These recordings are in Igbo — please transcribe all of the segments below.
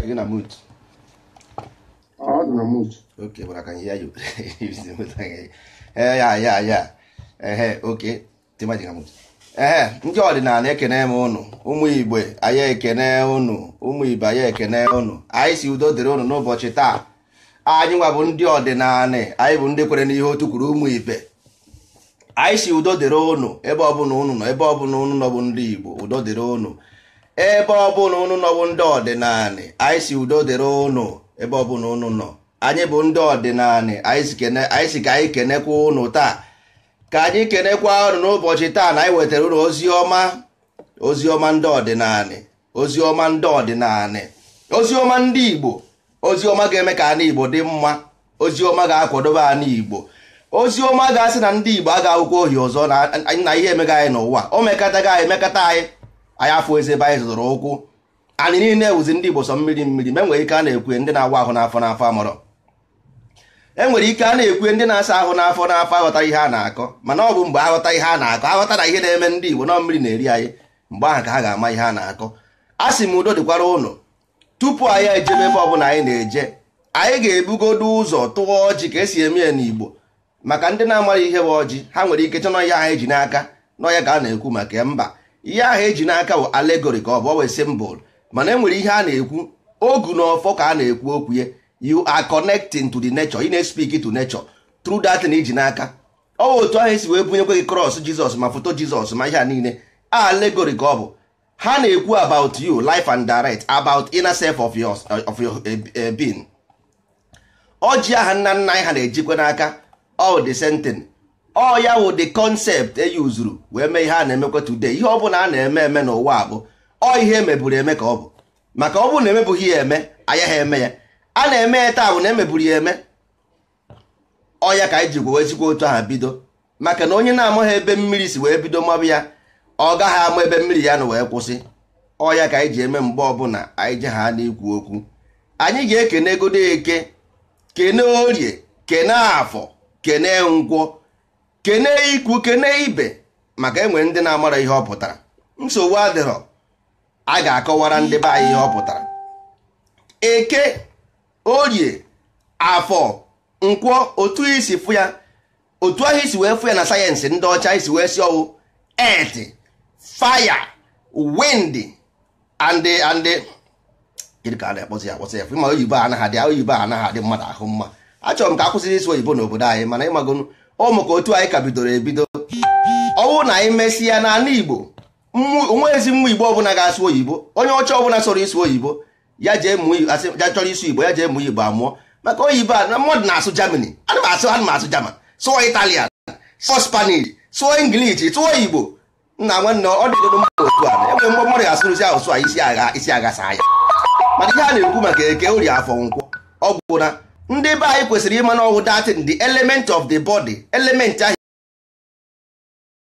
Okay, you're gonna mute. Oh, ah, I'm gonna mute. Okay, but I can ndị eh, ọdịnala ekene m ụnụ ụmụ igbe anyị ekene ụnụ ụmụ igbo anyị ekene ụnụ anyị si udo dịrị ụnụ n'ụbọchị taa anyị nwa bụ ndị ọdịnala anyị bụ ndị kwere n'ihe otu kwuru ụmụ igbe anyị si udo dịrị ụnụ ebe ọbụla ụnụ nọ ebe ọbụla ụnụ nọ bụ ndị igbo udo dịrị ụnụ ebe ọbụla unu nọbụ ndị ọdịnala anyị si udo dịrị ụnụ ebe ọbụla unu nọ anyị bụ ndị ọdịnala anyị si ka anyị kenekwa ụnụ taa ka anyị kenekwa ụnụ n'ụbọchị taa na anyị wetara ụnụ ozi ọma ozi ọma ndị ọdịnala ozi ọma ndị ọdịnala ozi ọma ndị Igbo ozi ọma ga-eme ka Igbo dị mma ozi ọma ga-akwadobe ana Igbo ozi ọma ga-asị na ndị Igbo ga akwụkwọ ohi ọzọ na ihe emega anyị n'ụwa o mekataga anyị anyị anya afọ ezi ebe anyị zụtụrụ ụkwụ anyị niile ewuzi ndị Igbo sọ mmiri mmiri ma enwere ike a na-ekwe ndị na-awa ahụ n'afọ n'afọ amọrọ enwere ike a na-ekwe ndị na-asa ahụ n'afọ n'afọ aghọta ihe a na-akọ mana ọ bụ mgbe aghọta ihe a na-akọ aghọta na ihe na-eme ndị Igbo na mmiri na-eri anyị mgbe ahụ ka ha ga-ama ihe a na-akọ a sị m udo dịkwara ụlọ tupu anyị ejebe ebe ọbụla anyị na-eje anyị ga-ebugodo ụzọ tụọ ọjị ka esi eme ya n'Igbo maka ndị na-amaghị ihe bụ ọjị ha nwere ike chọnọ ya anyị e ji n'aka n'ọya ka a na-ekwu maka mba ihe ahụ eji n'aka bụ alegori ka ọ bụ ọ wee symbol mana enwere ihe a na-ekwu ogu na ọfọ ka a na-ekwu okwu ye you are connecting to the nature ị na-speak to nature through that na iji e n'aka ọ otu ahụ esi wee bunyekwe gị cross Jizọs ma foto Jizọs ma ihe a niile alegori ka ọ bụ ha na-ekwu about you life and direct about inner self of your, of your eh, eh, being aha nna nna anyị ha na-ejikwa n'aka all the same thing ọ ya wụ the concept e yuzuru wee mee ihe a na-emekwa today ihe ọ bụla a na-eme eme n'ụwa bụ ọ ihe emeburu eme ka ọ bụ maka ọ bụrụ na emebughị ya eme ha eme ya a na-eme ya taa bụ na emeburu ya eme ọ ya ka anyị ji gwewezikwa otu aha bido maka na onye na-amaghị ebe mmiri si wee bido mabụ ya ọ gaghị ama ebe mmiri ya na wee kwụsị ọ ya ka anyị ji eme mgbe ọbụla anyị ji ha n'ikwu okwu anyị ga-ekene egodo eke kene orie kene afọ kene nkwọ kene ikwu kene ibe maka enwe ndị na-amara ihe ọ pụtara nsogbu adịrọ a ga-akọwara ndị be anyị ihe ọ pụtara eke orie afọ nkwọ otu isi fụ ya otu ahụ isi wee fụ ya na sayensị ndị ọcha isi wee si ọwụ et faya wind and and ma oyibo anaghị adị oyibo anaghị adị mmadụ ahụ mma achọrọ m ka akwụsịrị isi oyibo n'obodo anyị mana ịmagonu ọ maka otu anyị ka bidoro ebido ọwụ na anyị mesịa n'ala Igbo onwe ezi mmụ Igbo ọbụla ga-asụ oyibo onye ọcha ọbụla sọrọ isu oyibo ya jee chọrọ isu Igbo ya jee mụọ Igbo amụọ maka oyibo a mmadụ na-asụ jamani ana m asụ ana asụ German sụọ Italian sụọ Spanish sụọ English sụọ Igbo nna nwanne ọ dịgodo mmadụ otu a enwere mgbe mmadụ ga-asụrụzi asụsụ a isi agha isi agha saa ya mana ihe a na-ekwu maka eke ori afọ nkwọ ọgwụ gwụna ndị be anyị kwesịrị ịma na ọwụ datin the element of the body element ahụ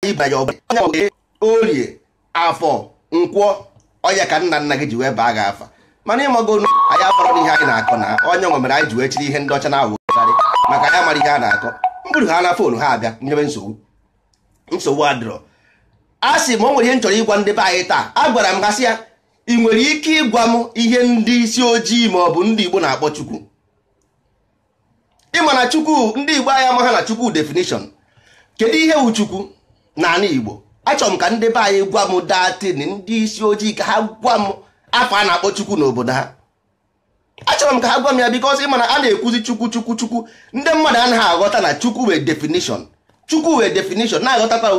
ịbanye orie afọ nkwọ ọya ka nna nna gị ji wee baa gị afa mana ịmago na anyị akọrọ n'ihe anyị na-akọ na onye nwe mere anyị ji wee chiri ihe ndị ọcha na-awụgharị maka anyị mara ihe a na-akọ mkpụrụ ha na fonu ha abịa nyebe nsogbu nsogbu adịrọ a sị ma o nwere ihe m chọrọ ịgwa ndị be anyị taa a gwara m gasị ya ị nwere ike ịgwa m ihe ndị isi ojii ma ọ bụ ndị Igbo na-akpọ Chukwu ịma na chukwu ndị igbo anyị amaghị na chukwu definition kedu ihe wu chukwu n'ala igbo achọrọ m ka ndị be anyị gwa m datin ndị isi ojii ka ha gwa m afọ a na-akpọ chukwu n'obodo ha achọrọ m ka ha gwa m ya bikos ịma na a na-ekwuzi chukwu chukwu chukwu ndị mmadụ anaghị aghọta na chukwu wee definition chukwu wee definition na-aghọtakwa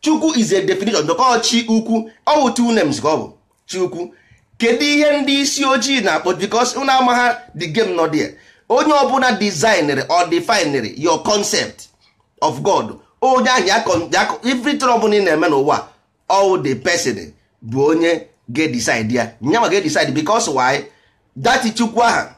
chukwu is a definition dọkọ chi ukwu ọ bụ two names ka ọ bụ chi ukwu kedu ihe ndị isi ojii na-akpọ bikos ụnụ amaghị the game nọ onye ọbụla designer or definere your concept of god onye ahụ ya ọbụla ị na-eme n'ụwa all the person bụ onye ga ya nyanwa ga-decide because why that chukwu aha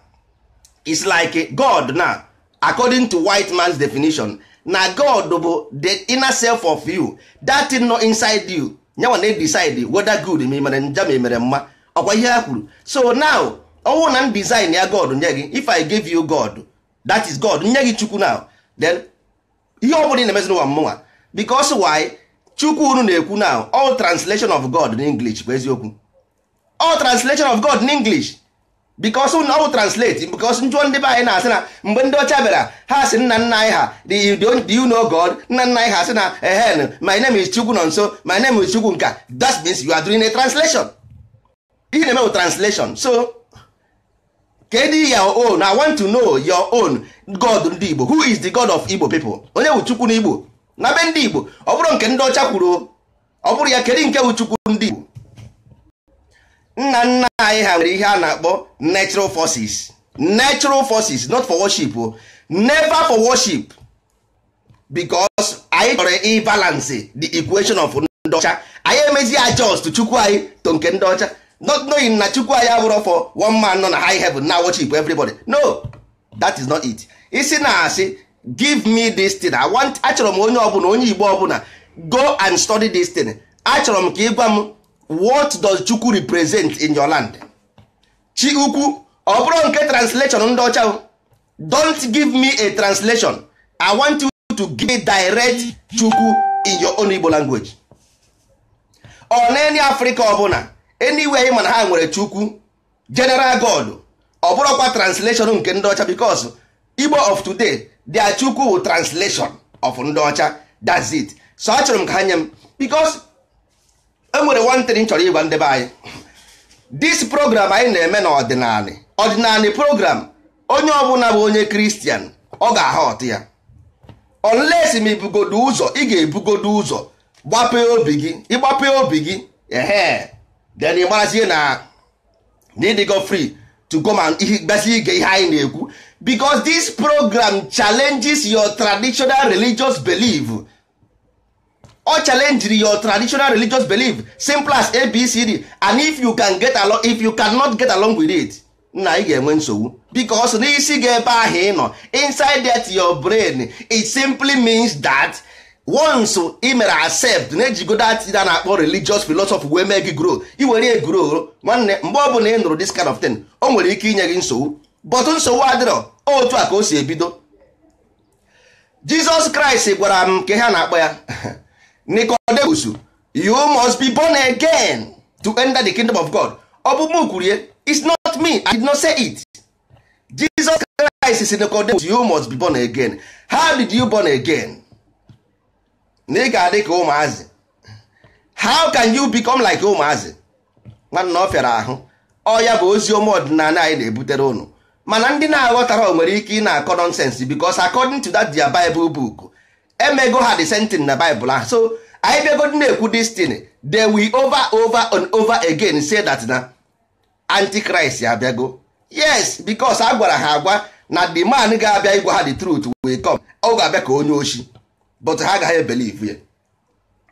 is like god na according to white man's definition na god bụ the inner self of you that is nọ inside you nyanwa na-decide whether good ma ị mere njọ mma ọkwa ihe ha kwuru so now ọnwụ na design ya god nye gị if i gave you god that is god nye gị chukwu now then ihe ọ bụla ị na-emezi n'ụwa mmụnwa because why chukwu unu na-ekwu now all translation of god in english bụ eziokwu all translation of god in english because all translate because njụọ ndị be anyị na-asị na mgbe ndị ọcha bịara ha sị nna nna anyị ha you know god nna nna anyị ha sị na ehen my name is chukwu nọ nso my name is chukwu nka that means you are doing a translation ihe na-eme translation so kedu your own i want to know your own god ndị igbo who is the god of igbo pipo onye bụ chukwu n'igbo n'abe ndị igbo ọ bụrụ nke ndị ọcha kwuru ọ bụrụ ya kedu nke bụ chukwu ndị igbo nna nna anyị ha nwere ihe a na-akpọ natural forces natural forces not for worship o never for worship because anyị chọrọ ịbalance the equation of ndị ọcha anyị emezie adjust chukwu anyị to nke ndị ọcha not knowing na chukwu anyị abụrụ for one man nọ na high heaven na worship everybody no that is not it isi na asị give me this thing i want achọrọ m onye ọbụla onye igbo ọbụla go and study this thing achọrọ m ka ịgwa m what does chukwu represent in your land chi ukwu ọ bụrụ nke translation ndị ọcha don't give me a translation i want you to give me direct chukwu in your own igbo language ọ na any africa ọbụla anywhere anyị mana ha nwere chukwu general god ọ bụrụkwa translation nke ndị ọcha because igbo of today dia chukwu bụ translation of ndị ọcha that's it so achọrọ m ka ha nye m because enwere one thing chọrọ ịgwa ndebe anyị this program anyị na-eme n'ọdịnala ọdịnala program onye ọbụla bụ onye kristian ọ ga-aha ọtụ ya unless ma ibugodo ụzọ ị ga-ebugodo ụzọ gbapee obi gị ịgbapee obi gị then ị gbarazie na ịdịgo free to go ma gbasi ige ihe anyị na-ekwu because this program challenges your traditional religious belief ọ challenge your traditional religious belief simple as abcd and if you can get along if you cannot get along with it na ị ga-enwe nsogbu because n'isi gị ebe ahụ ị nọ inside that your brain it simply means that once ị mere accept na-ejigo that a na-akpọ religious philosophy wee mee gị grow iwere ya grow nwanne mgbe ọ bụ na ị nụrụ this kind of thing o nwere ike inye gị nsogbu but nsogbu adịrọ otu a ka o si ebido Jesus Christ gwara m nke ha na-akpọ ya Nicodemus you must be born again to enter the kingdom of God ọ bụ m kwuru ya it's not me I did not say it Jesus Christ si Nicodemus you must be born again how did you born again na ị ga-adị ka ụmụazị how can you become like ụmụazị nwanna ọ fịara ahụ Oya bụ ozi ome ọdịnala anyị na-ebutere ụnụ mana ndị na-aghọtara o nwere ike ị na-akọ nonsense because according to that their Bible book emego ha the same thing na Bible ahụ so anyị bịagodi na-ekwu destiny they we over over and over again say that na antichrist abịago yes because a gwara ha agwa na the man ga-abịa ịgwa ha the truth will come ọ ga-abịa ka onye ochie. but ha agaghị ebelivu ya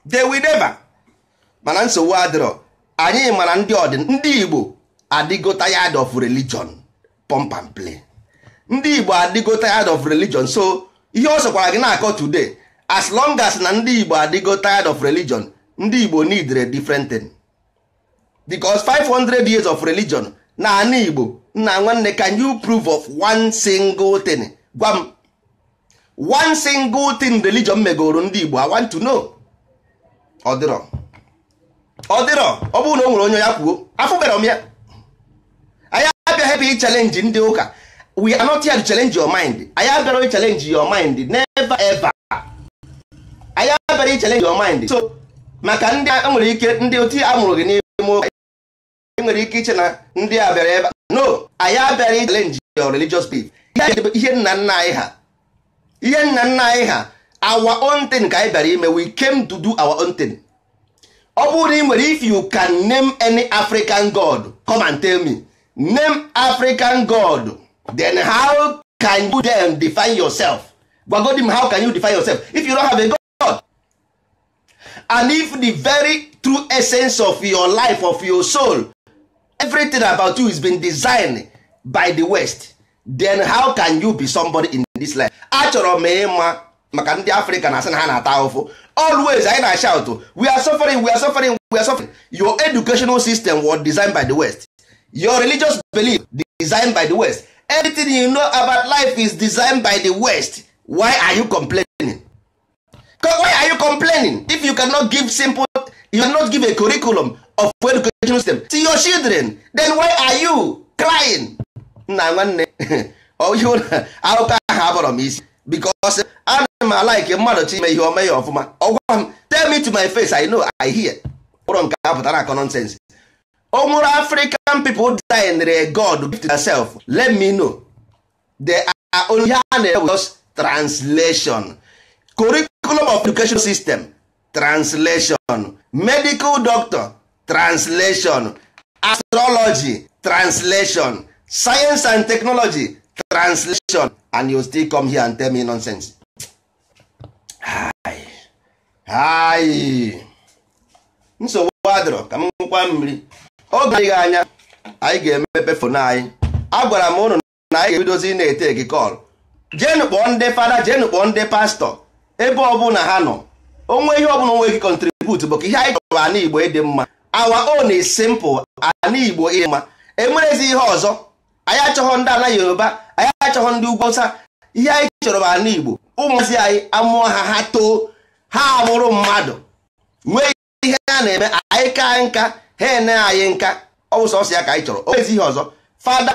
de will mana nsogbu adịrọ anyị mara ndị ọdịn ndị Igbo adịgo tired of religion pump and play ndị Igbo adịgo tired of religion so ihe ọ sọkwara gị na-akọ today as long as na ndị Igbo adịgo tired of religion ndị Igbo need a different thing because 500 years of religion na anị Igbo nna nwanne can you prove of one single thing gwa m one single thing religion megoro ndị Igbo I want to know Ọdịrọ. Ọdịrọ ọ bụrụ na o nwere onye ya kwuo afụbere m ya anyị abịaghị ebe ị ndị ụka we are not here to challenge your mind anyị abịara ị challenge your mind never ever anyị abịara ị challenge your mind so maka ndị a e nwere ike ndị oti amụrụ gị n'ime ụka e nwere ike iche na ndị a bịara ebe no anyị abịara ị challenge your religious belief ihe nna nna anyị ha ihe nna nna anyị ha our own thing ka anyị bịara ime we came to do our own thing ọ bụrụ na ị nwere if you can name any african god come and tell me name african god then how can you then define yourself gwagodi m how can you define yourself if you don't have a god and if the very true essence of your life of your soul everything about you is been designed by the west then how can you be somebody in this life achọrọ m ịma maka ndị afrịka na asị na ha na-ata ahụfụ always anyị na shout we are suffering we are suffering we are suffering your educational system was designed by the west your religious belief designed by the west everything you know about life is designed by the west why are you complaining why are you complaining if you cannot give simple you cannot give a curriculum of educational system to your children then why are you crying nna nwanne oyibo na akụkọ ahụ abọrọ m isi because ana m alaike mmadụ chi ime ihe ome ya ọfụma ọgwa m tell me to my face i know i hear ụrọ nke apụtara akọ nonsense o nwere african design re god gift herself let me know they are only ha na just translation curriculum of education system translation medical doctor translation astrology translation science and technology translation and you still come here and tell me nonsense ayi nsogbu adịrọ ka m nkwa mmiri oge adịghị anya anyị ga-emepe fonu anyị agwara m ụnụ na anyị ga-ebidozi na-ete gị kọl jenụ kpọọ ndị fada jenụ kpọọ ndị pastọ ebe ọbụla ha nọ onwe ihe ọbụla onwe gị kọntribut bụ ka ihe anyị chọrọ ana igbo ịdị mma awa o is simple ana igbo ịdị mma enwerezi ihe ọzọ anyị achọghọ ndị ala yoruba anyị achọghọ ndị ugwu awụsa ihe anyị chọrọ bụ ala igbo ụmụazị anyị amụọ ha ha too ha amụrụ mmadụ nwee ihe ha na-eme anyị ka nka ha ene anyị nka ọ bụ sọsọ ya ka anyị chọrọ o nwezi ihe ọzọ fada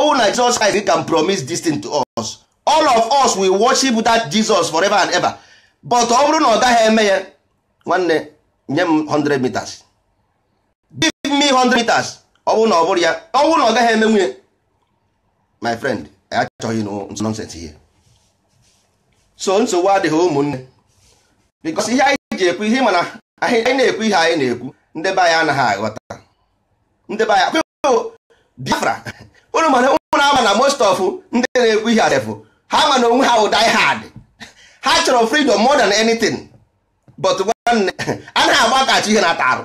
ọwụ na Jesus Christ can promise this thing to us all of us will worship that Jesus forever and ever but ọ bụrụ na ọ gaghị eme ya nwanne nye m 100 meters give me 100 meters ọ bụrụ na ọ bụrụ ya ọ bụrụ na ọ gaghị eme nwunye my friend achọghị nonsense ihe so nsogbu adịghị ụmụnne because ihe anyị ji ekwu ihe mana anyị na-ekwu ihe anyị na-ekwu ndebe anyị anaghị aghọta Ndebe be anyị Biafra ụnụ mana ụmụrụ ama na most of ndị na-ekwu ihe adefụ ha ma na onwe ha wụ die hard ha chọrọ freedom more than anything but nwanne anaghị agbakachi ihe na-ata arụ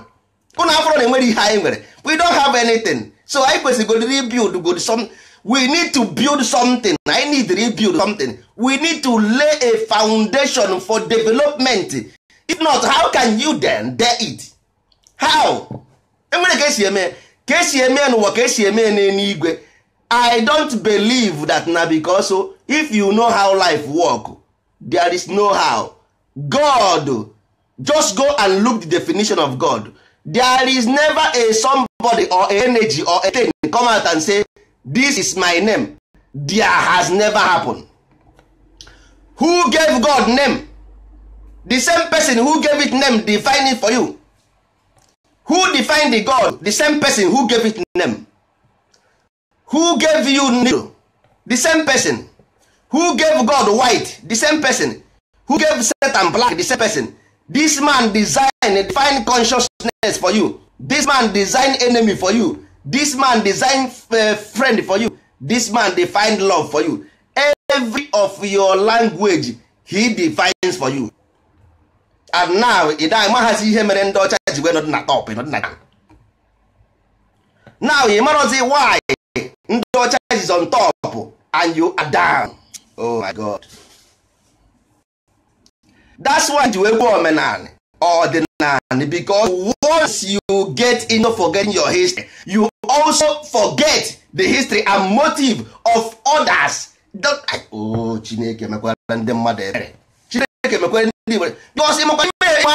afọrọ na enwere ihe anyị nwere we don't have anything so anyị basically rebuild good some we need to build something I need to rebuild something we need to lay a foundation for development if not how can you then dare it how enwere ka esi eme ka esi eme n'ụwa ka esi eme I don't believe that na because oh, if you know how life work there is no how God just go and look the definition of God there is never a somebody or energy or a thing come out and say this is my name there has never happened who gave god name the same person who gave it name define it for you who defined the god the same person who gave it name who gave you new the same person who gave god white the same person who gave set and black the same person this man design fine consciousness for you this man design enemy for you this man design eh, friend for you this man define love for you every of your language he defines for you and now ị da amaghazi ihe mere ndị ọcha ji wee nọdị na top nọdị na now ị marazi why ndị ọcha is on top and you are down oh my god that's why ji wee gwa omenanị ọdịnanị because once you get into forgetting your history you also forget the history and motive of others o oh, chineke mekwara ndị mmadụ ebere chineke mekwara ndị igbo bikos ịmakwa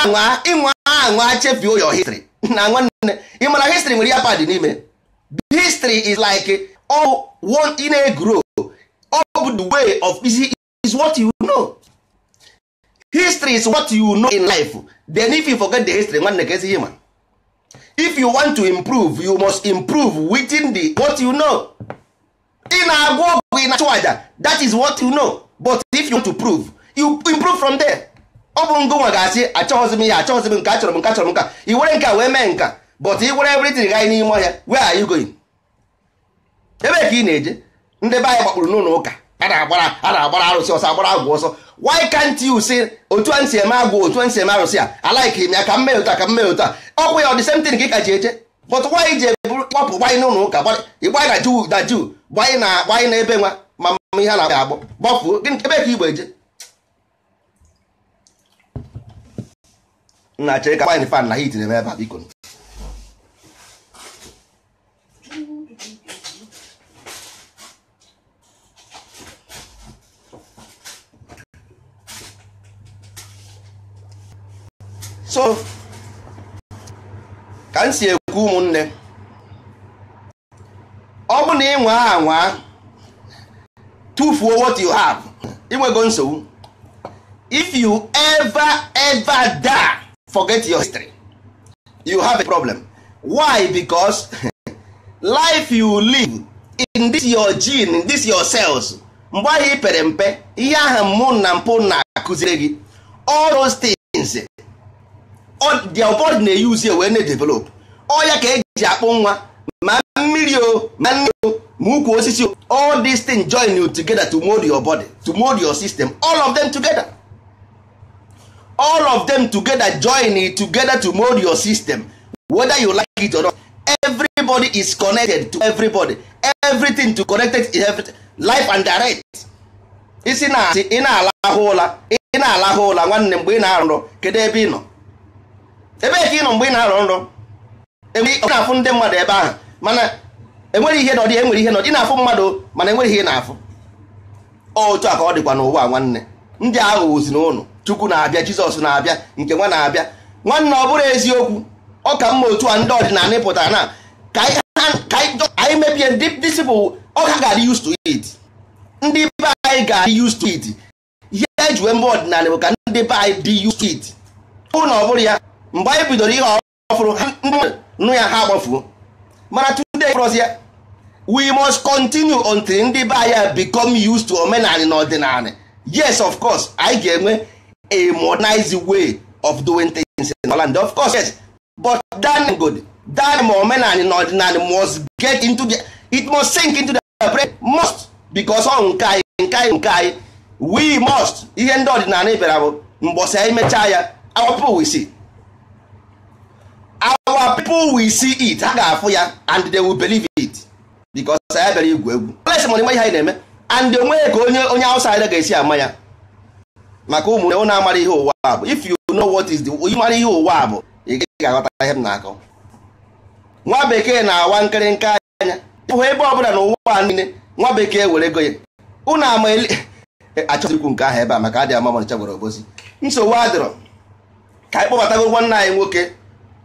ịnwa ịnwa anwa chefuo your history na nwanne ịmara history nwere ya pad n'ime history is like all oh, one in a grow all the way of is, is what you know history is what you know in life then if you forget the history nwanne ka ezi ma if you want to improve you must improve within the what you know ị na-agwa ọgwụ ị na-achụ aja that is what you know but if you want to prove you improve from there ọ bụrụ nwa ga-asị achọghịzi m ya achọghịzi m nke achọrọ m nke achọrọ m nka i were nke a wee mee nka but i were everything ganyị n'ime ọhịa where are you going ebe ka ị na-eje ndị be anyị gbakpụrụ n'ụlọ ụka a na-agbara arụsị ọsọ agbara agwụ ọsọ why can't you say otu a nsi eme agwụ otu a nsi eme arụsị a alaiki m ya ka mmehie mee ụta ka m mee ọ bụ ya ọ dị same thing ka ji eje but nwaanyị ji eburu kpọpụ gbanyị n'ụlọ ụka ịgbanyị na juu na juu gbanyị na gbanyị na ebe nwa ma ihe a na-agba agbọ gbafuo gịnị ebe ka igbo eje nna chere ka gbanyị fan na hit na-eme ebe a biko so ka m si ekwu ụmụnne ọ bụ na ịnwa anwa tufuo what you have inwego nsogbu if you ever ever die forget your history you have a problem why because life you live in this your gene in this your cells mgbe ahụ pere mpe ihe ahụ mụ na mpụ na-akụziri gị all those things their body na-eyuzi wee na-edevelop ọya ka eji akpụ nwa ma mmiri o ma nne o ma ukwu osisi o all these things join you together to mold your body to mold your system all of them together all of them together join it together to mold your system whether you like it or not everybody is connected to everybody everything to connected is everything. life and direct isi na-asị ị na-alahụ ụla ị na-alahụ ụla nwanne mgbe ị na-arụrụ kedu ebe ị nọ ebee ka ị nọ mgbe ị na-arọ nrọ e na-afụ ndị mmadụ ebe ahụ mana enwere ihe nọdị enwere ihe nọdị na-afụ mmadụ mana enwere ihe na-afụ otu a ka ọ dịkwa n'ụwa nwanne ndị aghụghọzi na ụnụ chukwu na-abịa jizọs na-abịa nke nwa na-abịa nwanne ọ bụrụ eziokwu ọ ka mma otu a ndị ọdịnala pụtara na ka anyị mebie disipụl ọ ka ga-adị used to it ndị be anyị ga-adị used to it ihe ejiwe mba ọdịnala bụ ka ndị be anyị dị used to it ọ na ọ bụrụ ya mgbe anyị bidoro ihe ọfụrụ nụ ya ha agbafuo mana today fọrọzi ya we must continue until ndị be anyị become used to omenala na ọdịnala yes of course anyị ga-enwe a modernized way of doing things in Holland of course yes but that good that ma omenala na ọdịnala must get into the it must sink into the brain must because ọ nke anyị nke anyị nke anyị we must ihe ndị ọdịnala bịara bụ mgbọsị anyị mechaa ya awapụ we see our people will see it ha ga-afụ ya and they will believe it because ya bịara igwu egwu place mana ihe anyị na-eme and onwe ya ka onye onye outsider ga-esi ama ya maka ụmụ ụmụnne na-amara ihe ụwa a bụ if you know what is the ịmara ihe ụwa a bụ ị ga-aghọta ihe m na-akọ nwa bekee na-awa nke anya hụ ebe ọbụla na ụwa niile nwa bekee were ego ya ụnụ ama e, achọghịkwu nke ahụ ebe a maka adị ama mọnịcha gwara obozi nsogbu adịrọ ka anyị kpọbatago nwanne anyị nwoke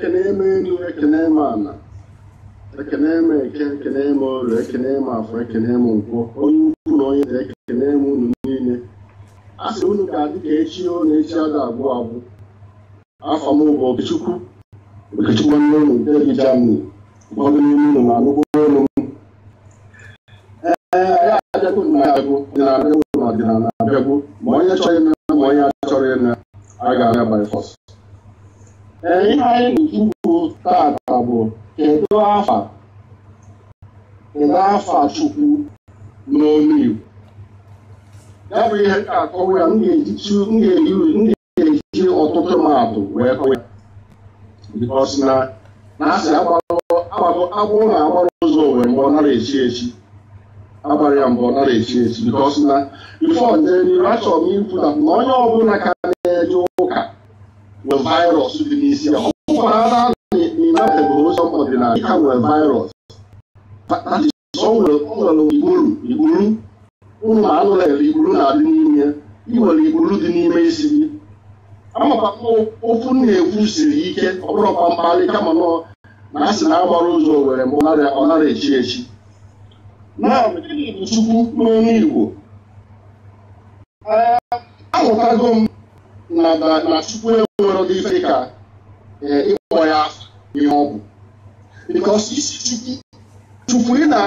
ekene eme elu ekene eme ala ekene eme eke ekene eme ọrụ ekene eme afọ ekene eme nkwọ onye ukwu na onye ekene eme unu niile a sị unu ka adị ka echi na echi a ga-abụ abụ afọ m bụ okechukwu okechukwu nne unu degi jamani ụfọdụ n'ime unu ma anụgbo olu m ee ya abịagbo na abịagbo dị na abịagbo na ọdịnala abịagbo ma onye chọrọ ịna ma onye achọrọ ịna a ga-abịa bifọs. Ee, ihe anyị na-ekwu taata bụ kedu afa kedu afa Chukwu n'olu Igbo ya bụ ihe akọwa ya m ga-eji ọtụtụ maatụ wee kọwa ya bikọs na na asị agbụ na-agbara ụzọ wee mgbe ọ nara echi echi agbara ya mgbe ọ nara echi echi bikọs na ife ọdịnihu achọrọ m ikwu na onye ọbụla ka nwere virus dị n'isi ya ọ bụkwara na bụ onye ọdịnala ka nwere virus nwere igburu igburu ụmụ anụ na igburu na-adị n'ime ị nwere igburu dị n'ime isi gị ofu na-ekwu siri ike ọ bụrụ mkpamkparị kama na asị na agbara ụzọ were nara echi echi chukwu Igbo ahụtago m na na Chukwu enwere ụdị ka e, ịkpọ ya ihe ọ Chukwu Chukwu ị na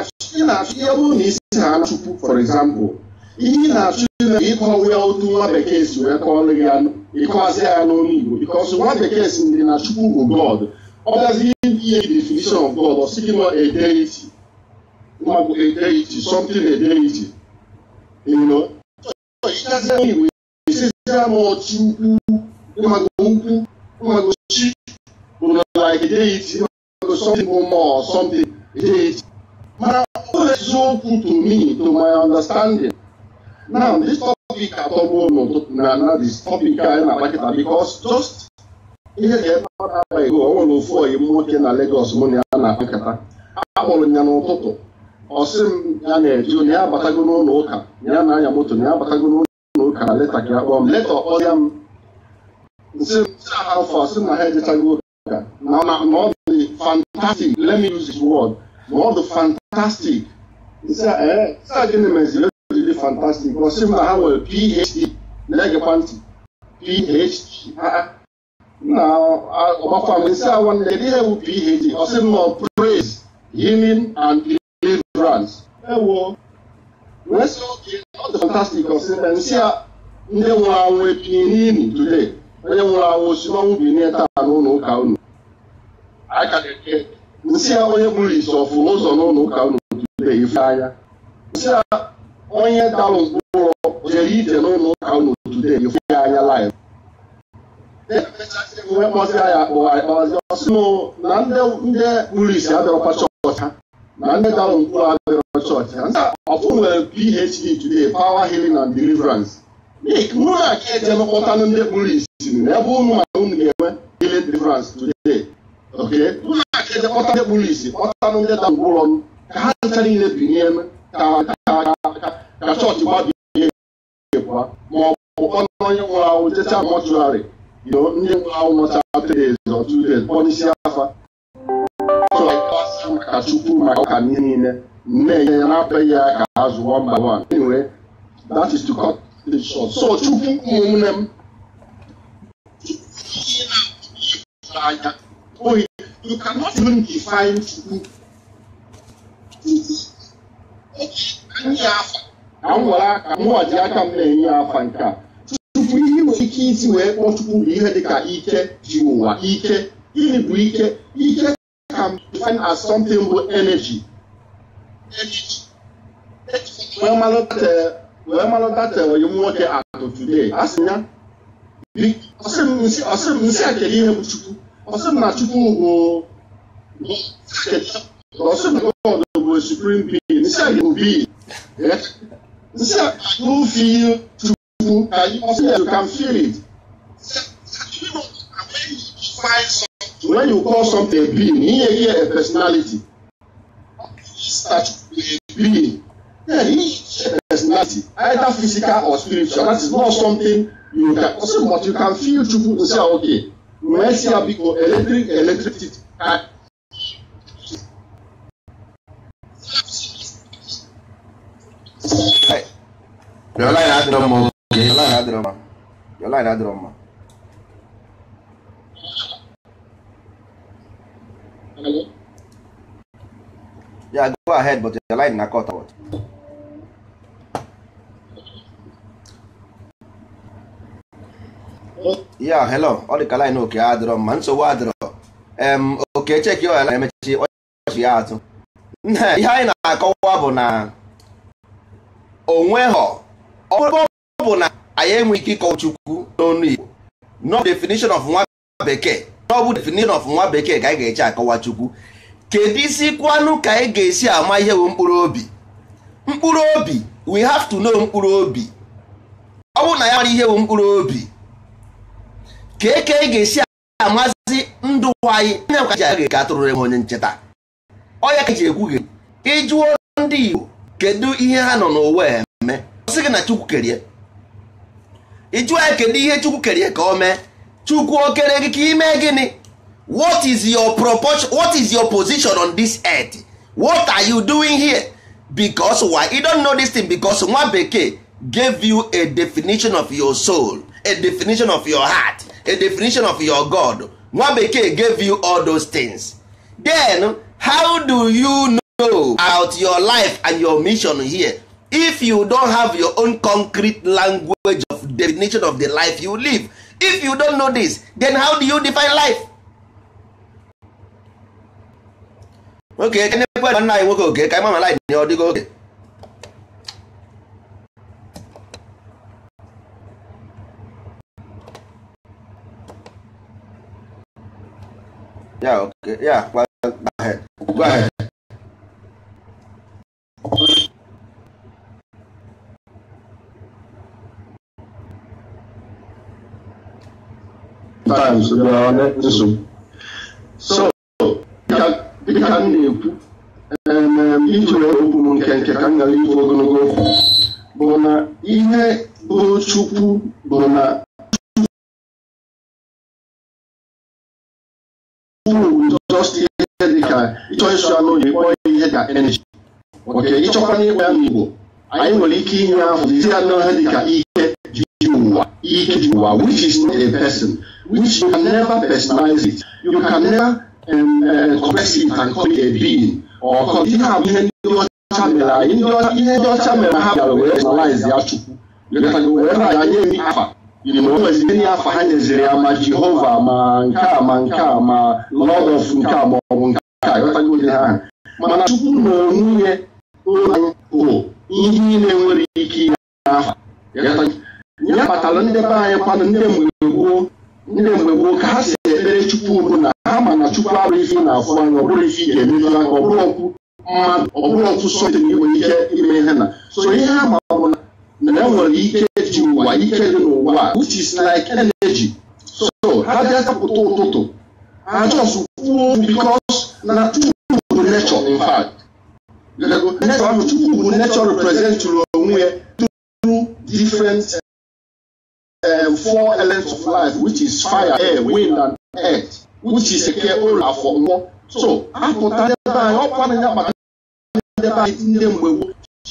na isi ha Chukwu for example ihe ị na-achụ na ịkọwa ya otu nwa bekee si wee kọọlụ ya ịkọwazi ya n'olu Igbo because nwa bekee si ndị na Chukwu bụ God ọ bịazi ihe e definition of God ọ gị nọ a deity ma bụ a deity something you know motsi ukwu ịmago ukwu ịmago chi mana ọ eziokwu to me to my understanding now this topic atọgbu n'ụtụtụ na na this topic anyị na-agbakịta because just ihe ga-ebe ọ nwere ofu oyi m nwoke na Lagos mụ na ya na-akpa akpọrọ ya n'ụtụtụ ọ sị m ya na-eje na ya abatago n'ụlọ ụka ya na-anya moto na ya abatago n'ụlọ ka leta akpa m leta ọkpọrọ ya m nsị afọ a sị na ha ejechago ka na ọ dị fantastic let me use this word ma ọ dị fantastic nsị a ee eh, sa gịnị meziri ejiri fantastic ọ sị m na ha nwere phd na-egekwa ntị phd na ọgbakwa m nsị a nwanne ihe ewu phd ọ sị m nọ praise healing and deliverance ewo wee sị oke ọ dị fantastik ọsị na nsị a ndị nwụrụ anwụ epinye n'ili tude onye nwụrụ anwụ si n'ọnwụ bi nne taa n'ụlọ ụka unu nsị a onye gburu isi ọfụ ụzọ n'ụlọ ụka unu tude ife anya nsị a onye dalụ mkpụrụ jere ije n'ụlọ ụka unu tude ife anya laịf e wee kpọzi ya akpọ akpọzi ọsị na ndị gburu isi abịakwa chọọchị ha na ndị dalụ mkpụrụ abịara ọ ọfụ nwere PhD today power healing and deliverance mụ na ka eje mekpọtanụ ndị kpụrụ isi n'ebe ụmụ maka unu ga enwe healing deliverance today mụ na ka eje ndị kpụrụ isi kpọtanụ ndị da ngwụrọ m ka ha ncha niile binye ka chọọchị gbabie ihe ebua ma nwụrụ ahụ jecha mọchụarị ndị nwụrụ ahụ nọcha three days kpọnisi afa niile men yẹn abẹ ya ka azụ one by one anyway that is to cut the short so chukwu ụmụnne m you cannot even define chukwu anyị ka m were aka m waji aka m na-enye afa nke chukwu ihe nwere ike isi wee kpọọ chukwu bụ ihe dịka ike ji ụwa ike gịnị bụ ike ike can define as something bụ energy you want today, wɛmalɔdatɛ wɔyemɔtɛ atɔtude asinya bi ɔsɛm nsi akɛyi hɛ chukwu ɔsɛm na chukwu wo ɔsɛm na god wo supreme being nsi ayɛ obi nsi eh? no feel chukwu ɔsɛm you can feel it when you call something a being he yɛ yɛ a personality start with a being. Yeah, each personality, either physical or spiritual, that is not something you can also, but you can feel truthful to say, ah, okay, when see how big electric, electricity. Your line had drama. Your line had drama. Your line had drama. ya go ahead, but the line na cut out. Yeah, hello. Ọ dị ka line oke adịrọ mma nsogbu adịrọ. Em oke cheki ya na emechi ọchị ya atụ. Ihe anyị na-akọwa bụ na onweghọ ọ bụ na anyị enwe ike ịkọwa Chukwu n'ọnụ Igbo. No definition of nwa bekee. No bụ definition of nwa bekee ka anyị ga-eche akọwa Chukwu. kedu isi kwanụ ka ị ga-esi ama ihe bụ mkpụrụ obi mkpụrụ obi we have to know mkpụrụ obi ọ bụrụ na ya mara ihe bụ mkpụrụ obi ka eke anyị ga-esi amazi ndụ anyị anya ka ji aga ka atụrụ enwe onye ncheta ọya ka e ji ekwu gị ịjụọ ndị Igbo kedu ihe ha nọ n'ụwa eme ọ sị gị na Chukwu kerie ịjụọ ya kedu ihe Chukwu kerie ka o mee Chukwu okere gị ka ime gịnị what is your proportion what is your position on this earth what are you doing here because why you don't know this thing because nwa bekee gave you a definition of your soul a definition of your heart a definition of your god nwa bekee gave you all those things then how do you know about your life and your mission here if you don't have your own concrete language of definition of the life you live if you don't know this then how do you define life oke ekenekwe nwanne anyị nwoke oke ka ịma mala nye ọ dịgo oge ya oke ya go ahead go ahead times nsogbu ka m na-ekwu iji okwu m nke nke ka m gara ikwu ogologo okwu bụ na ihe bụ chukwu bụ na just ihe ya n'Igbo anyị nwere ike inye ahụ isi anụ ha dị ka ụwa ike ji ụwa which is not a person which you can never personalize it you can never expressive and call it a being or ihe a bụ ihe ndị ọcha mere anyị ihe ndị ọcha mere ha bịara were personalize ya chukwu were na ya nye afa nweziri nye afa ha nyeziri ya ma jehova ma nke a ma nke a ma lọd ọf nke a ma ọ nke a ghọtagoge ha aha mana chukwu na onwunye ụlọ bụ ihe niile nwere ike ime afa. ya kpatara ndị be anyị kwanụ ndị mgbe gboo ndị mgbe gboo ka ha si ekpere Chukwu na ha ma na Chukwu abụghị ife na-afụ anya ọ bụrụ ga-emeju anya ọ mmadụ ọ ọkụ sọtin nwere ike ime ihe na so ihe ha ma bụ na enwere ike ji ụwa ike dị n'ụwa which is like energy so ha bịa kapụta ụtụtụ ha just kwuo because na Chukwu bụ nature in fact nature ahụ Chukwu bụ nature represent onwe ya through different uh, four elements of life, which is fire, air, wind, and earth, which is eke ụlọ afọ mmụọ. So apụta n'ebe anyị ọkwa na nyaba n'ebe anyị ndị mgbe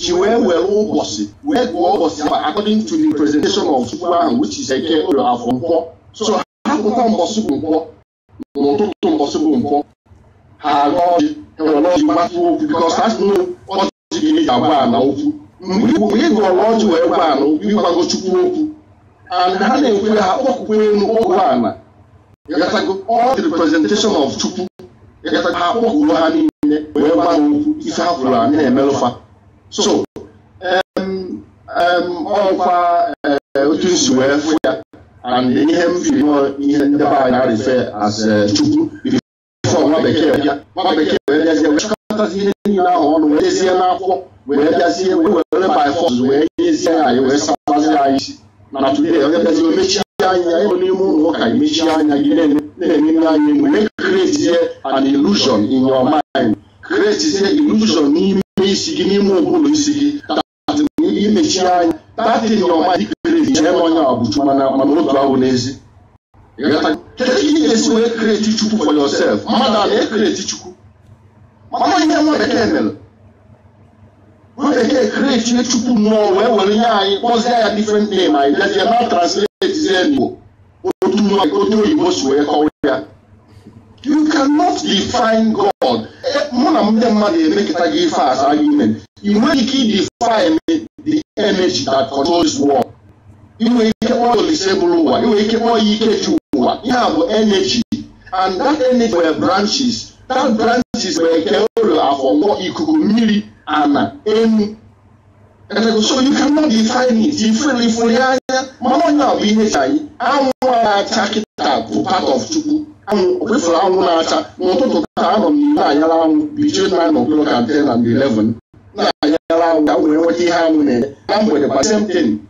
ji wee were ụbọchị wee gụọ ụbọchị ahụ according to the presentation of chukwu ahụ which is eke ụlọ afọ nkwọ. So ha pụta mbọsị bụ nkwọ n'ụtụtụ mbọsị bụ nkwọ ha agụ ọjị ha were ọjị matụ okwu because e ha si n'ọjị ga-eji agwa ala okwu mgbe ị gụrụ ọjị wee gwa ala okwu ịgwago chukwu okwu and ha na-ekwe ha okpukpe elu ala all the representation of Chukwu ha kpọkuru ha niile wee gbanwe okwu ife ha bụrụ anyị na-emelụfa so ọkwa eh, otu nsi wee fụ ya and ihe m firi ihe ndị be anyị na-arife as eh, Chukwu ife nwa bekee bịa nwa bekee wee bịazie wee chọkọtazi ihe niile ahụ ọnụ wee dezie n'akwụkwọ wee bịazie wee were by force wee nyezie anyị wee sabazie anyị isi Natumia yazo mechi anya emu nimu woka mechi anya gine nene anya mu make create an illusion in your mind create here illusion n'ime isi gị n'ime ụbụrụ isi gị that imechi anya that in your mind create chee onye abụchu mana otu ahụ n'ezi ga-esi wee create chukwu for yourself mmadụ a ekreti chukwu mana ihe nwa bekee mere when they dey create ihe chukwu mmụọ wee were ihe anyị kpọzie ya different name anyị bịazie na translate zie n'igbo otu oyibo si wee kọwa ya you cannot define god mụ na ndị make it a ife as argument ị nwere ike idefine the energy that controls war. You nwere ike kpọọ olise bụrụ ụwa ị nwere ike kpọọ ya ike ji ụwa ihe a bụ energy and that energy were branches that branches were nke ụlọ afọ ikuku mmiri ana any. And so you cannot define it differently for the other. Mama now be HI. I want to attack it up part of Chubu. I'm with for I want to attack. Not to town on Nayala between nine o'clock and ten and eleven. Nayala, that will what he had with I'm with the same thing.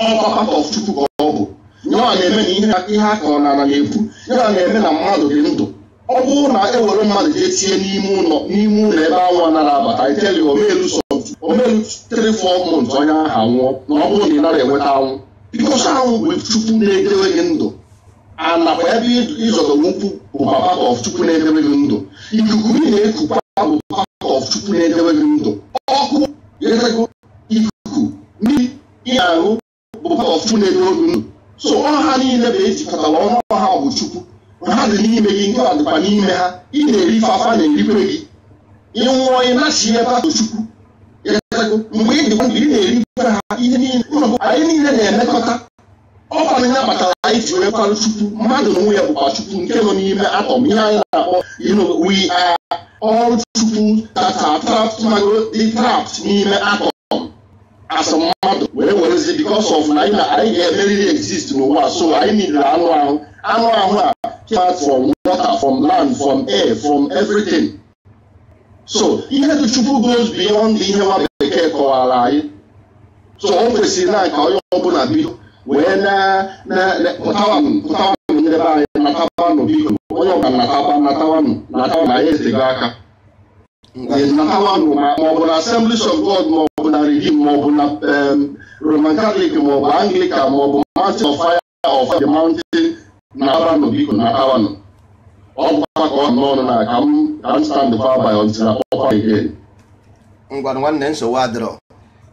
All part of Chubu. Nyɔ a na-eme na ihe aka ọ na na na-ekwu, nyɔ a na-eme na mmadụ dị ndụ ọ bụrụ na ewere mmadụ jee tie n'ime ụlọ n'ime ụlọ ebe anwụ nara abata iteli omelu 3-4 months onye aha nwụọ na ọ bụrụ na ị nara enweta anwụ bikosi anwụ bụ chukwu na-edewe gị ndụ anakwa ebe ịzọdọrọ ukwu bụ part of chukwu na-edewe gị ndụ ikuku ị na-ekukwa bụ part of chukwu na-edewe gị ndụ ọkụ ikuku mmiri ị bụ part of chukwu na-edewe gị ndụ so ọha niile bụ ejikọtara ọnụ ọha bụ chukwu na ha dị n'ime gị nke a dịkwa n'ime ha ị na-eri ife afa na-erikwe gị ị ịnwụọ ịnachi ebe ahụ chukwu mgbe ị dịkwa ị na-eri ife ha ihe niile anyị niile na-emekọta ọkwanụ ya kpatara anyị ji wee kwarụ chukwu mmadụ na onwe ya bụkwa chukwu nke nọ n'ime atọm ihe anyị na-akpọ we are all chukwu tata are trapped magodi trapped n'ime atọm as mmadụ wee werezie because of na anyị ga-emeriri exist n'ụwa so anyị niile anụ ahụ anụ ahụ a came out from water from land from air from everything so ihe dị chukwu goes beyond ihe nwa bekee kọwara anyị so o kwesịrị na nke onye ọbụla bido wee na pụtawanụ pụtawanụ ndị anyị natawanụ biko onye ọbụla natawa natawanụ natawa na anyị ezego aka natawanụ ma ọ bụ na Assemblies of God ma ọ bụ na Redeem ma ọ bụ na um, Roman Catholic ma ọ bụ Anglican ma ọ bụ Mountain of Fire of the Mountain na-akpabanụ biko na-akawanụ ọ bụkwa ka ọ n'ọnụ na ka m ka m stand far by until na ọkwa again. ngwa nwanne nsogbu adịrọ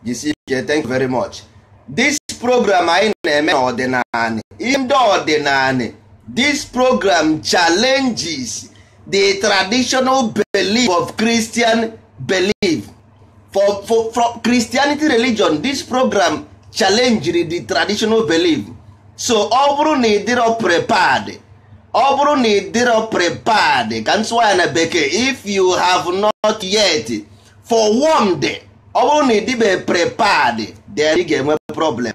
jisie ike thank you very much this program anyị na-eme n'ọdịnala ihe ndị ọdịnala this program challenges the traditional belief of Christian belief for for for Christianity religion this program challenges the traditional belief so ọ bụrụ na ịdịrọ prepad ọ bụrụ na ịdịrọ prepad ka m tụwa na bekee if you have not yet for forewarned ọ bụrụ na ịdịbe prepad then ị ga-enwe problem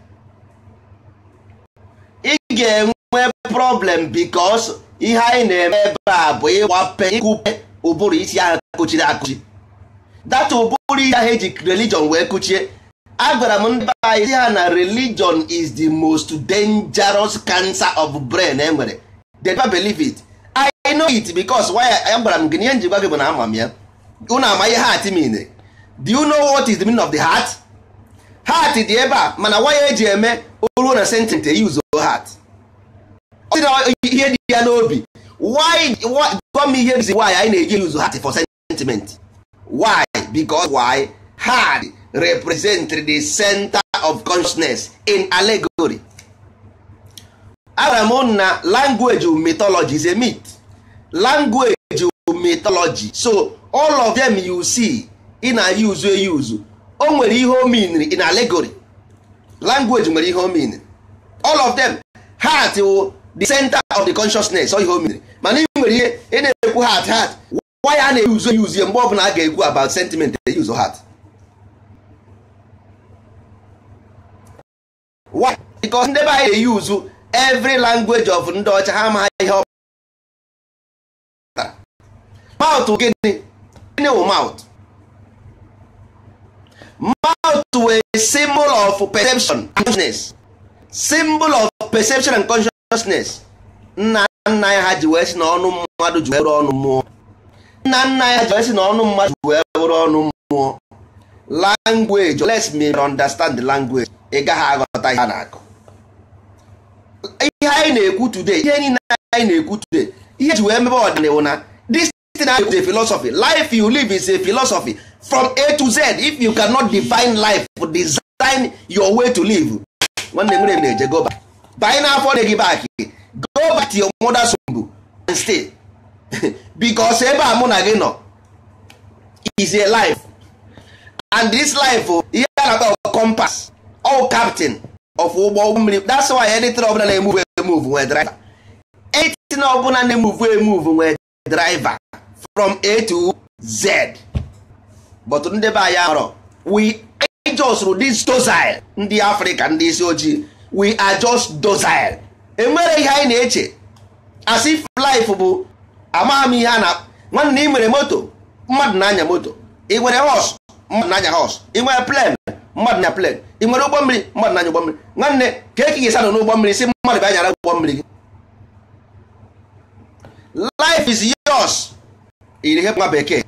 ị ga-enwe problem because ihe anyị na-eme ebe a bụ ịgbape ịkụpe ụbụrụ isi ahụ kụchiri akụchi that ụbụrụ isi ahụ eji religion wee kuchie. agwara m ndị be anyị ha na religion is the most dangerous cancer of brain e nwere they never believe it i know it because why agwara m gị ihe ji gị bụ na ama m ya unu ama ihe heart mean do you know what is the meaning of the heart heart dị ebe a mana waya eji eme oruo na sentence e use heart ihe dị ya n'obi why gwa m ihe reason why anyị na-eji use heart for sentiment why because why hard represent the center of consciousness in allegory agwara m na language mythology is a myth language mythology so all of them you see ị na-use use o nwere ihe o in allegory language nwere ihe o all of them heart wụ the center of the consciousness o ihe o mana ị nwere ihe ị na-ekwu heart heart why a na-use use mgbe ọ bụla a ga-ekwu about sentiment use heart why because ndị be anyị dey use every language of ndị ọcha ha ma ihe ọ maụtụ gịnị gịnị wụ maụtụ maụtụ wee symbol of perception and consciousness symbol of perception and consciousness nna nna ya ha ji wee si na ọnụ mmadụ ji wee bụrụ ọnụ mmụọ nna nna ya ji wee si na mmadụ ji wee ọnụ mmụọ language let's me understand the language ị gaghị aghọta ihe a na akụ. ihe anyị na-ekwu today ihe niile anyị na-ekwu today ihe ji wee mebe ọdịnihu na this thing I is a philosophy life you live is a philosophy from A to Z if you cannot define life design your way to live nwanne nwere na-eje go back banye n'afọ dị gị back go back to your mother's womb and stay because ebe a mụ na gị nọ is a life and this life oh, ihe a na-akpọ compass all captain of ụgbọ mmiri that's why anything ọbụla na-emuvu emuvu nwee driver anything ọbụla na-emuvu emuvu nwee driver from a to z but ndị be anyị arọ we just this docile ndị africa ndị isi ojii we are just docile enwere ihe anyị na-eche as if life bụ amaghị m ihe a na nwanne ị nwere moto mmadụ na-anya moto ị nwere hos mmadụ na-anya hos ị nwere plen mmadụ na plen ị nwere ụgbọ mmiri mmadụ na-anya ụgbọ mmiri nwanne ka eke ga-esi anọ n'ụgbọ mmiri si mmadụ bịa nyara ụgbọ mmiri gị life is yos. iri ihe nwa bekee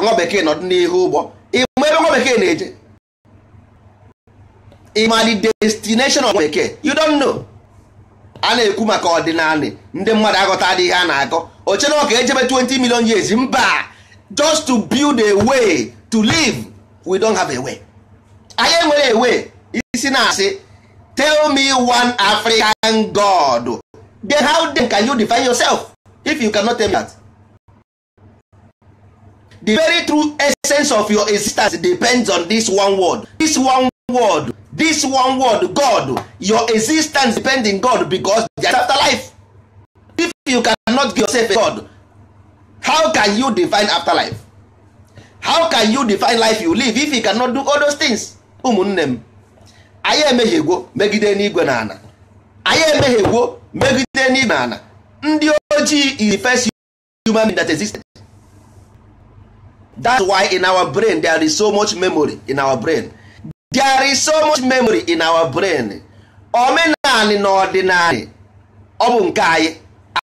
nwa bekee n'ọdụ n'ọdịnihu ụgbọ ịma ebe nwa bekee na-eje ịma the destination of bekee you don know a na-ekwu maka ọdịnala ndị mmadụ agụta adịghị ha na-akọ oche na ọka ejebe 20 million years mba just to build a way to live we don't have a way. anyị nwere ewe isi na-asị tell me one african god then how then can you define yourself if you cannot tell me that the very true essence of your existence depends on this one word this one word this one word god your existence depends on god because there afterlife if you cannot give yourself a god how can you define afterlife how can you define life you live if you cannot do all those things ụmụnne m anyị emehiegwo megide n'igwe na ana anyị emehiegwo megide n'igwe na ana ndị ojii is the first human that existed that's why in our brain there is so much memory in our brain there is so much memory in our brain omenanị na ọdịnanị ọ bụ nke anyị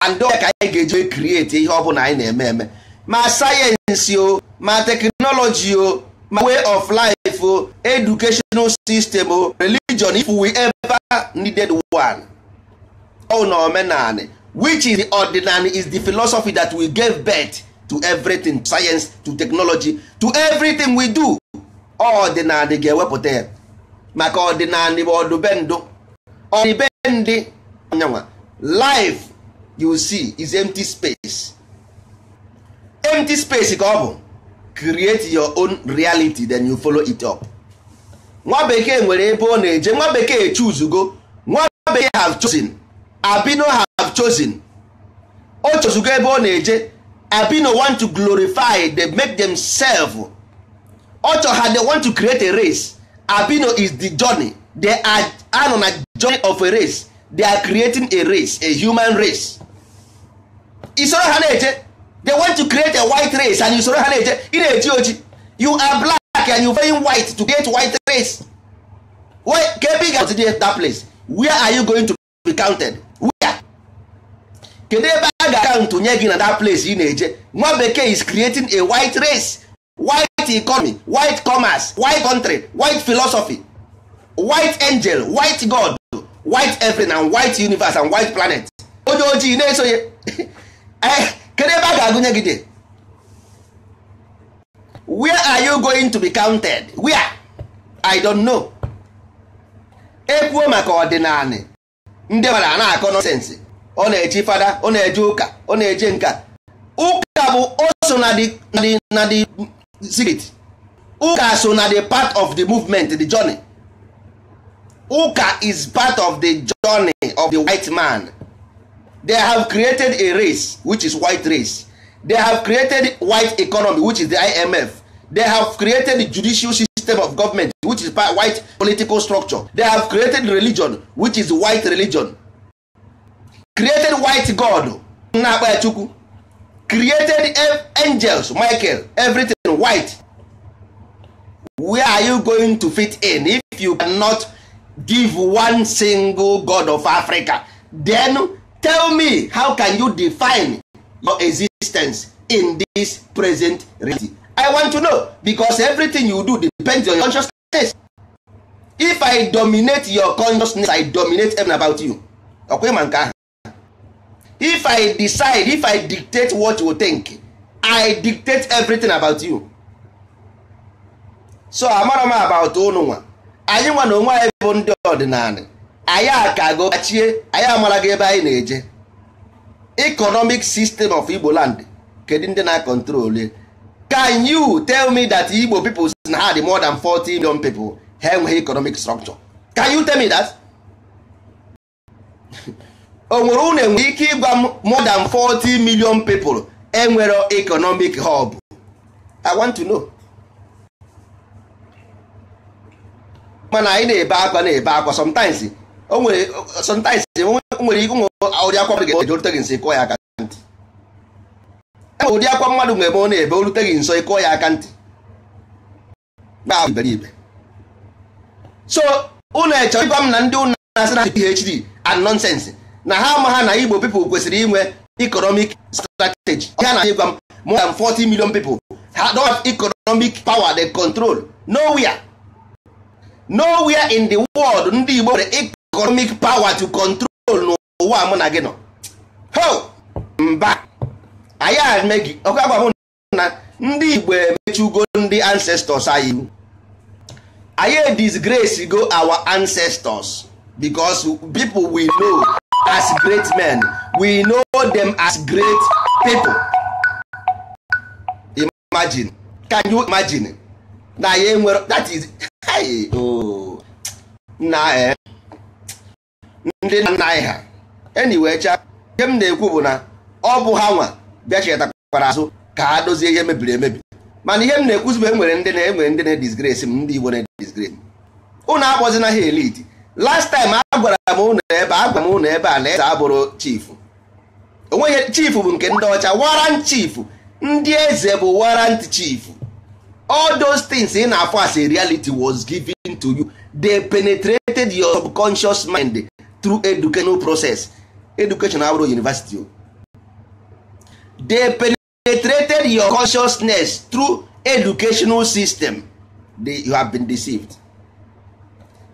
and ka anyị ga-eji create ihe ọ bụla anyị na-eme eme ma sayensị o ma teknọlọji o my way of life o oh, educational system o oh, religion if we ever needed one oh na omenani which is the ordinary is the philosophy that we gave birth to everything science to technology to everything we do ordinary ga-ewepụta ya maka ordinary bụ ọdụbendụ ọdịbendị anyanwa life you see is empty space empty space ka ọ bụ create your own reality then you follow it up nwa bekee nwere ebe ọ na-eje nwa bekee chuzugo nwa bekee have chosen abino have chosen o chozugo ebe ọ na-eje abino want to glorify they make themselves ọchọ ha they want to create a race abino is the journey they are anọ na journey of a race they are creating a race a human race isoro ha na-eje they want to create a white race and you ha na-eje ị na-eji oji you are black and you very white to create white race why ka ga ị ga that place where are you going to be counted where kedu ebe a ga-akaụntụ nye gị na that place ị na-eje nwa bekee is creating a white race white economy white commerce white country white philosophy white angel white god white everything and white universe and white planet onye ojii na-esonye eh, kedu ebe a ga-agụnye gị dị where are you going to be counted where i don't know ekwuo maka ọdịnala ndị mara a na-akọ nọsensị ọ na-eji fada ọ na-eje ụka ọ na-eje nka ụka bụ oso na the secret ụka so na the part of the movement the journey ụka is part of the journey of the white man They have created a race, which is white race. They have created white economy, which is the IMF. They have created judicial system of government, which is white political structure. They have created religion, which is white religion. Created white God, Created angels, Michael, everything white. Where are you going to fit in if you cannot give one single God of Africa? Then tell me how can you define your existence in this present reality i want to know because everything you do depends on your consciousness if i dominate your consciousness i dominate everything about you ọkwa ịma nke ahụ if i decide if i dictate what you think i dictate everything about you so amara m about ụnụ nwa anyị nwa na onwe anyị bụ ndị ọdịnala anyị akago achie anyị amara gị ebe anyị na-eje economic system of Igbo land kedu ndị na-akọntrol can you tell me that Igbo people si na ha dị more than 40 million people ha enweghị economic structure can you tell me that o nwere unu nwere ike ịgwa m more than 40 million people enwere economic hub I want to know mana anyị na-ebe akwa na-ebe akwa sometimes o nwere sometimes nwere ike ụmụ ụdị akwa mmadụ ga-eje orute gị nso ịkụọ ya aka ntị enwere ụdị akwa mmadụ ga-eme ọ na-ebe orute gị nso ịkụọ ya aka ntị gba so unu echọrọ ịgwa m na ndị ụnụ na-asị na PhD and nonsense na ha ma ha na Igbo people kwesịrị inwe economic strategy ha na ịgwa m more than 40 million people ha don't have economic power they control nowhere nowhere in the world ndị Igbo nwere economic power to control n'ụwa mụ na gị nọ ho mba anyị eme gị ọkwa agwa na ndị igbo emechugo ndị ancestors anyị iwu anyị disgrace go our ancestors because people we know as great men we know them as great people imagine can you imagine na anyị enwere that is hey, oh. na eh ndị nna anyị ha anyway cha ihe m na-ekwu bụ na ọ bụ ha nwa bịa chetakwara azụ ka a dozie ihe mebiri emebi mana ihe m na-ekwuzi bụ enwere ndị na-enwere ndị na-edisgrace m ndị Igbo na-edisgrace m unu akpọzina ha elite last time agwara m ụnụ ebe a m ụnụ ebe a na eze abụrụ chifu onweghị chifu bụ nke ndị ọcha warrant chifu ndị eze bụ warrant chifu all those things ị na-afọ as a reality was given to you they penetrated your subconscious mind through educational process education abụrụ university o they penetrated your consciousness through educational system they, you have been deceived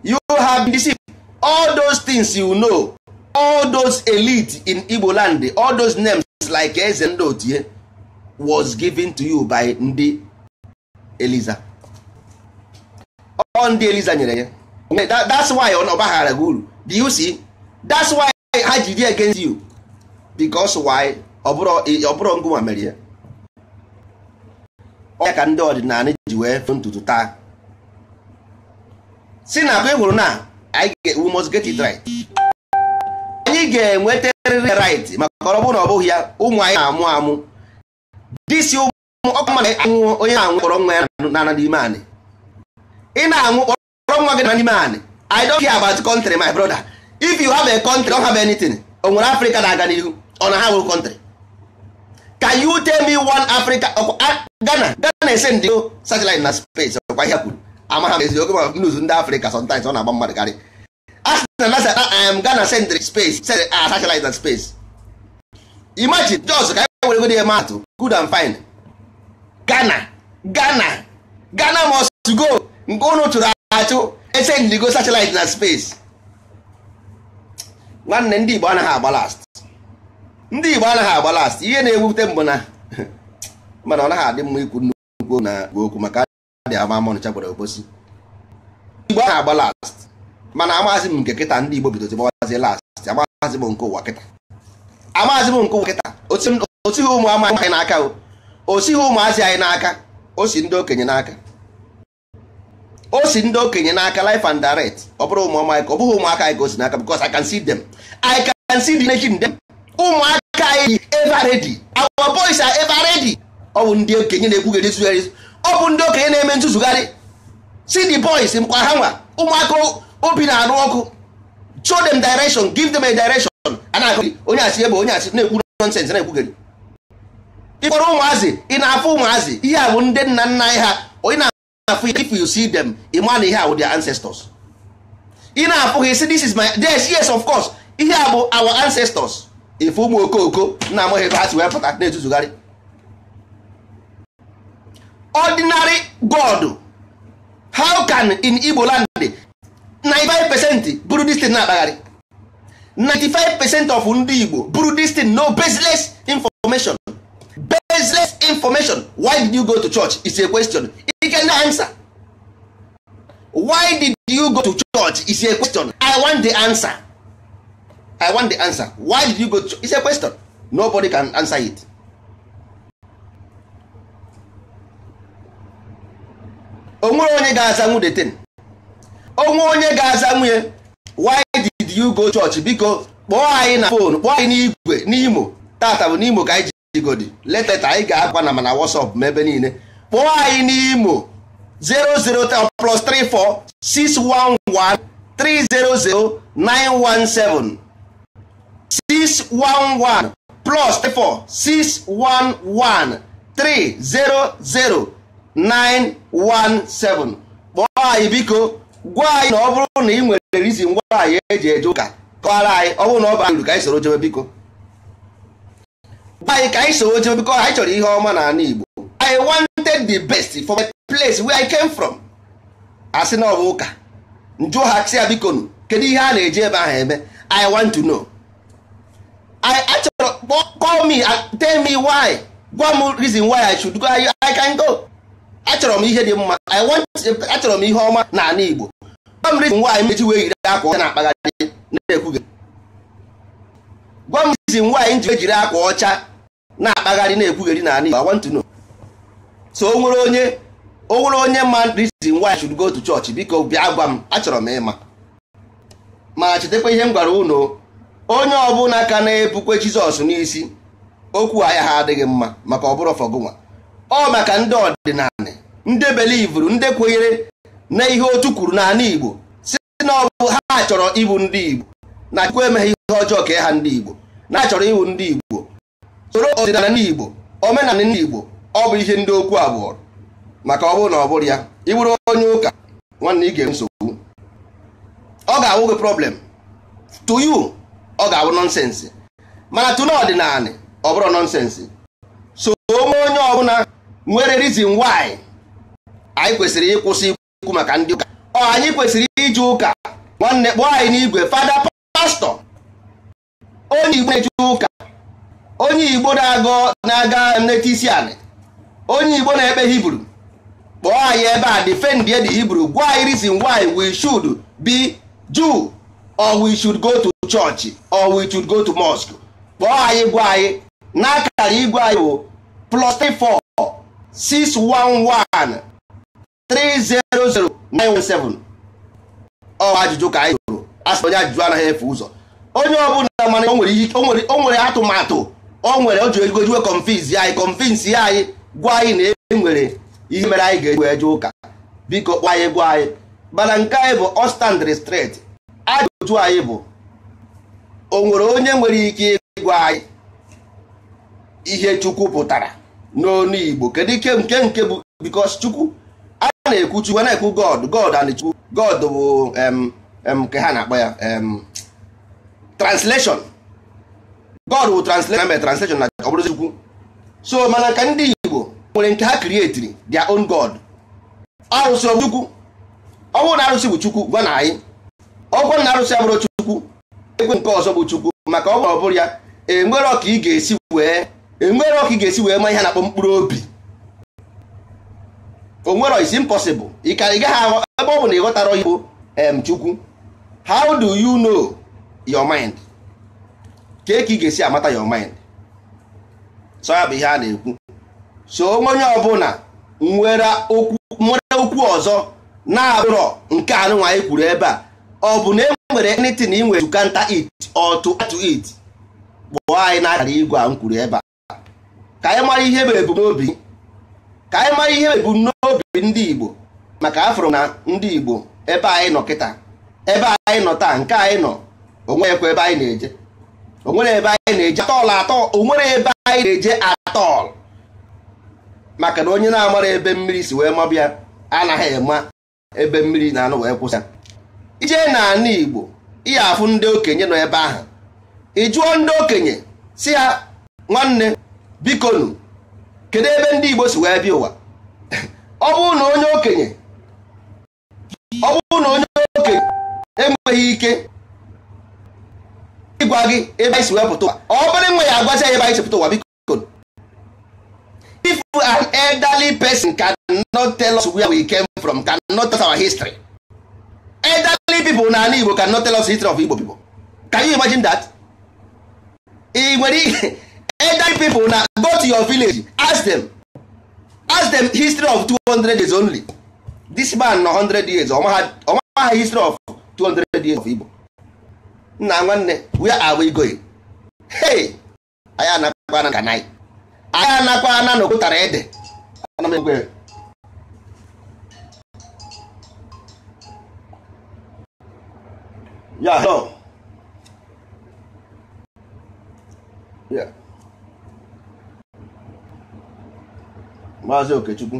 you have been deceived all those things you know all those elite in Igbo land all those names like eze ndị otie was given to you by ndị Eliza ọ ndị Eliza nyere ya that's why ọ na ọ baghara gị uru do you see that's why ha ji dị against you because why ọ bụrụ ngụnwa mere ya ya ka ndị ọdịnala ji wee fụ ntutu taa si na mgbe hụrụ na we must get it right anyị ga-enwetarịrị right maka ọ bụrụ na ọ bụghị ya ụmụ anyị na-amụ amụ disi ụmụ ọkụ mmadụ anwụ onye na-anwụ kpọrọ nwa ya na n'ime anị ị na-anwụ kpọrọ nwa gị na n'ime anị i don't care about country my brother if you have a country don't have anything onwere africa na-aga n'ihu na ha nwere country can you tell me one africa ghana ghana ese ndị ghana sendry ah, space ah, satellite na space imagine jos ka e were ghana must go nke ụnụ chụrụ echenjigo satellite na space nwanne ndị Igbo anaghị agba last ndị Igbo anaghị agba last ihe na-ewute mbụ na mana ọ naghị adị mma ikwu nnukwu na okwu maka dị ama amọnụcha gwara obosi Igbo anaghị agba last mana amaghịzi m nke kịta ndị Igbo bidozi gbawazi last amaghịzi m nke ụwa kịta amaghịzi m nke ụwa kịta osighị ụmụ amaghị n'aka o osighị ụmụazị anyị n'aka o si ndị okenye n'aka o si ndị okenye n'aka life and direct ọ bụrụ ụmụọma ka ọ bụghị ụmụaka anyị ka o si n'aka because I can see them I can see the nation dem. ụmụaka anyị ever ready our boys are ever ready ọ bụ ndị okenye na-ekwugharị nsụgharị ọ bụ ndị okenye na-eme ntụzụgharị see the boys mkpa ha nwa ụmụaka obi na-arụ ọkụ show them direction give them a direction a na-akụ onye asị ebe onye asị na-ekwu nonsense na-ekwugharị ịkpọrọ ụmụazị ị na-afụ ụmụazị ihe a bụ ndị nna nna anyị ha onye na if you see them ịma na ihe a their ancestors ị na-apụghị si this is my yes yes of course ihe a bụ our ancestors ife ụmụ okooko na-amaghị ebe ha si wee pụta na-etuzugharị ordinary god how can in Igbo land 95 percent Buru this thing na-akpagharị 95 percent of ndị Igbo Buru this thing no baseless information baseless information why did you go to church is a question you can answer why did you go to church is a question i want the answer i want the answer why did you go to church is a question nobody can answer it onwere onye ga-aza nwunye ten onwe onye ga-aza nwunye why did you go church biko kpọọ anyị na fon kpọọ anyị n'igwe n'imo tata bụ n'imo ka anyị chigodi leteta anyị ga-akwa na mana wasop ma ebe niile kpọọ anyị n'imo 003 plus 611 611 plus kpọọ anyị biko gwa anyị na ọ bụrụ na ị nwere rizin nwaanyị eji eje ụka ka anyị ọ bụrụ na ọ bara ka anyị soro jebe biko anyị ka anyị sowo jee biko anyị chọrọ ihe ọma na ala Igbo I wanted the best for my place where I came from asị na ọ ụka njụọ ha sị ya biko nụ kedu ihe a na-eji ebe ahụ eme I want to know I achọrọ call me tell me why gwa m reason why I should go I can go achọrọ m ihe dị mma I want achọrọ m ihe ọma na ala Igbo gwa m reason why mechi wee yiri akwa ọcha na-akpagharị na-ekwughị gwa m reason why m ji ejiri akwa ọcha na-akpagharị na-ekwugheri na Igbo I want to know so o nwere onye o nwere onye ma reason why I should go to church biko bịa gwa m achọrọ m ịma ma chetakwa ihe m gwara unu onye ọbụla ka na-epukwe Jizọs n'isi okwu ahịa ha adịghị mma maka ọ bụrụ fọgụnwa ọ maka ndị ọdịnala ndị belivuru ndị kwenyere na ihe otu kwuru n'ala Igbo si na ọ bụ ha chọrọ ịbụ ndị Igbo na Chukwu emeghe ihe ọjọọ ka ha ndị Igbo na-achọrọ ịbụ ndị Igbo soro ọdịnala ndị Igbo omenala ndị Igbo ọ bụ ihe ndị okwu abụọ maka ọ bụrụ na ọ bụrụ ya ị bụrụ onye ụka nwanne ị ga-enwe nsogbu ọ ga-awụ gị problem to you ọ ga-awụ nọnsensị mana tụna ọdịnala ọ bụrụ nọnsensị so onwe onye ọbụla nwere reason why anyị kwesịrị ịkwụsị ikwu maka ndị ụka ọ anyị kwesịrị iji ụka nwanne kpọọ anyị n'igwe fada pastọ onye Igbo na-eji ụka onye igbo na-aga nleta isi anị onye igbo na-ekpe hibru kpọọ anyị ebe a defend the hibru gwa anyị reason why we should be jew or we should go to church or we should go to mosque kpọọ anyị gwa anyị n'akara igwe anyị bụ plus 34 611 300917 ọ ajụjụ ka anyị jụrụ asị onye ajụjụ anaghị efe ụzọ onye ọbụla mana o nwere atụmatụ o nwere o ji ego jiwe confins ya anyị confins ya anyị gwa anyị na e nwere ihe mere anyị ga-eji wee ụka biko kpọ anyị gwa anyị mana nke anyị bụ ọstand restret ajụjụ anyị bụ o nwere onye nwere ike ịgwa anyị ihe chukwu pụtara n'onu igbo kedu ike nke nke bụ bikos chukwu a na-ekwu chukwu na-ekwu god god and chukwu god bụ nke ha na-akpọ ya translation God will translate my translation na ọ bụrụ Chukwu so mana ka ndị Igbo nwere nke ha creatiri their own God arụsị ọ Chukwu ọ bụrụ na arụsị bụ Chukwu gwa na anyị ọ na arụsị abụrụ Chukwu ekwe nke ọzọ bụ Chukwu maka ọ bụrụ ya enwere ọka ị ga-esi wee enwere ọka ị ga-esi wee ma ihe na-akpọ mkpụrụ obi onwere is impossible ị ka ị gaghị ebe ọ bụ na ịghọtara ghọtara bụ Chukwu how do you know your mind? ka ị ga-esi amata your mind so ya bụ ihe a na-ekwu so onye ọbụla nwere okwu ọzọ na-abụrọ nke anụnwa anyị kwuru ebe a ọ bụ na e nwere anything na nwere to counter it ọtụ to it kpọọ anyị na igwe a m kwuru ebe a ka anyị mara ihe bụ ebumnobi ka anyị mara ihe ebumnobi ndị Igbo maka afọrọ na ndị Igbo ebe anyị nọ kịta ebe anyị nọ taa nke anyị nọ onweghịkwa ebe anyị na-eje onwere ebe anyị na-eje atọl onwere ebe anyị na-eje atọl maka na onye na-amara ebe mmiri si wee mabịa anaghị ema ebe mmiri na anụ wee kwụsị ije na n'ala Igbo iya afụ ndị okenye nọ ebe ahụ ị ndị okenye si ya nwanne bikonu kedu ebe ndị Igbo si wee bịa ụwa ọ na onye okenye ọ onye okenye enweghị ike gwa gị ebe anyị si wee pụta ụwa ọ bụrụ nwe ya agwazi anyị ebe anyị si pụta ụwa biko if an elderly person can not tell us where we came from can not tell us our history elderly pipo na ala Igbo can not tell us history of Igbo people can you imagine that ị nwere elderly pipo na go to your village ask them ask them history of 200 years only this man na 100 years ọmaha history of 200 years of Igbo nna nwanne we are we going hey anyị anakwana nka anyị anakwana na okwutara ede ana m egwere ya no ya maazị okechukwu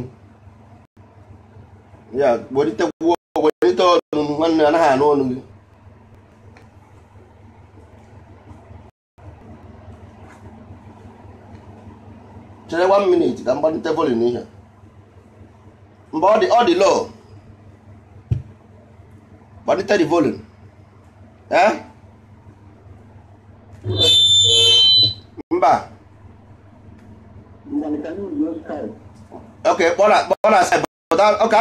ya gbolite gwuo gbolite ọnụ nwanne anaghị anụ ọnụ gị chere one minute ka mgbalite volin ihe mgbe ọ dị ọ dị low gbalite the eh? mba ok kpọọ na but ok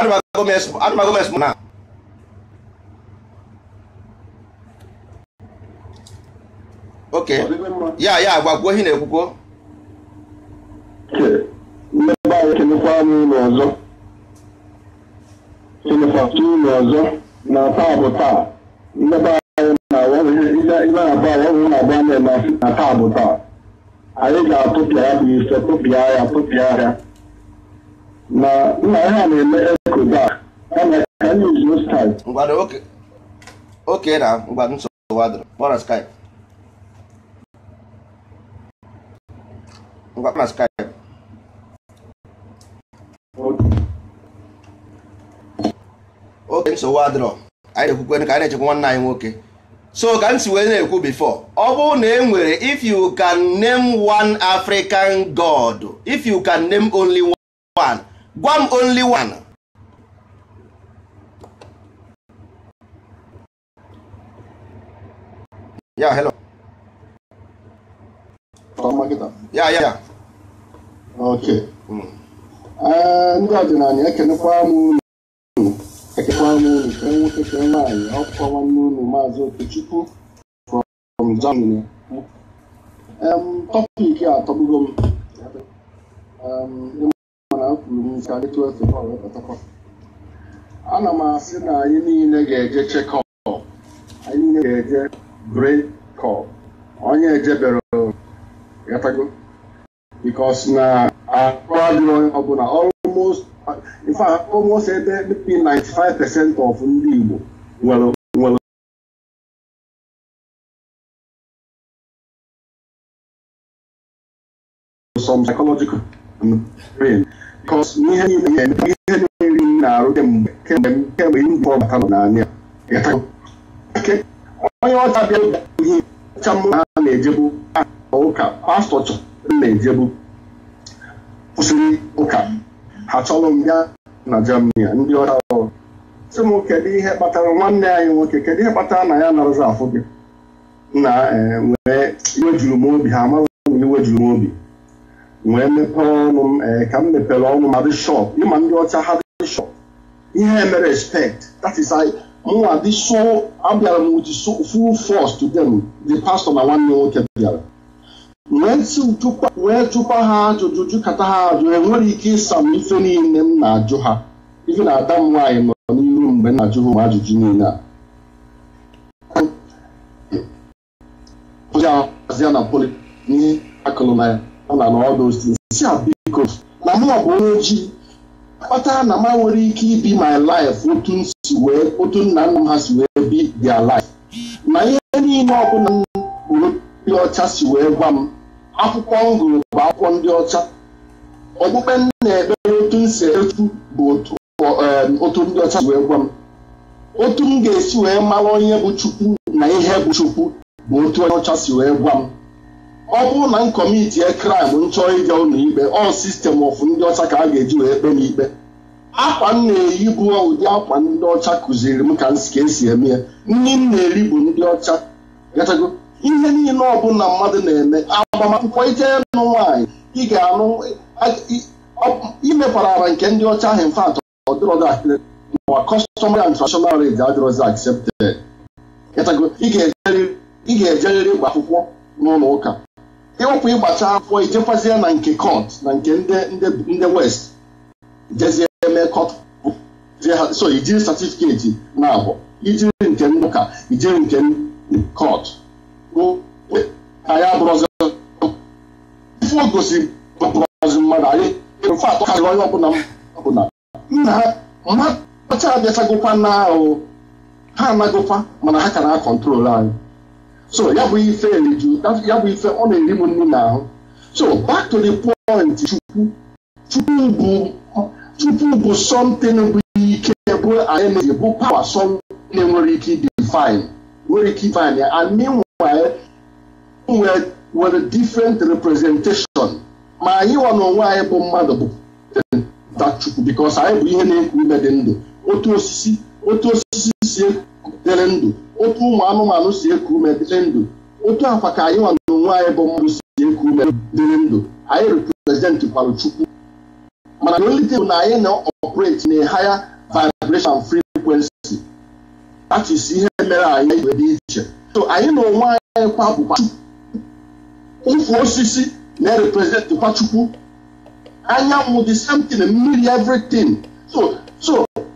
na ok ya ya agwa ihe na-ekwukwo ntị mmebe anyị e kelekwa m ụlọ ọzọ kelefatu ụlọ ọzọ na taa bụ taa mmebe anyị na-abụ na-agba na-emasị na taa bụ taa anyị ga-atụpịa ya bụ ife tụpịa ya tụpịa ya na nna e ha na-eme ekoda kama ka anyị uzuo skype ngwado oke oke na ngwado nsogbu wadoro kpọrọ skype ngwa kpọrọ skype na-esowe adrọ anyị na-ekwukwe ka anyị na-echekwa nwanne anyị nwoke so ka m si wee na-ekwu before ọ bụrụ na e nwere if you can name one African god if you can name only one gwa m only one ya hello ya ya ok mm. eh, ndị ọdịnala ekenekwa m Etekwa Nwomi Enwukeke nwaanyị ọkwa nwanne unu Maazị Okechukwu from Germany. Tọpik a atọgbugo m mana m kwuru m ka dịtụ ofe bọọlụ pụtakwa. Ana m asị na anyị niile ga-eje chekọp, anyị niile ga-eje brekọp, onye ejebere gatago bikos na arụ adịrị ọbụla almost in fact almost between 95 percent of ndị Igbo nwere some psychological brain because ihe niile ihe niile na-arụ kemgbe kemgbe kemgbe mbụ batara n'anya onye ọcha bịa ihe ọcha mụ ha na-ejebu ụka pastọ chọrọ na-ejebu kwụsịrị ụka ha m bịa na Germany ndị ọcha ọrụ sị m kedu ihe kpatara nwanne anyị nwoke kedu ihe kpatara na ya nọrọzi afụ gị na wee iwe juru m obi ha amaghị iwe juru m obi wee mepee ọnụ m ka m mepere ọnụ ma dị ịma ndị ọcha ha dị ihe mere respect that is m mụnwa dị so abịara m with full force to them the na nwanne nwoke bịara wee tụkwa ha ajụjụ jụkata ha ajụ enwere ike ịsa m ife niile m na-ajụ ha ife na-ada m nwaanyị nọ n'iru mgbe m na-ajụ ha ajụjụ niile a na poli n'ihe akụlụ na ya ọ na n'ọdụ si a biko na mụ bụ onye ojii kpatara na m nwere ike ibi my life otu nna nna m ha si wee bi their life na ihe niile ọbụla m bụrụ ndị ọcha si wee gwa m akwụkwọ m gụrụ bụ akwụkwọ ndị ọcha okpukpe m na-ekpere otu m si etu bụ otu um, ndị ọcha wee gwa m otu m ga-esi wee mara onye bụ chukwu na ihe bụ chukwu bụ otu onye ọcha si wee gwa m ọ bụrụ na m kọmitie kraịm nchọ ịga ụlọ ikpe ọ sistem ọfụ ndị ọcha ka a ga-eji wee kpe m ikpe akwa m na-eyi bụ ụdị akwa ndị ọcha kụziri m ka esi eme ya nri m na-eri bụ ndị ọcha ihe niile ọbụla mmadụ na-eme agbamakwụkwọ ijee nụ nwaanyị ị ga-anụ imekwara nke ndị ọcha ahụ mfat ọdịrọdụwa customary and traditional rate adịrọzi accepted ị ga-ejerịrị ịgba akwụkwọ n'ụlọ ụka ịwụpụ ịgbacha akwụkwọ ijekwazie na nke kọt na nke ndị west jezie eme kọt so ijiri satifiketi na abụọ ijiri nke ndị ụka ijiri nke kọt ka ya bụrụzi ife o gosiri pụrụzi mmadụ anyị mfe atọ karịrị onye ọbụla ọbụla nna ha mmata abịachagokwa na ahụ ha anagokwa mana ha ka na-akọntrol anyị so ya bụ ife eriju ya bụ ife ọ na-eri m nri ahụ. so back to the point chukwu chukwu bụ chukwu bụ something bụ ike bụ energy bụ pawa som na-enwere ike define nwere ike define ya anyị meanwhile nwere nwere different representation ma anyị nwa n'onwe anyị bụ mmadụ bụ eh, Chukwu because anyị bụ ihe na-ekwu ime dị ndụ otu osisi otu osisi si dịrị ndụ otu ụmụ anụmanụ si eku ume dịrị ndụ otu akwa ka anyị nwa n'onwe anyị bụ mmadụ si eku ume dịrị ndụ anyị represent kwara Chukwu mana na olite bụ na anyị na-operate na higher vibration frequency that is ihe mere anyị wee dị iche so anyị na onwe anyị kwa bụkwa Chukwu ofu osisi na-representikwa chukwu anyanwụ the same thing mmiri everything so so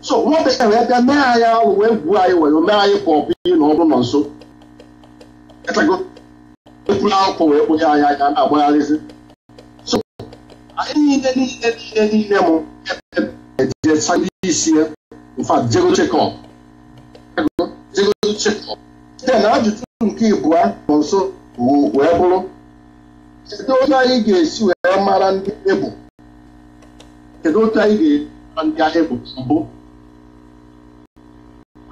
so nwabekee wee bịa mee anyị ọrụ wee gwuo anyị were mee anyị ka ọ ihe na ọ nọ nso ekwula akwụkwọ wee kpụnye anyị anya na-agbagharịzi so anyị niile niile niile niile m ejecha ndị isi ya mfa jego chekọp jego chekọp den ajụjụ nke ịbụọ nọ nso wee bụrụ kedu otu anyị ga-esi wee mara ndị ebụ kedu otu anyị ga-esi ndị ahịa bụ mbụ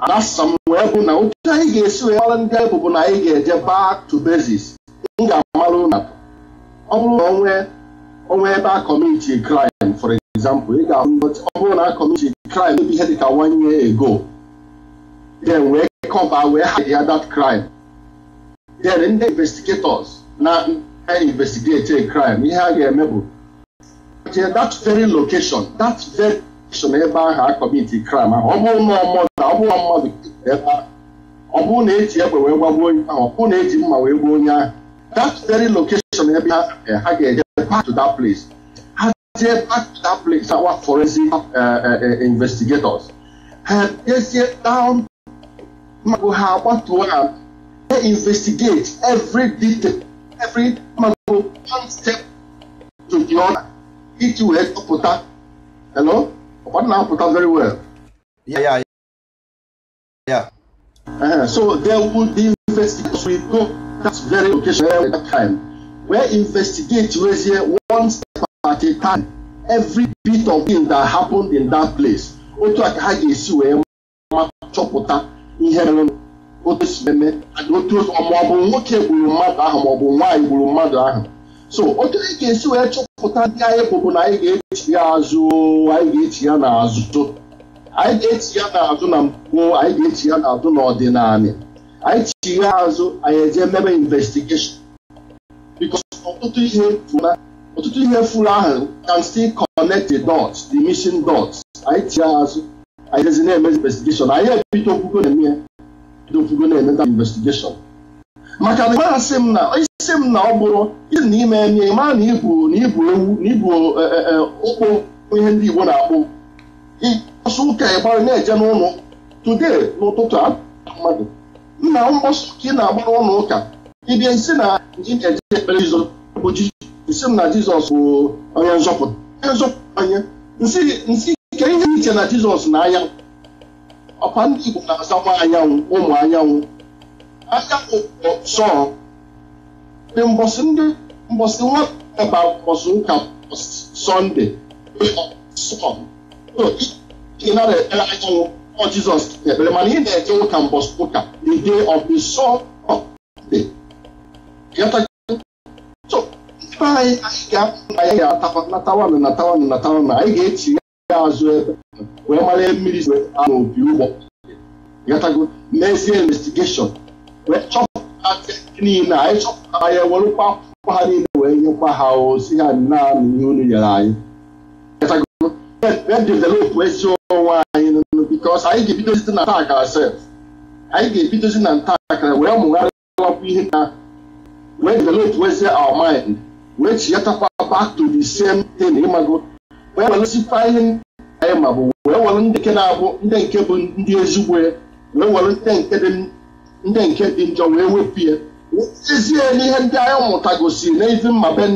anasa m wee bụ na otu anyị ga-esi wee mara ndị ahịa bụ na anyị ga-eje back to basis m ga-amarụ na ọ bụrụ na onwe onwe ebe a kọmiti crime for example ị ga ọ bụrụ na a kọmiti crime ebe ihe dịka one year ago then wee kọba wee hide ya that crime then ndị investigators na investigate a crime ihe a ga-eme bụ jee that very location that very location ebe ahụ a kọmiti crime ahụ ọ bụrụ na ọmụda ọ bụrụ mmadụ ebe ahụ ọ bụrụ na eji egbe wee gbagbuo onye ahụ ọ bụrụ na eji mma wee gbuo onye ahụ that very location ebe ha eh, ga-eje back to that place ha jee back to that place our forensic eh, eh, investigators ha jezie down magụ ha gbatuo ha investigate every detail every man go one step to the other each way to pụta hello ọkpọta na-apụta very well. Yeah, yeah, yeah. Uh, so there would be investigators we go that very location at that time where investigate wezie one step at a time every bit of thing that happened in that place otu a ka ha ga-esi wee ma chọpụta ihe mere otu mmemme otu ọmụ bụ nwoke gburu mmadụ ahụ ma ọ bụ nwaanyị gburu mmadụ ahụ so otu anyị ga-esi wee chọpụta ndị anyị bụbụ na anyị ga-echi ya azụ anyị ga-echi ya n'azụ anyị ga-echi ya n'azụ na mbụ anyị ga-echi ya n'azụ n'ọdịnala anyị chi ya azụ anyị eje mebe investigeshọn because ihe fụla ọtụtụ ihe fụla ahụ can still connect the dots the missing dots anyị chi ya azụ anyị jezi na-eme investigeshọn anyị ebido okwukwe na-eme ndị ofugo na-emeta investigeshọn maka na a asị m na isi m na ọ bụrụ isi na ime enye ma na ibu na ibu ewu na ibu e, e, e, ụkpụ ihe ndị igbo na-akpụ ịkpọsụ ụka ịgbara na-eje n'ụlọ today n'ụtụtụ a mmadụ nna mkpọsụ ka ị na-agba n'ụlọ ụka ịbịa isi na ji na-eje ekpere jizọs bụ isi m na jizọs bụ onye nzọpụta onye nzọpụta onye nsị ike ihe iche na jizọs na anya ọkwa ndị Igbo na-asakwa anyanwụ ụmụ anyanwụ anyanwụ sọ dị mbọsị ndị mbọsị nwata mbọsị ụka sọnde ị nara ekpere anyanwụ ọ Jizọs ekpere mana ị na-eje ụka mbọsị ụka the day of the Sunday ibe anyị anyị ga-apụ na ya ga-atawa natawa natawa na anyị ga-echi ya azụ ebe wee mara ihe mmiri si ama obi ụgbọ gatago n'ezie investigeshọn wee chọpụta niile anyị chọpụtara ya werụkwa akwụkwọ ha niile wee nyekwa ha ozi ha naanị ihe unu nyere anyị gatago wee developụ ezi onwe anyị bikos anyị ga-ebidozi site na taa kara sef anyị ga-ebidozi na nta akara wee mụgharịwapụ ihe na wee developụ ezi our mind wee chiyatakwa back to the same thing ịmago wee welụzikwa ihe anyị ma bụ wee were ndị nke na-abụ ndị nke bụ ndị ezigbo wee were ndị nke dị njọ wee wepụ ya ezie n'ihe ndị anyị mụta gosiri na mma mbe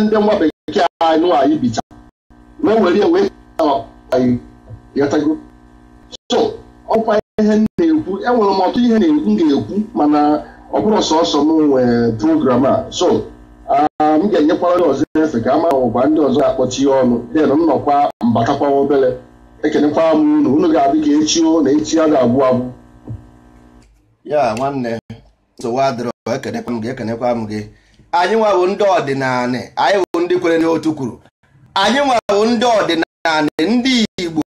ndị nwa bekee anụ anyị bita wee were ya wee yatago so ọkwa ihe m na-ekwu enwere m ọtụ ihe m ga-ekwu mana ọ bụrụ sọsọ m nwee program a so m ga-enyekwara ndị ọzọ efe ka a mara ụba ndị ọzọ ga-akpọchi ya ọnụ den m nọkwa mbatakwa obere ekenekwara m unu unu ga-adị ka echi o na echi a ga-abụ abụ ya nwanne nsogbu adịrọ ekenekwa m gị ekenekwa m gị anyị nwa ndị ọdịnala anyị bụ ndị kwere n'otu kwuru anyị nwa ndị ọdịnala ndị igbo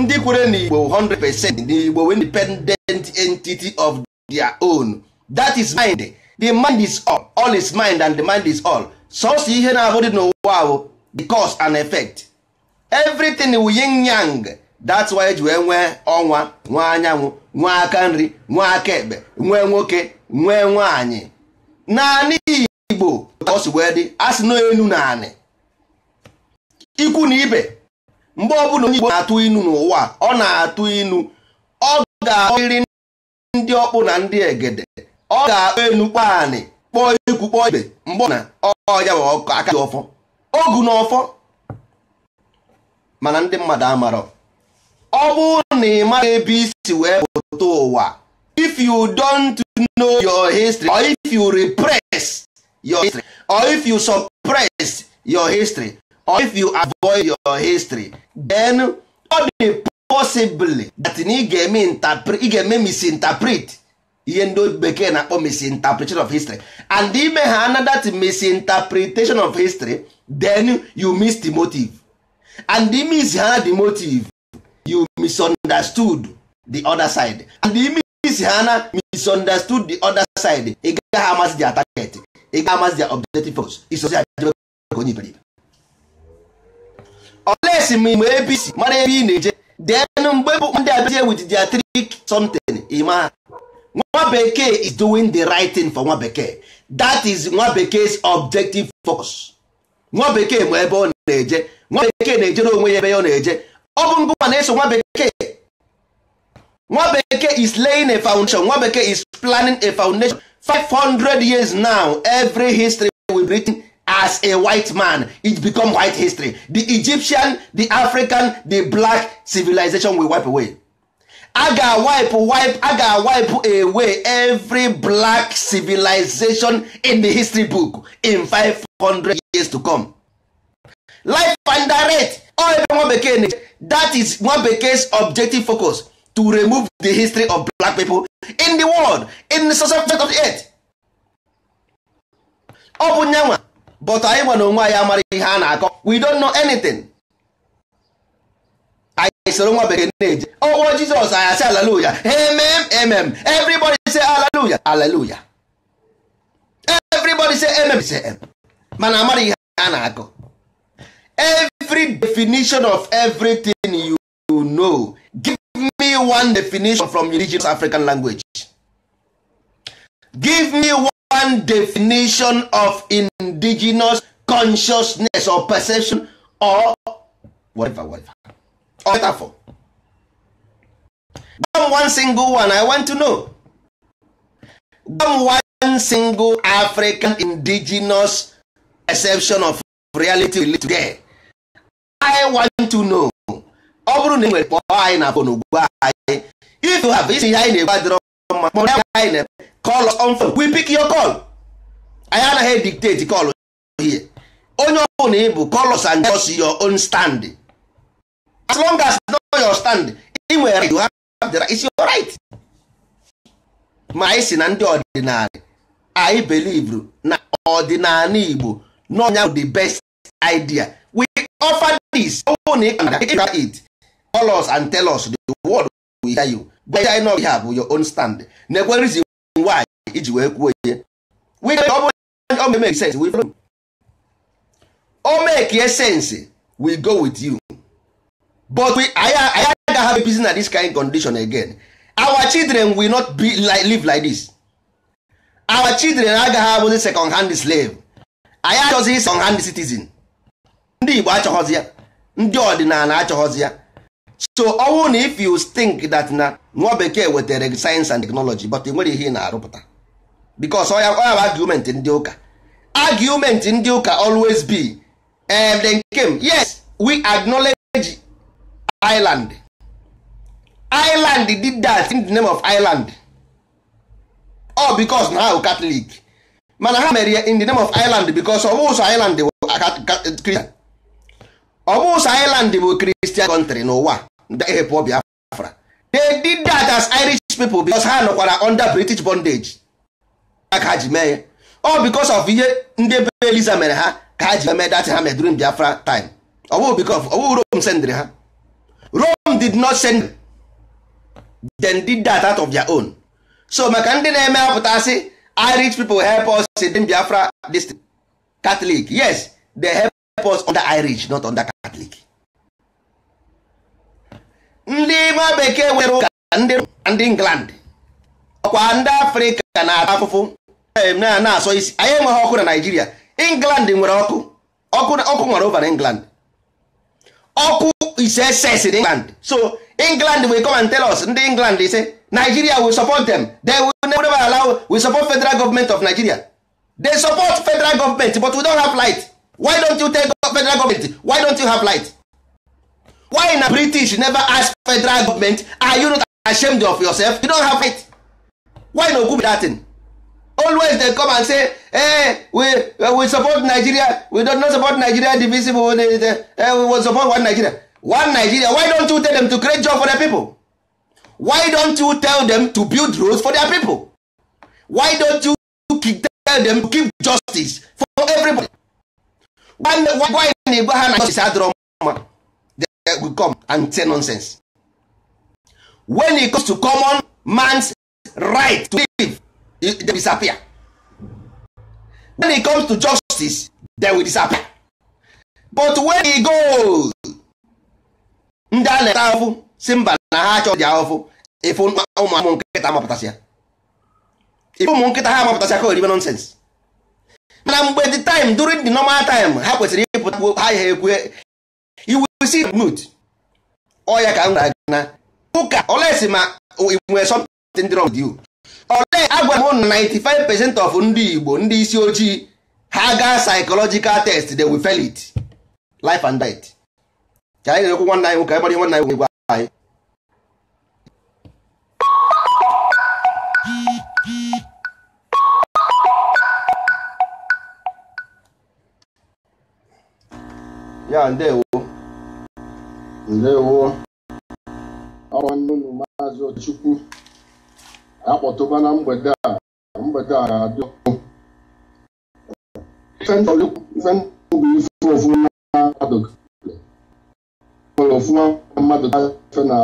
ndị kwere n'igbo 100% n'igbo independent entity of their own that is mind the mind is all all is mind and the mind is all sọsọ ihe na-abụ dị n'ụwa ahụ the cause and effect everything wu yin yang that's why eji wee nwee ọnwa nwee anyanwụ nwee aka nri nwee aka ekpe nwee nwoke nwee nwaanyị naanị igbo ka ọ si wee dị asị na enu naanị ikwu na ibe mgbe ọbụla onye igbo na-atụ inu n'ụwa ọ na-atụ inu ọ ga-ahụrịrị ndị ọkpụ na ndị egede ọ ga-akpọ enu kpọọ anị kpọọ ikwu kpọọ ibe mgbe na ọya bụ ọkụ aka dị ọfọ ogu na ọfọ mana ndị mmadụ amarọ ọ bụrụ na ị maghị ebe isi wee pụta ụwa if you don't know your history or if you repress your history or if you suppress your history or if you avoid your history then ọ dị possibly that ị ga-eme misinterpret ihe ndị bekee na-akpọ misinterpretation of history and ime ha another misinterpretation of history then you miss the motive and the miss ha the motive you misunderstood the other side and the miss ha na misunderstood the other side ị gaghị amasị their target ị gaghị amasị their objective force isozi ajebe ka onye iberibe olesi m mgbe abc mara ebe ị na-eje then mgbe bụ ndị abịazie with their trick something ịma nwa bekee is doing the right thing for nwa bekee that is nwa bekee's objective focus nwa bekee ma ebe ọ na-eje nwa bekee na-ejere onwe ya ebe ọ na-eje ọ bụ ngụwa na-eso nwa bekee nwa bekee is laying a foundation nwa bekee is planning a foundation 500 years now every history will be written as a white man it become white history the Egyptian the African the black civilization will wipe away a ga-awipe wipe a ga-awipe away every black civilization in the history book in 500 years to come. life and direct nwa bekee na that is nwa bekee's objective focus to remove the history of black people in the world in the subject of the earth. ọ bụ nyanwa but anyị nwa onwe anyị amaghị ihe a na-akọ we don't know anything. soro nwa bekee na-eje ọkpọ jizọs anyị asị alaluya emem emem everybody say alaluya alaluya everybody say emem say em mana amara ihe a na-agụ every definition of everything you know give me one definition from indigenous african language give me one definition of indigenous consciousness or perception or whatever whatever metaphor gwa m one single one i want to know gwa m one single african indigenous exception of reality we live i want to know ọ bụrụ na ị nwere kpọọ anyị na fon ugbu anyị if you have isi ihe anyị na-egbu adịrọ mma kpọrọ ya anyị na call us on phone we pick your call anyị anaghị dictate call here onye ọ bụla ị bụ call us and tell your own standing as long as no your stand ị nwere right you have the right it's your right ma anyị si na ndị ọdịnala anyị believe na ọdịnala Igbo n'ọnya the best idea we offer this own it call us and tell us the word we hear you but I know we have your own stand na-ekwe reason why iji wee kwuo ihe we ọ bụrụ o make sense we follow o make sense we go with you but we anyị agaghị have peace na this kind condition again our children will not be like, live like this our children agaghị abụzi second hand slave anyị achọghị second hand citizen ndị Igbo achọghọzi ya ndị ọdịnala achọghọzi ya so ọ na if you think that na nwa bekee wetara science and technology but nwere ihe ị na-arụpụta because ọ ya bụ argument ndị ụka argument ndị ụka always be if um, they came yes we acknowledge island island did that in the name of island all because na ha bụ mana ha mere in the name of island because ọ bụ ụzọ island bụ island country n'ụwa ehepụ they did that as irish ha nọkwara under british bondage ka ji mee ọ of ihe ndị be eliza mere ha ka ha ji mee dat ha mere biafra time ọ because rome ha did not send them did that out of their own so maka ndị na-eme apụtasị irish people help us in biafra this catholic yes they help us under irish not under catholic ndị ime bekee nwere ụka ndị england ọkwa ndị afrịka na-ata afụfụ na-asọ isi anyị enweghị ọkụ na eh, naijiria england nwere ọkụ ọkụ nwere over na england ọkụ is excess in england so england will come and tell us ndị england they say nigeria will support them they will never allow we support federal government of nigeria they support federal government but we don't have light why don't you tell federal government why don't you have light why na british never ask federal government are you not ashamed of yourself you don't have it why no good that thing always dey come and say hey eh, we eh, we support nigeria we don't not support nigeria divisible eh, we will support one nigeria one nigeria why don't you tell them to create job for their people why don't you tell them to build roads for their people why don't you tell them to give justice for everybody nwanne why na igwe ha na justice adịrọ mma they go come and say nonsense when it comes to common man's right to live they disappear when it comes to justice they will disappear but when he goes ndị a na-eta ahụhụ si mba na ha achọ dị ahụhụ ife ụmụ nkịta mapụtasịa ife ụmụ nkịta ha mapụtasịa ka oribe nonsens mana mgbe the time during the normal time ha kwesịrị ịpụta ha ihe ekwe iwusi mut ọya ka m gwara gị na ụka olesi ma inwe something wrong with you agwa m na 95 percent of ndị Igbo ndị isi ojii ha gaa psychological test they will fail it life and death ka anyị na-ekwu nwanne anyị nwoke anyị gbara ihe nwanne anyị nwoke gwa anyị ya ndewo ndewo ọnwa nnu maazị Ochukwu akpọtụba na mgbede a mgbede a ga-adị ndụ bụ ife ofuma mmadụ mmadụ gafe na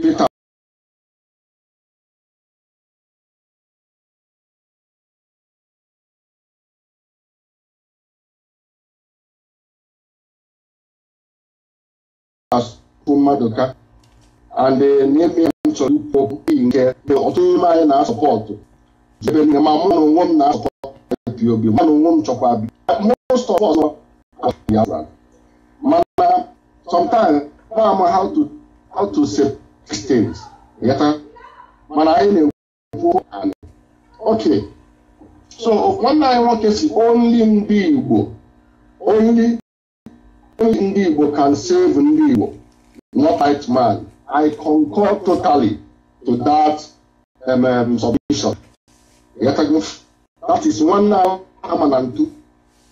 Pita mmadụ ka chọrọ ikwu nke ọtụtụ n'ime anyị na-asọpọtụ ebe nne ma mụ na onwe m na-asọpọtụ pop mụ na onwe m chọkwa bi most of us mana sometimes ma how to how to save things yata mana anyị na-ekwu okay so nwanne anyị nwoke si only ndị Igbo only ndị Igbo can save ndị Igbo not white man I concur totally to that um, um, submission. That is one now ama na ntu.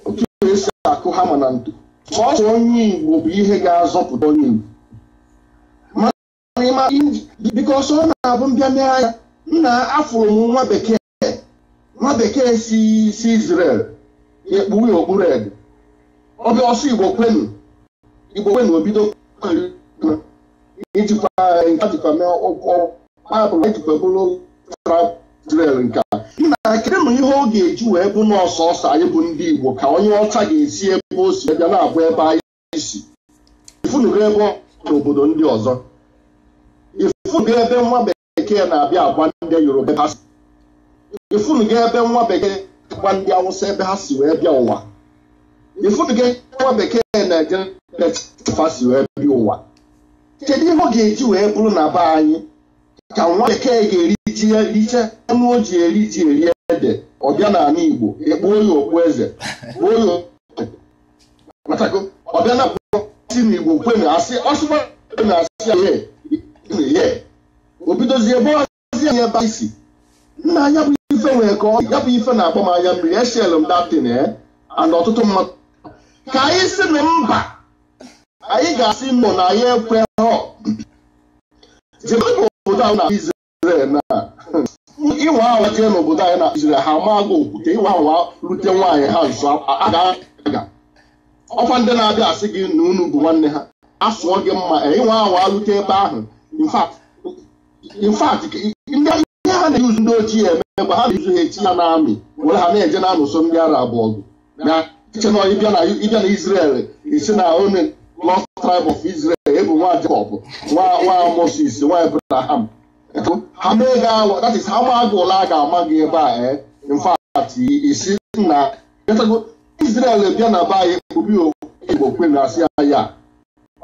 Otu esi akụ hama na ntu. Sọsọ onye Igbo bụ ihe ga-azọpụta onye Igbo. Mana ọ na-abụ mbịa anya nna afụrụ m nwa bekee nwa bekee si si Israel ekpuwe okpuru ede. Ọbịa ọsọ Igbo kwenu Igbo kwenu obido ijikwa nke jikwa mee ụkwụ maapụla ijikwa bụrụ travel nke ị na kedụ m ihe ọ ga-eji wee bụ n'ọsọ ọsọ anyị bụ ndị Igbo ka onye ọcha ga-esi ebe o si bịa na-abụ ebe anyị si ebe n'obodo ndị ọzọ ebe nwa bekee na-abịa agba ndị Yoruba ebe ha si ifunugo ebe nwa bekee agba ndị Awụsa ebe ha si wee bịa ụwa nwa bekee ụwa kedu ihe ọ ga-eji wee bụrụ na be anyị ka nwa bekee ga-eriji riche anụ o ji eri ji eri ede ọbịa n'ala Igbo ekpuo ya okpu eze kpuo ya ọbịa na si na Igbo kwe na asị ọsụba na asị ya obidozie ebe ọzi ya ebe isi nna anya bụ ife nwere ka ọ ya bụ ife na-akpọ m anya mmiri eshel m datin eh? and ọtụtụ mmadụ ka anyị si na mba anyị ga-asị mmụ na anyị ekwe hụ zebe n'obodo ahụ na Izrel na ịwa awa jee n'obodo anyị na Izrel ha maa gị okwute ịwa ahụ rute nwaanyị ha nso aga ọkwa ndị na-abịa asị gị na unu bụ nwanne ha asụọ gị mma e, ịnwa ahụ rute ebe ahụ infat ndị ihe ha na-eyuzu ndị ochie eme mgbe ha na eyuzu ha echi ya n'amị were ha na-eje na-anụso ndị ara abụọ gị na iche na ịbịa na Izrel isi na onye lost tribe of Israel ebu nwa Jacob nwa Moses nwa Abraham ha mee gị awa that a ga-ama gị ebe a eh? in fact isi na Israel bịa na be anyị kpubi Igbo kwe asị ya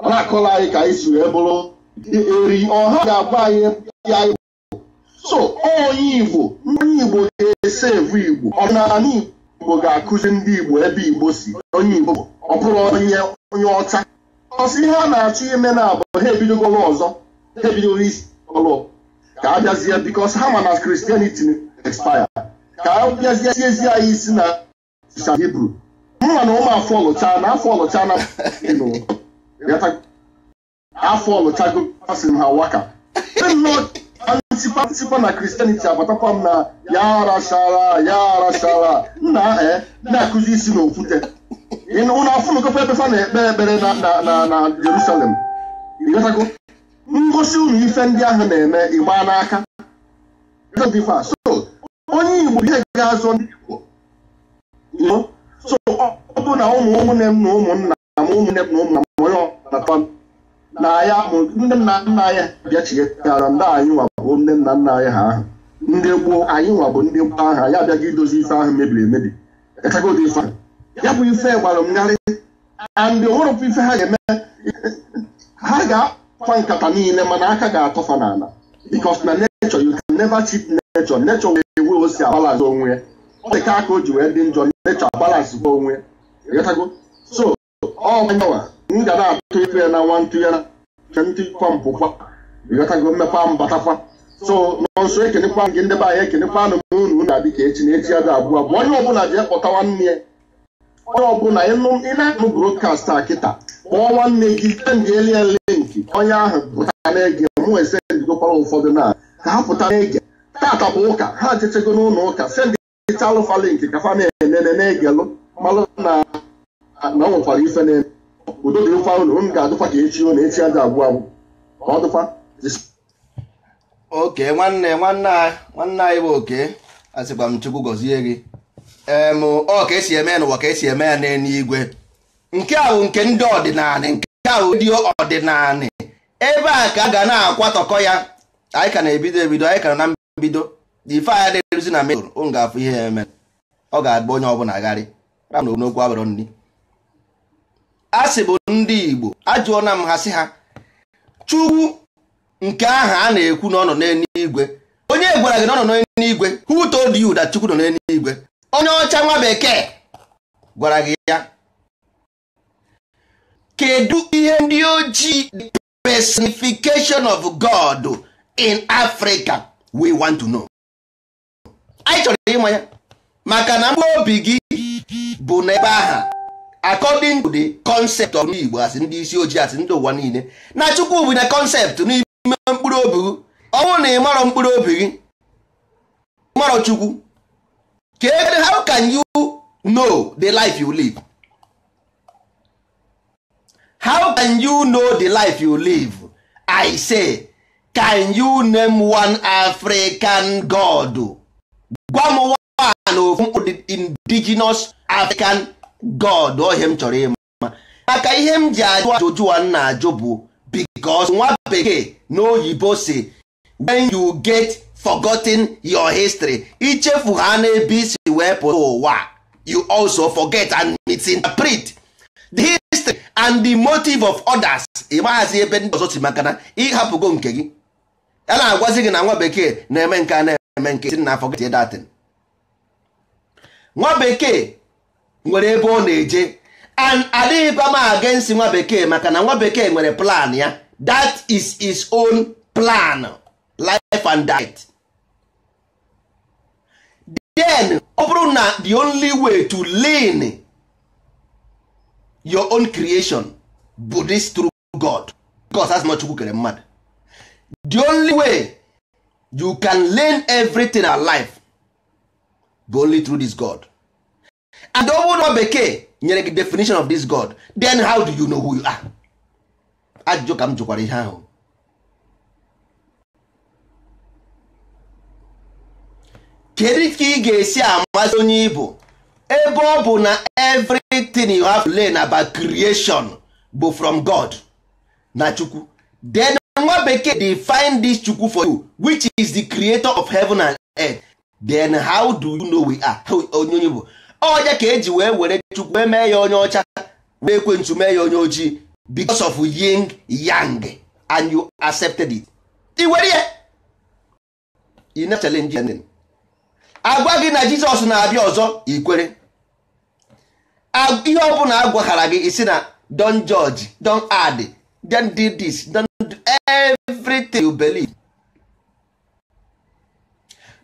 ọ na-akọla anyị ka anyị si wee bụrụ eri ọha ga anyị anyị so onye Igbo ndị Igbo ga-ese evu Igbo ọdịnala Igbo ga-akụzi ndị Igbo ebe Igbo si onye Igbo ọ bụrụ onye ọcha ọsị ihe a na-achọ ime na abụ ha ebidogoro ọzọ ha ebidogoro isi ọlụ ka a bịazie bikos ha ma na kristianity expire ka a bịazie ezi anyị isi na sa hibru mma na ụmụ afọ ọlụcha na afọ ọlụcha na afọ ọlụchago asị m ha waka ntịpa na kristianity agbatakwa m na ya arachara ya arachara nna eh, na-akụzi isi na okwute unu afụnụkọkwa ebefa na ekpe ekpere na Jerusalem ngosi unu ife ndị ahụ na-eme ịgba n'aka so onye Igbo ihe ga-azụ ndị Igbo so ọ bụ na ụmụ ụmụnne m na ụmụnna m ụmụnne m na ụmụnna m onye na ya ndị nna nna anyị bịachighara ndị anyị nwabụ ndị nna nna anyị ha ahụ ndị gboo anyị nwabụ ndị gboo ahụ anyị abịaghị idozi ife ahụ mebiri emebi echagodị ife ahụ ya bụ ife gbara m narị andị onwerọpụ ife ha ga-eme ha ga-akwa nkata niile mana aka ga-atọfa n'ala because na nature you can never cheat nature nature wee ewe o si abalance onwe ya ọ dị ka aka o ji wee dị njọ nature abalance bụ onwe ịghọtago so ọ nyanwa m ga na-atụ ife na nwa ntụ ya na ntụkwa mpụkwa ịghọtago mmekwa mbatakwa so nọnso ekenekwa gị ndị be anyị ekenekwa anụ m unu na-adị ka echi na echi ya dị abụọ bụ onye ọbụla jee kpọta nwanne ya onye ọbụla ị na-anụ brokast a kịta kpọọ nwanne gị sendịeli ya linki onye ahụ pụta na-ege mụ esendigokwara ụfọdụ na ka ha pụta na-ege tata bụ ụka ha achịchego n'ụlọ ụka sendịta alụfa linki ka fa na-enene na-egelụ malụ na na ọ nwekwara ife na udo dị mfa ụlọ m ga-adụkwa ka echi ụlọ echi aja agwụ abụ ka ọ dụkwa oke nwanne nwanne anyị bụ oke asịkwa m chukwu gọzie gị ọ ka esi eme ya n'ụwa ka esi eme ya n'eluigwe nke ahụ nke ndị ọdịnala nke ahụ ndị ọdịnala ebe a ka a ga na-akwatọkọ ya anyị ka na-ebido ebido anyị ka na mbido ife anya na-eruzi na mejọr ụ ga-afụ ihe ya eme ọ ga-agba onye ọbụla agharị ra na okwu abụrụ nri a sị bụ ndị Igbo ajụọna m ha sị ha Chukwu nke aha a na-ekwu na ọ nọ n'eluigwe onye gwara gị na ọ nọ n'eluigwe who told you that Chukwu nọ n'eluigwe onye ọcha nwa bekee gwara gị ya kedu ihe ndị ojii the personification of God in Africa we want to know anyị chọrọ ịma ya maka na mkpụrụ obi gị bụ n'ebe aha according to the concept of Igbo asị ndị isi ojii asị ndị ụwa niile na Chukwu bụ na concept n'ime mkpụrụ obi gị ọnwụ na ịmarọ mkpụrụ obi gị marọ Chukwu kedụ how can you know the life you live how can you know the life you live i say can you name one african god gwa m one ofu indigenous african god ohe m chọrọ ịma maka ihe m ji ajụ ajụjụ a na-ajụ bụ because nwa bekee na oyibo si when you get forgotten your history ichefu ha ebi isi wee pụta ụwa you also forget and misinterpret the history and the motive of others ị maghazi ebe ndị ọzọ si maka na ịhapụgo nke gị a na-agwazi gị na nwa bekee na-eme nke a na-eme nke na forget that thing nwa bekee nwere ebe ọ na-eje and adịghị m against nwa bekee maka na nwa bekee nwere plan ya that is his own plan life and diet then ọ bụrụ na the only way to lean your own creation bụ this true God because as not chukwu kere mmadụ the only way you can learn everything alive bụ only through this God and ọ bụrụ na bekee nyere gị definition of this God then how do you know who you are ajụjụ ka m jụkwara ihe ahụ kedu ka ị ga-esi amasị onye ibu ebe ọ bụ na everything you have to learn about creation bụ from God na chukwu then nwa bekee find this chukwu for you which is the creator of heaven and earth then how do you know we are onye onye bụ ọja ka eji wee were chukwu wee mee ya onye ọcha wee ekwentu mee ya onye ojii because of yin yang and you accepted it ị were ya ị na challenge agwa gị na jizọs na-abịa ọzọ ikwere ihe ọbụla agwaghara gị isi na don judge don add don do this don do everything you believe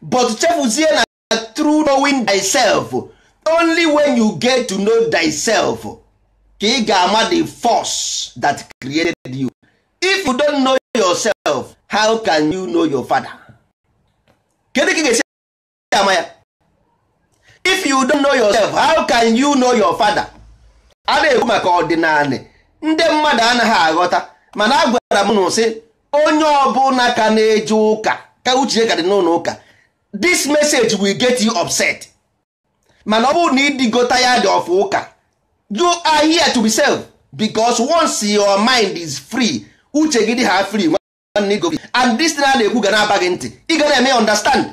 but chefuzie na through knowing thyself only when you get to know thyself ka ị ga-ama the force that created you if you don't know yourself how can you know your father kedu ka ị ga-esi ama ya if you don't know yourself how can you know your father a na-ekwu maka ọdịnala ndị mmadụ anaghị aghọta mana agwara gwara m n'ụsị onye ọbụla ka na-eje ụka ka uche ka dị n'ụlọ ụka this message will get you upset mana ọ bụrụ na ịdịgota ya dị ọfụ ụka you are here to be self because once your mind is free uche gị dị ha free and this na na-ekwu ga na-aba gị ntị ị ga na-eme understand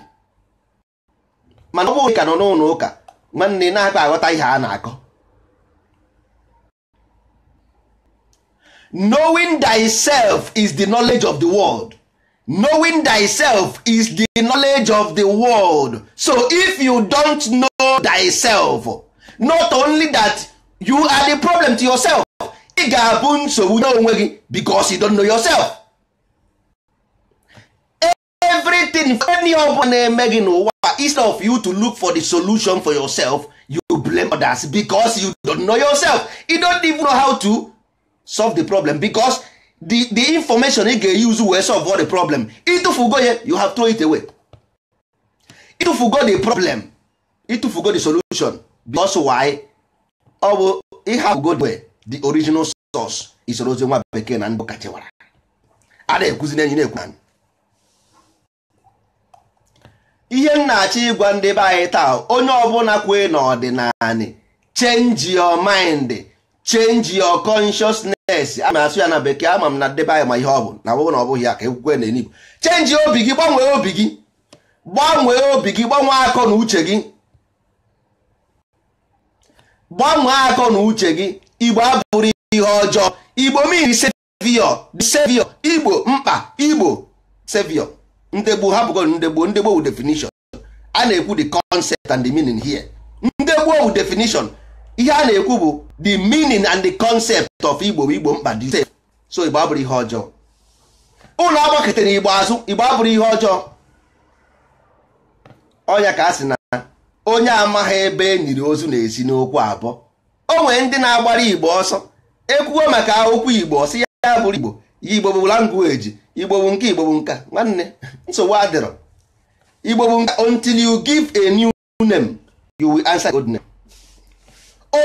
mana ọ bụghị ka nọ n'ụlọ ụka nwanne na-akpa aghọta ihe a na-akọ knowing thyself is the knowledge of the world knowing thyself is the knowledge of the world so if you don't know thyself not only that you are the problem to yourself ị ga-abụ nsogbu n'onwe gị because you don't know yourself. everything any ọ bụla na-eme gị n'ụwa instead of eh, you to look for the solution for yourself you blame others because you don't know yourself you don't even know how to solve the problem because the, the information ị ga-use wee solve all the problem ịtụfugo ya you have throw it away ịtụfugo the problem ịtụfugo the solution because why ọ bụ ịhapụgo the original source isorozi nwa bekee na ndụ kachewara a na-ekwuzi na enyi na-ekwu ihe m na-achọ ịgwa ndị be anyị taa onye ọbụla kwee n'ọdịnala change your mind change your consciousness a na-asụ ya na bekee ama m na ndị anyị ma ihe ọ bụ na ọ na ọ bụghị ya ka ekwukwe na enigbo change obi gị gbanwee obi gị gbanwee obi gị gbanwee akọ na uche gị gbanwee akọ na uche gị igbo abụrụ ihe ọjọọ igbo mmiri sevio sevio igbo mkpa igbo sevio ndegbu hapụgo ndegbu ndegbu wu definition a na-ekwu the concept and the meaning here ndegbu wu definition ihe a na-ekwu bụ the meaning and the concept of igbo igbo mkpa dị so igbo abụrụ ihe ọjọọ ụlọ agbakọtara igbo azụ igbo abụrụ ihe ọjọọ ọnya ka a sị na onye amaghị ebe e nyiri ozu na-esi n'okwu abụọ o nwere ndị na-agbara igbo ọsọ ekwugo maka okwu igbo ọsị ya bụrụ igbo ya igbo bụ language igbo bụ nke igbo bụ nka nwanne nsogbu adịrọ igbo bụ nka until you give a new name you will answer the old name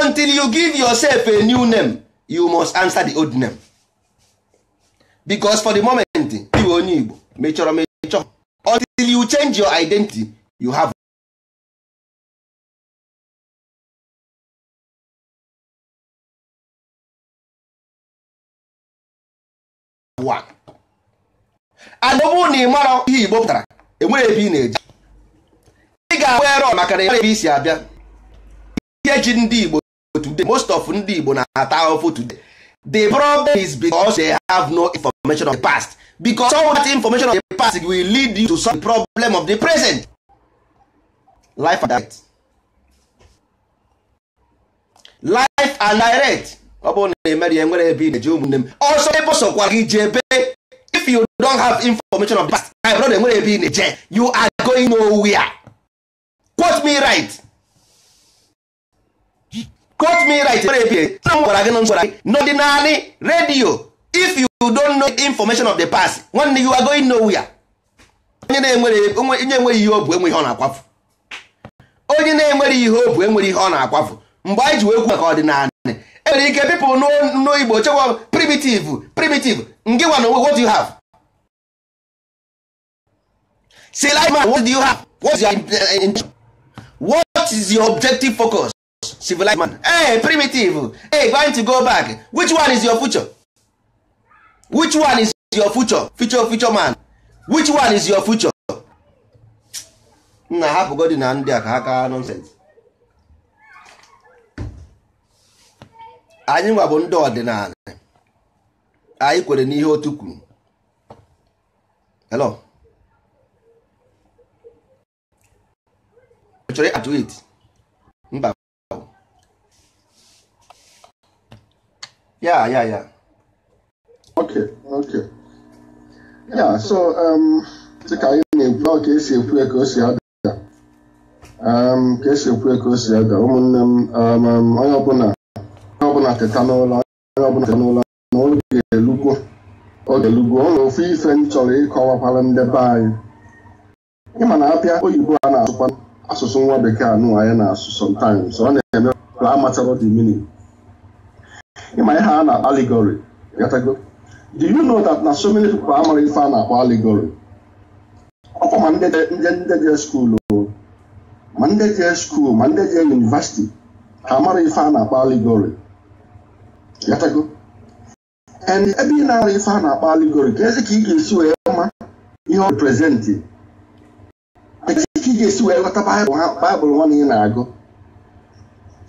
until you give yourself a new name you must answer the old name because for the moment iwe onye igbo mechọrọ mechọ until you change your identity you have ụwa and na ị mara ihe igbo pụtara enwere ebe ị na-eji ị ga-abụ erọ maka na ebe isi abịa ihe ji ndị igbo today most of ndị igbo na-ata ahụhụ today the problem is because they have no information of the past because all that information of the past will lead you to solve the problem of the present life and direct life and direct ọ bụrụ na emere ya nwere ebe ị na-eji ụmụnne m ọsọ ebe sọkwa gị ji ebe if you don't have information of past my brother nwere ebe ị na-eje you are going nowhere quote me right quote me right nwere ebe na m gwara gị na gwara gị n'ọdịnalị redio if you don't know information of the past nwanne you are going nowhere onye na-enwere ihe ọ bụ enwe ihe ọ na-akwafu onye na-enwere ihe ọ bụ enwere ihe ọ na-akwafu mgbe anyị ji wee kwu maka ọdịnala enwere ike people n'igbo igbo chekwa primitive primitive ngịwa na what do you have say like man what do you have what's your intention uh, what is your objective focus civilized man hey primitive hey going to go back which one is your future which one is your future future future man which one is your future nna hapụgodi na ndị a ka ha kaa nonsense anyị nwa bụ ndị ọdịnala anyị kwere n'ihe otu kwuru hello chọrọ atụ it mba ya ya ya ya so um, dịka anyị na-ekwu ka esi ekwu ka o si ada um, ka esi ekwu ka o si ada ụmụnne m um, onye ọbụla ateta n'ụlọ onye ọbụla ateta n'ụlọ na oge elugwo ụlọ ofu ife m chọrọ ịkọwakwara ndị be anyị ịma na abịa oyibo a na-asụkwa asụsụ nwa bekee anụ anyị na-asụ sometimes ọ na-eme ka amatara the meaning ịma ihe a na-akpọ allegory gatago do you know that na so many people amara ife a na-akpọ allegory ọkwa ma ndị je skuul ma ndị je skuul ma ndị je yunivasiti ha amara ife a na-akpọ allegory ghọtago ebe ị na-arụ ife a na-akpọ aligori ka ị ga-esi wee ma ihe ọ reprezentị ka ị ga-esi wee ghọta baịbụl nwa ị na-agụ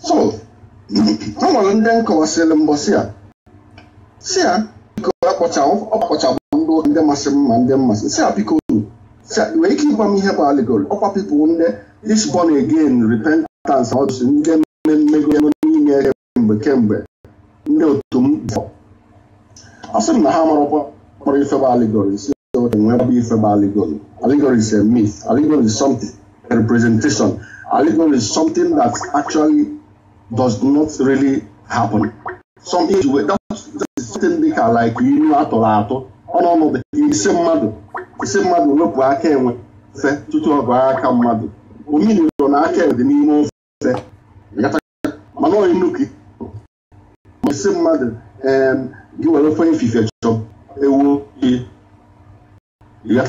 so ọ nwere ndị nkọwasịrị mbọsị a si ya biko ọkpọchabụ ndị masị mma ndị mmasị si ya biko nwee ike ịgwa m ihe bụ aligori ọkwa pipụl ndị isbon again repentance ọdụsị ndị mmemme ego n'ime kemgbe kemgbe a sị m na ha kpọrọ ifebe allegories bụ ifebe allegory allegory is a myth allegory is something a representation allegory is something that actually does not really happen some age wee something dị ka like ilu atụrụ atụ ọnụọnụ ise mmadụ ise mmadụ wepụ aka enwe fe tutu ọ bụ aka mmadụ omiri na aka dị n'ime ofe mana onye nnukwu esi mmadụ gị were ofe ifufe chọọ ewu ya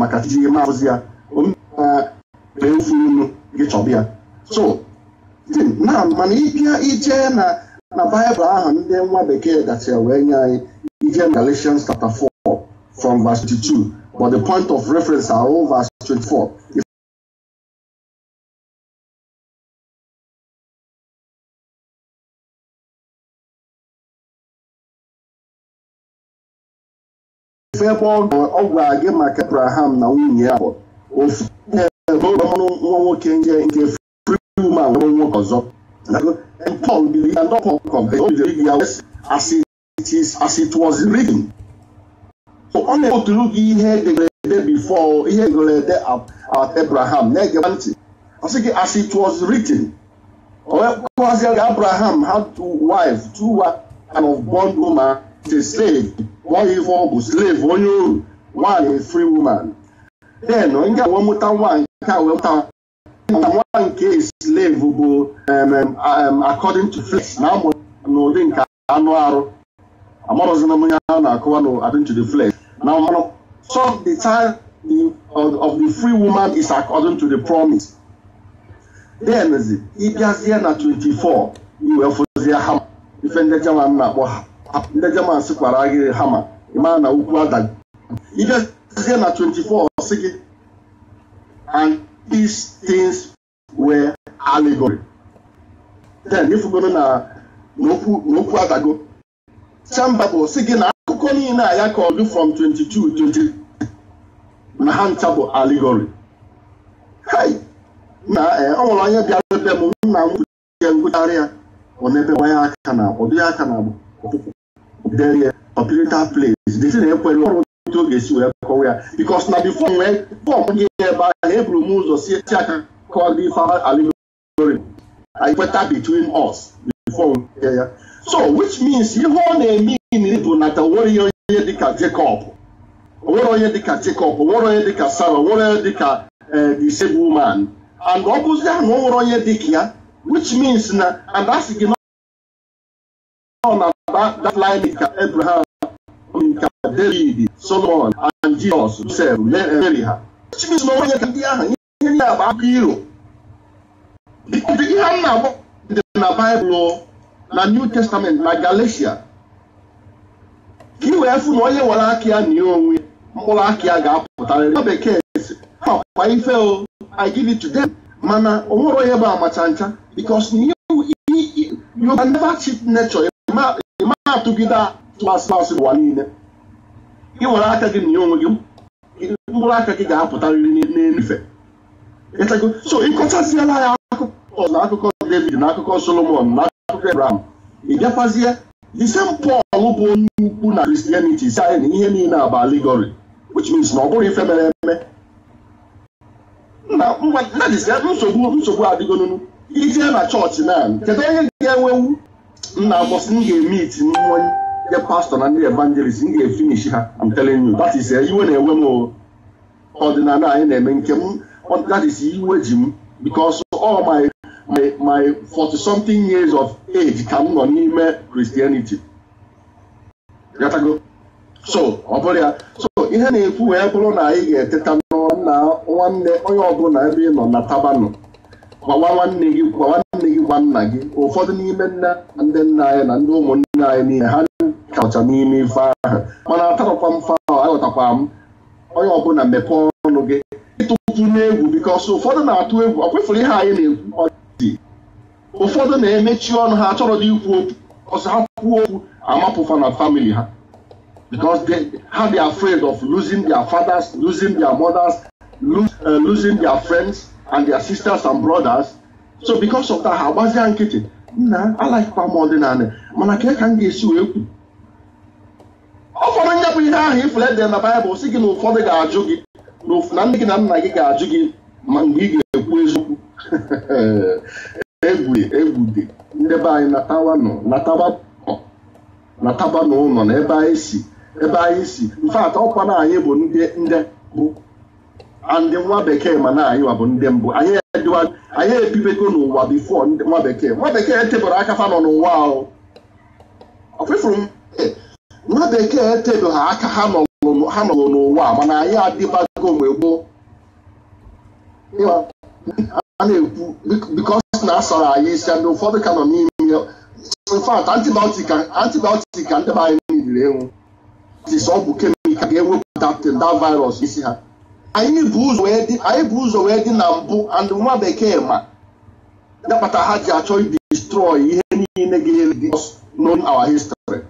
maka iji ihe maazị ya ofu unu gị chọba ya so na mana ịbịa ije na na baịbụl ahụ ndị nwa bekee gachara wee nye anyị ije na Galatians chapter 4 from verse 22 but the point of reference are all verse 24 ofu ebe ọ gwara gị maka abraham na nwunye ya bụ ofu ebe ọrụ nwa nwoke nke nke friuman nwere nwoke ọzọ believed and not ọ na-ekpoturu gị ihe edegara ede before ihe edegara ede Abraham na-egeba ntị asị gị as it was written. Ọkwazi Abraham had two wives, two wives and of bond woman, a slave wọ́n yí fún ọkùn slave wọ́n yóò wà ní free woman. bẹ́ẹ̀ náà nígbà wọ́n mú táwọn àǹkà wọ́n ta àwọn àǹkà slave gbogbo according to flesh náà mọ̀ n'ụdị nke anụ arụ amarụzina m ya na-akụwa n'adịn to the flesh na mmanụ so the time of, the free woman is according to the promise then ịbịazie na 24 iwe fozie ha ife ndị jaman na-akpọ ha ndị German sikwara gị hama ịma na ugwu adaghị ijezie na 24 sị gị and these things were allegory then ifugoro na n'okwu adago chamba bụ sị gị na akụkọ niile a ya kọọdụ from 22 23 na ha ncha bụ allegory ọnwụrụ e, ọ onye bịara ebe m nna m gwuchie ya ọ na-ebe gbanye aka na ọdụ ya aka na ọkpụkpụ the operator place the thing na ekwe n'ọrụ ndị ọ ga-esi wee kọwa ya because na before nwee fọm gị ebe ahụ eburu m ụzọ si eti aka kọwa gị fa alimori anyị between us before Yeah, ya so which means ihe ọ na-eme bụ na ta nwere onye dịka Jacob nwere onye dịka Jacob nwere onye dịka Sarah nwere onye dịka the same woman and ọ bụzi ahụ nwere onye dịka ya which means na and that's gị na ọ that line is that Abraham, David, Solomon, and Jesus, Joseph, Mary ha. Which means na onye ndị ahụ ihe ndị a akụ iro. Because ihe a na-akpọ dị na Baịbụl na New Testament na Galatia. Ka i wee fụ na onye were aka ya na onwe mkpụrụ aka ya ga-apụtarịrị. Na bekee sị, ha kwa ife o, I give it to them. Mana o nwere onye bụ amacha ncha because you can never cheat nature. ị maghị atụgide asị asị ụwa niile ị nwere aka gị na ya onwe gị mkpụrụ aka gị ga-apụtarịrị n'elufe so ịkọchasịala ya akụkọ na akụkọ David na akụkọ Solomon na akụkọ Abraham ị bịakwazie the same bụ onye ukwu na Christianity si anyị na ihe niile abụ allegory which means na ọ bụrụ ife mere eme mmadụ na nsogbu nsogbu adịgonunu ije na chọọchị na kedu onye ga-enwewu nna agbọsị m ga-eme iti n'ime onye pastọ na ndị evangelist m ga-efinishi ha I'm telling you that is eh, iwe na-enwe m ọdịnala anyị na-eme nke m that is iwe ji m because all my my my 40 something years of age ka m nọ n'ime Christianity so ọ bụrụ ya so ihe na-ekwu wee bụrụ na anyị ga-eteta n'ọrụ na nwanne onye ọbụla ebe ị nọ na tabanụ gwawa nwanne gị gwawa nwanne bụkwa nna gị ụfọdụ n'ime nne ndị nna anyị na ndị ụmụnne anyị niile ha kacha n'ime ife ahụ mana atarakwa m fa aghọtakwa m onye ọbụla mepee ọnụ gị ịtụtụ n'egwu bikọs ụfọdụ na-atụ egwu ọ kwefụrụ ihe anyị na-ekwu ụfọdụ na-emechi ọnụ ha achọrọ dị ikwu okwu ọsọ ha kwuo okwu amapụfa na famili ha because they, how they are afraid of losing their fathers, losing their mothers, eh, losing their friends and their sisters and brothers. so because of that ha agbazia nkịtị nna alaikpa m ọdịnala mana ka ka m ga-esi wee kwu ụfọdụ nye ihe ahụ ifulede na baịbụl si gị na ụfọdụ ga-ajụ gị na ndị gị na nna gị ga-ajụ gị ma mgbe ị ga-ekwu eziokwu egwu egwu dị ndị anyị natawa nọ nataba n'ụlọ na ebe anyị si ebe anyị si mfe atọ ọkwa na anyị bụ ndị bụ and nwa bekee ma na anyịwa bụ ndị mbụ anyị ebibego n'ụwa bifo nwa bekee nwa bekee etebere aka fa nọ n'ụwa ahụ nwa bekee etebe aka ha nọrọ n'ụwa mana anyị adịbago mgbe gboo na-ekwu bikos na asara ndị ụfọdụ ka nọ n'ime infat antibiotik ka ndị anyị niriri enwu ọgwụ kemikal ga virus isi ha anyị bụ ụzọ wee dị na mbụ andụ nwa bekee ma dapụta ha ji achọ destroy ihe niile ga-ele known our history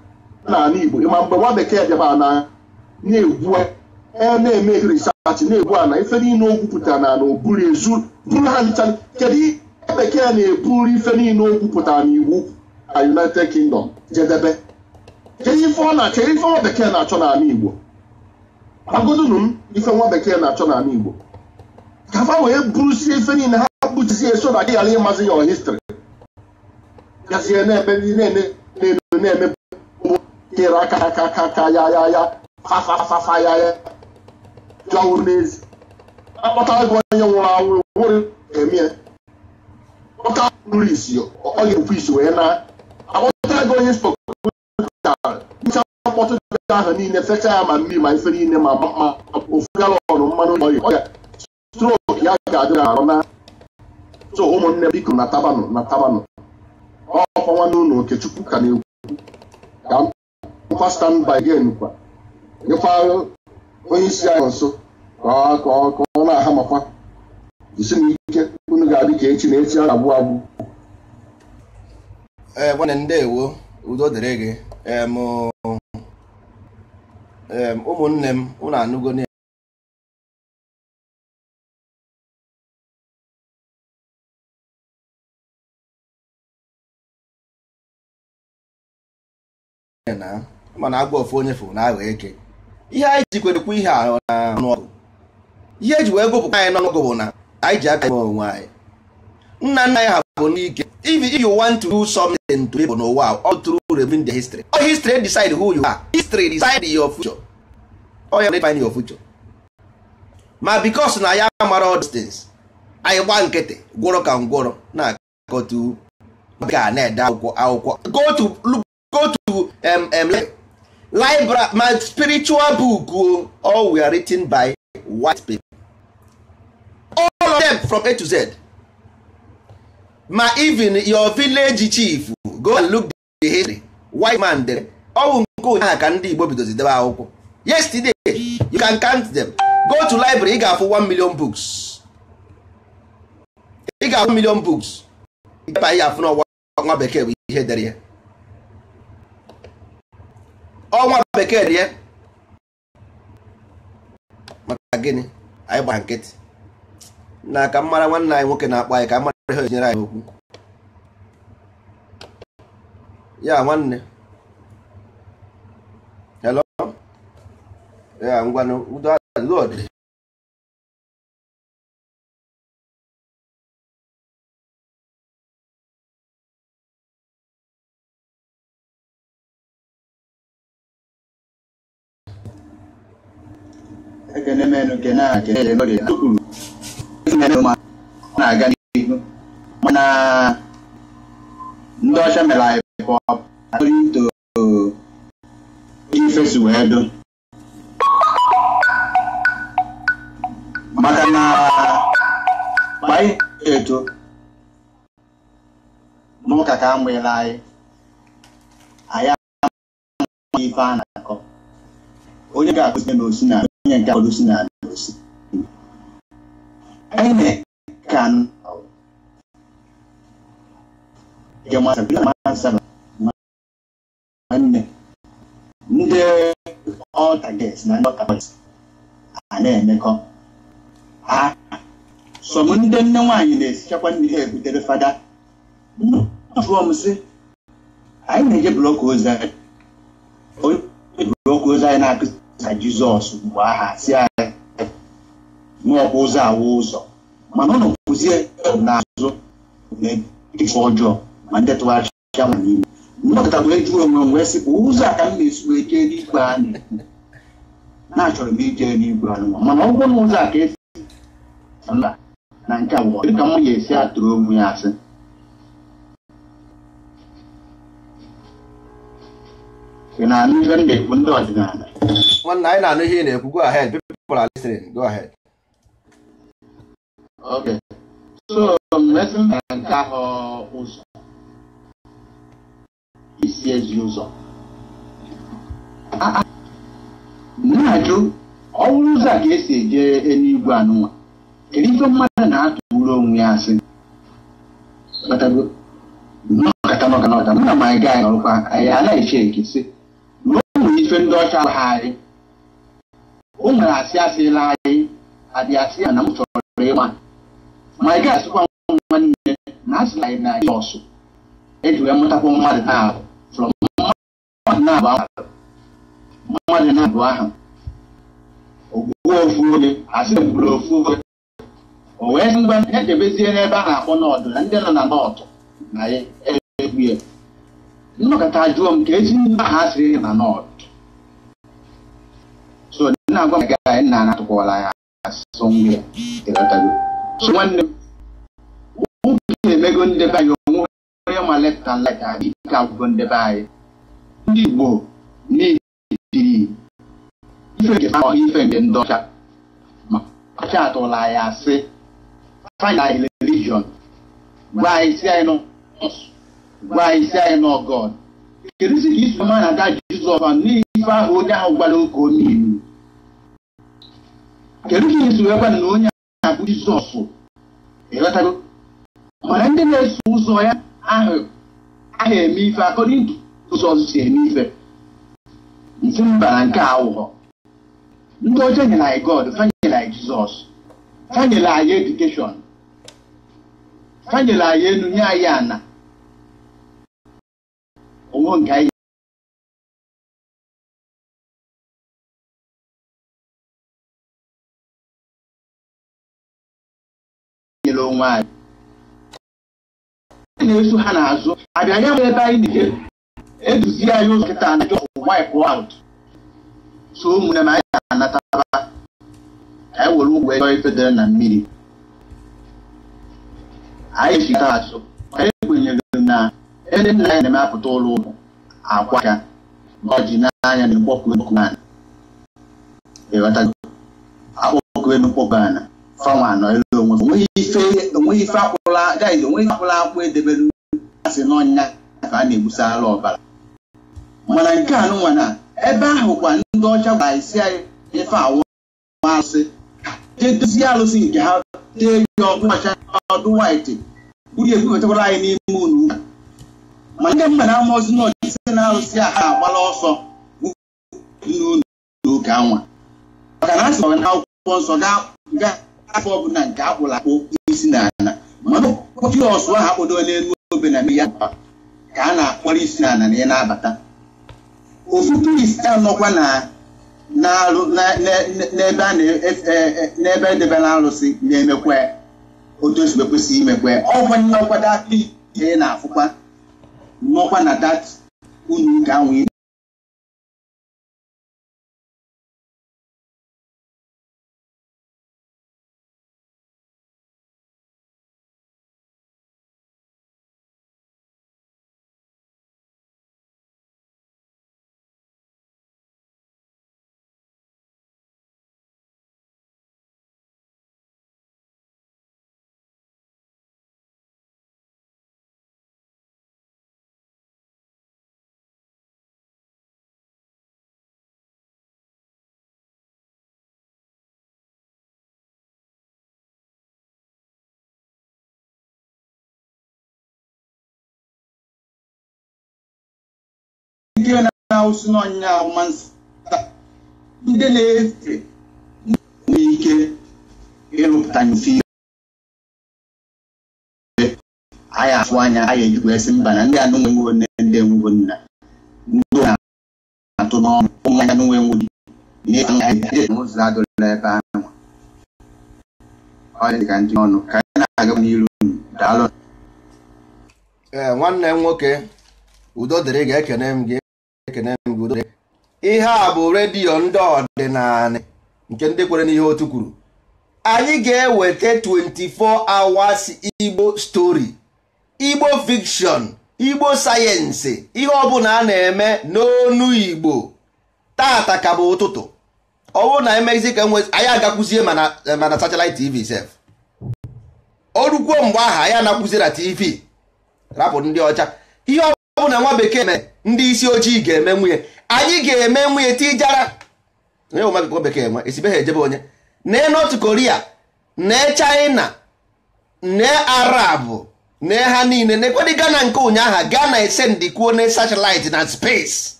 n'ala Igbo ma mgbe nwa bekee bịaba na na-egwu e na-eme risachị na egbu ana ife niile o gwupụtara na na oburu ezu buru ha ncha kedu bekee na-eburu ife niile o gwupụtara na iwu United Kingdom jedebe kedu ife ọ na-achọ ife ọ bekee na-achọ n'ala Igbo agụdụnụ m ife nwa bekee na-achọ n'ala Igbo ka fa wee bụrụsie ife niile ha kpuchisi so na gị ghara ịmazi ya histrị gazie na ndị na-elu na-eme tere aka aka aka aka ya ya ya fafafafa ya ya jọwụrụ n'ezi akpọtara gị onye nwụrụ anwụ nwere eme ya kpọta nri isi ọ ga-ekwu isi wee na akpọtara gị onye spọkụ ahụ niile fecha ya ma mmiri ma ife niile ma ma ofu galọnụ mmanụ ọrịa ọrịa strok ya ga-adị arụ na so ụmụnne biko na tabanụ na tabanụ ọkwa nwanne ụlọ okechukwu ka na ekwu ka mkpa stand by again kwa nyekwa onye isi anyị nso ka ọ na-aha makwa jisi na ike unu ga-adị ka echi na echi a na-agbụ agbụ ee eh, nwanne ndewo udo dịrị gị eh, ụmụnne m ụnụ anụgo mana agwa ofu onye fụ na aghọ eke ihe anyị ji kwerekwa ihe a ọgụ. ihe eji wee gụpụta anyị n'ọnụọgụ bụ na anyị ji aka onwe anyị nna nna anyị ha bụ n'ike if you want to do something to people n'ụwa all through remain the history all history decide who you are history decide your future all you define your future ma because na ya mara all these things anyị gba nkịtị gwọrọ ka ngwọrọ na akọtu ga na-ede akwụkwọ akwụkwọ go to go to um, um, library ma spiritual book oh, all were written by white people all of them from A to Z ma even your village chief go and look the history white man dere ọwụ nke ụnyaahụ ka ndị Igbo bidozi debe akwụkwọ yesterday you can count them go to library ị ga-afụ 1 million books ị ga-afụ 1 million books ịba ihe afụ n'ọnwa bekee bụ ihe dere ya ọnwa bekee dị ya maka gịnị anyị gbara nkịtị na ka mmara nwanne anyị nwoke na-akpọ anyị ka hơi như này yeah dạ, one hello yeah I'm gonna do that good ekene menu kena kene menu kena tukulu menu ma na gani mana ndị ọcha mere anyị pụọ, ọ bụrụ ifesu wee do maka na anyị eto n'ụka ka amụela anyị anyị amaghị ife a na-akọ onye ga-akụzi na osi na onye nke akụzi na osi anyị na-eka nke nwanne ndị ọtaget na ndị ọtaget a na-emekọ ha sọm ndị nne nwaanyị na-esichakwa nri ha ebutere fada jụọ m sị anyị na-eje blọkụ ozi anyị blọkụ ozi anyị na akụsa jizọs mgbe aha si anyị n'ọkwa ụzọ awa ụzọ mana ụnụ na azụ na-eji ọjọọ mande twacha munini munokita kulejulo mulungu wesi kuuza kambisu eteni bwani nacho mbiteni bwani mwana ukona uza kesi ala nancha wo kamo yesi aturo mu yase kina ni gande kundo adina one nine and here ne go ahead people are listening go ahead okay so messing and kaho uso CS user. na-ajụ ọwụrụ ụzọ a ka esi ejere eluigwe anụnwa kedu ife mmadụ na-atụrụ onwe ya asị ọkatanaọkanọta mụ na ma anyị gaa anyị ọrụkwa anyị anaghịchi ekesị ruo nwere ife ndị ọcha ha anyị o nwere asị asịla anyị adị asị ya na m chọrọ ịma ma anyị gaa asịkwa nwa nwanne na asịla anyị na jọsụ eji wee mụtakwa mmadụ na-ahụ na agba ahụ mmadụ na-abụ ahụ ogwuwe ofu oge asị gwuru ofu oge o wee sị ngwa echebezie n'ebe a na-akpọ n'ọdụ na ndị nọ na nọọtụ na ya egwu ya nnọkọta jụọ m ka ezi ndị ahụ asịrị na nọọtụ so na-agwa m gaa nna anatụkwala ya asọ nwa ya so nwanne m ụmụ na emego ndebe anyị onwe onye ma left leta right abịa ike agwụgo ndebe anyị ndị Igbo na-etiri ife nke ọ ife nke ndị ọcha ọcha atụla anyị asị find anyị religion gwa isi si anyị nọ gwa isi si anyị nọ God kedu si ka isu ma na-aga Jizọs n'ife ahụ onye ahụ gwara oke onye kedu ka iso ekwe na onye ahụ bụ Jizọs ịghọtago mana ndị na-eso ụzọ ya ahụ eme ife akọrọ ndụ ụzọ ọzọ si eme ife nsi mba na nke a ndị ọjọọ nyere anyị god fanyere anyị jizọs fanyere anyị edukeshọn fanyere anyị elu nye anyị ana onwe anyị nyere onwe anyị na-eso ha anyị eduzie anyị ụzọ nkịta anaghị ọfụ wipe out so ụmụnne m anyị ga anataba anyị e were ụgwọ ego ifedere na mmiri anyị chita asụ anyị kwenyere na ndị nna anyị na emepụta ụlọ ụlọ akwa aka na ọjị n'anya na mkpọkụ mkpọkụ ana akpọkụ enu mkpọkụ ana fanwa anọ elu onwe onweghị ife onweghị ife akwụla gaịz onweghị akwụla akwụ edebere asị n'ọnya ka a na-egbusara ọbara mana nke a nụnwa na ebe ahụ kwa ndị ọcha gwara isi anyị ife awụ asị jee dozie alụsị nke ha tee ya ọkụ ọcha ọdụ waiti uru ekwughetakwara anyị n'ime unu ma ndị mba na amaozi na ọchịchị na alụsị a ha agbala ọsọ n'ụlọ n'oge anwa maka na a sịrị na akwụkwọ nsọ gaa afọ ọbụla nke akpụrụ akpụ isi na ala mana ọkpọchi ọsụ ahụ akpụdo n'elu obe na mmiri ya ka a na-akpọrọ isi na ala na ya na-abata okpukperisi anọkwa n'ebe edebere e, e, e arụsị na-emekwa otu o si kwesị imekwe ọgwụ nnọkwa data ihe na-afụkwa nnọkwa na dat unu nke anwụ awụsị n'ọnyịnya ọma ndị na-efe nwee ike ịrụpụta mfe anyị afụ anya anyị ejikwa esi mba na ndị anụ nwenwe nne ndị enwegwo nna ndị na-atụ n'ọnụ ụmụ anya nwe nwe n'ụzọ adịla ebe ahụ ọ ka ndị ọnụ ka anyị na-aga n'iru daalụ ee nwanne m nwoke udo dịrị ga-ekene m gị ihe a bụ redio ndị ọdịnala nke ndị kwere n'ihe otu kwuru anyị ga-eweta 24 hours igbo stori igbo fikshon igbo sayensị ihe ọbụla a na-eme n'onu igbo tata ka bụ ụtụtụ ọwụ na emezi ka nwe anyị agakwuzie mana satellite tv sef mgbe ahụ anyị na tv rapụ ndị ọcha ihe ọ bụ na nwa bekee mee ndị isi ojii ga-eme nwunye anyị ga-eme nwunye tijara nwa bekee nwa e ha ejebe onye nee North Korea nee China nee Arab nee ha niile na-ekwedị Ghana nke ụnyaahụ Gana ese kwuo na satellite na space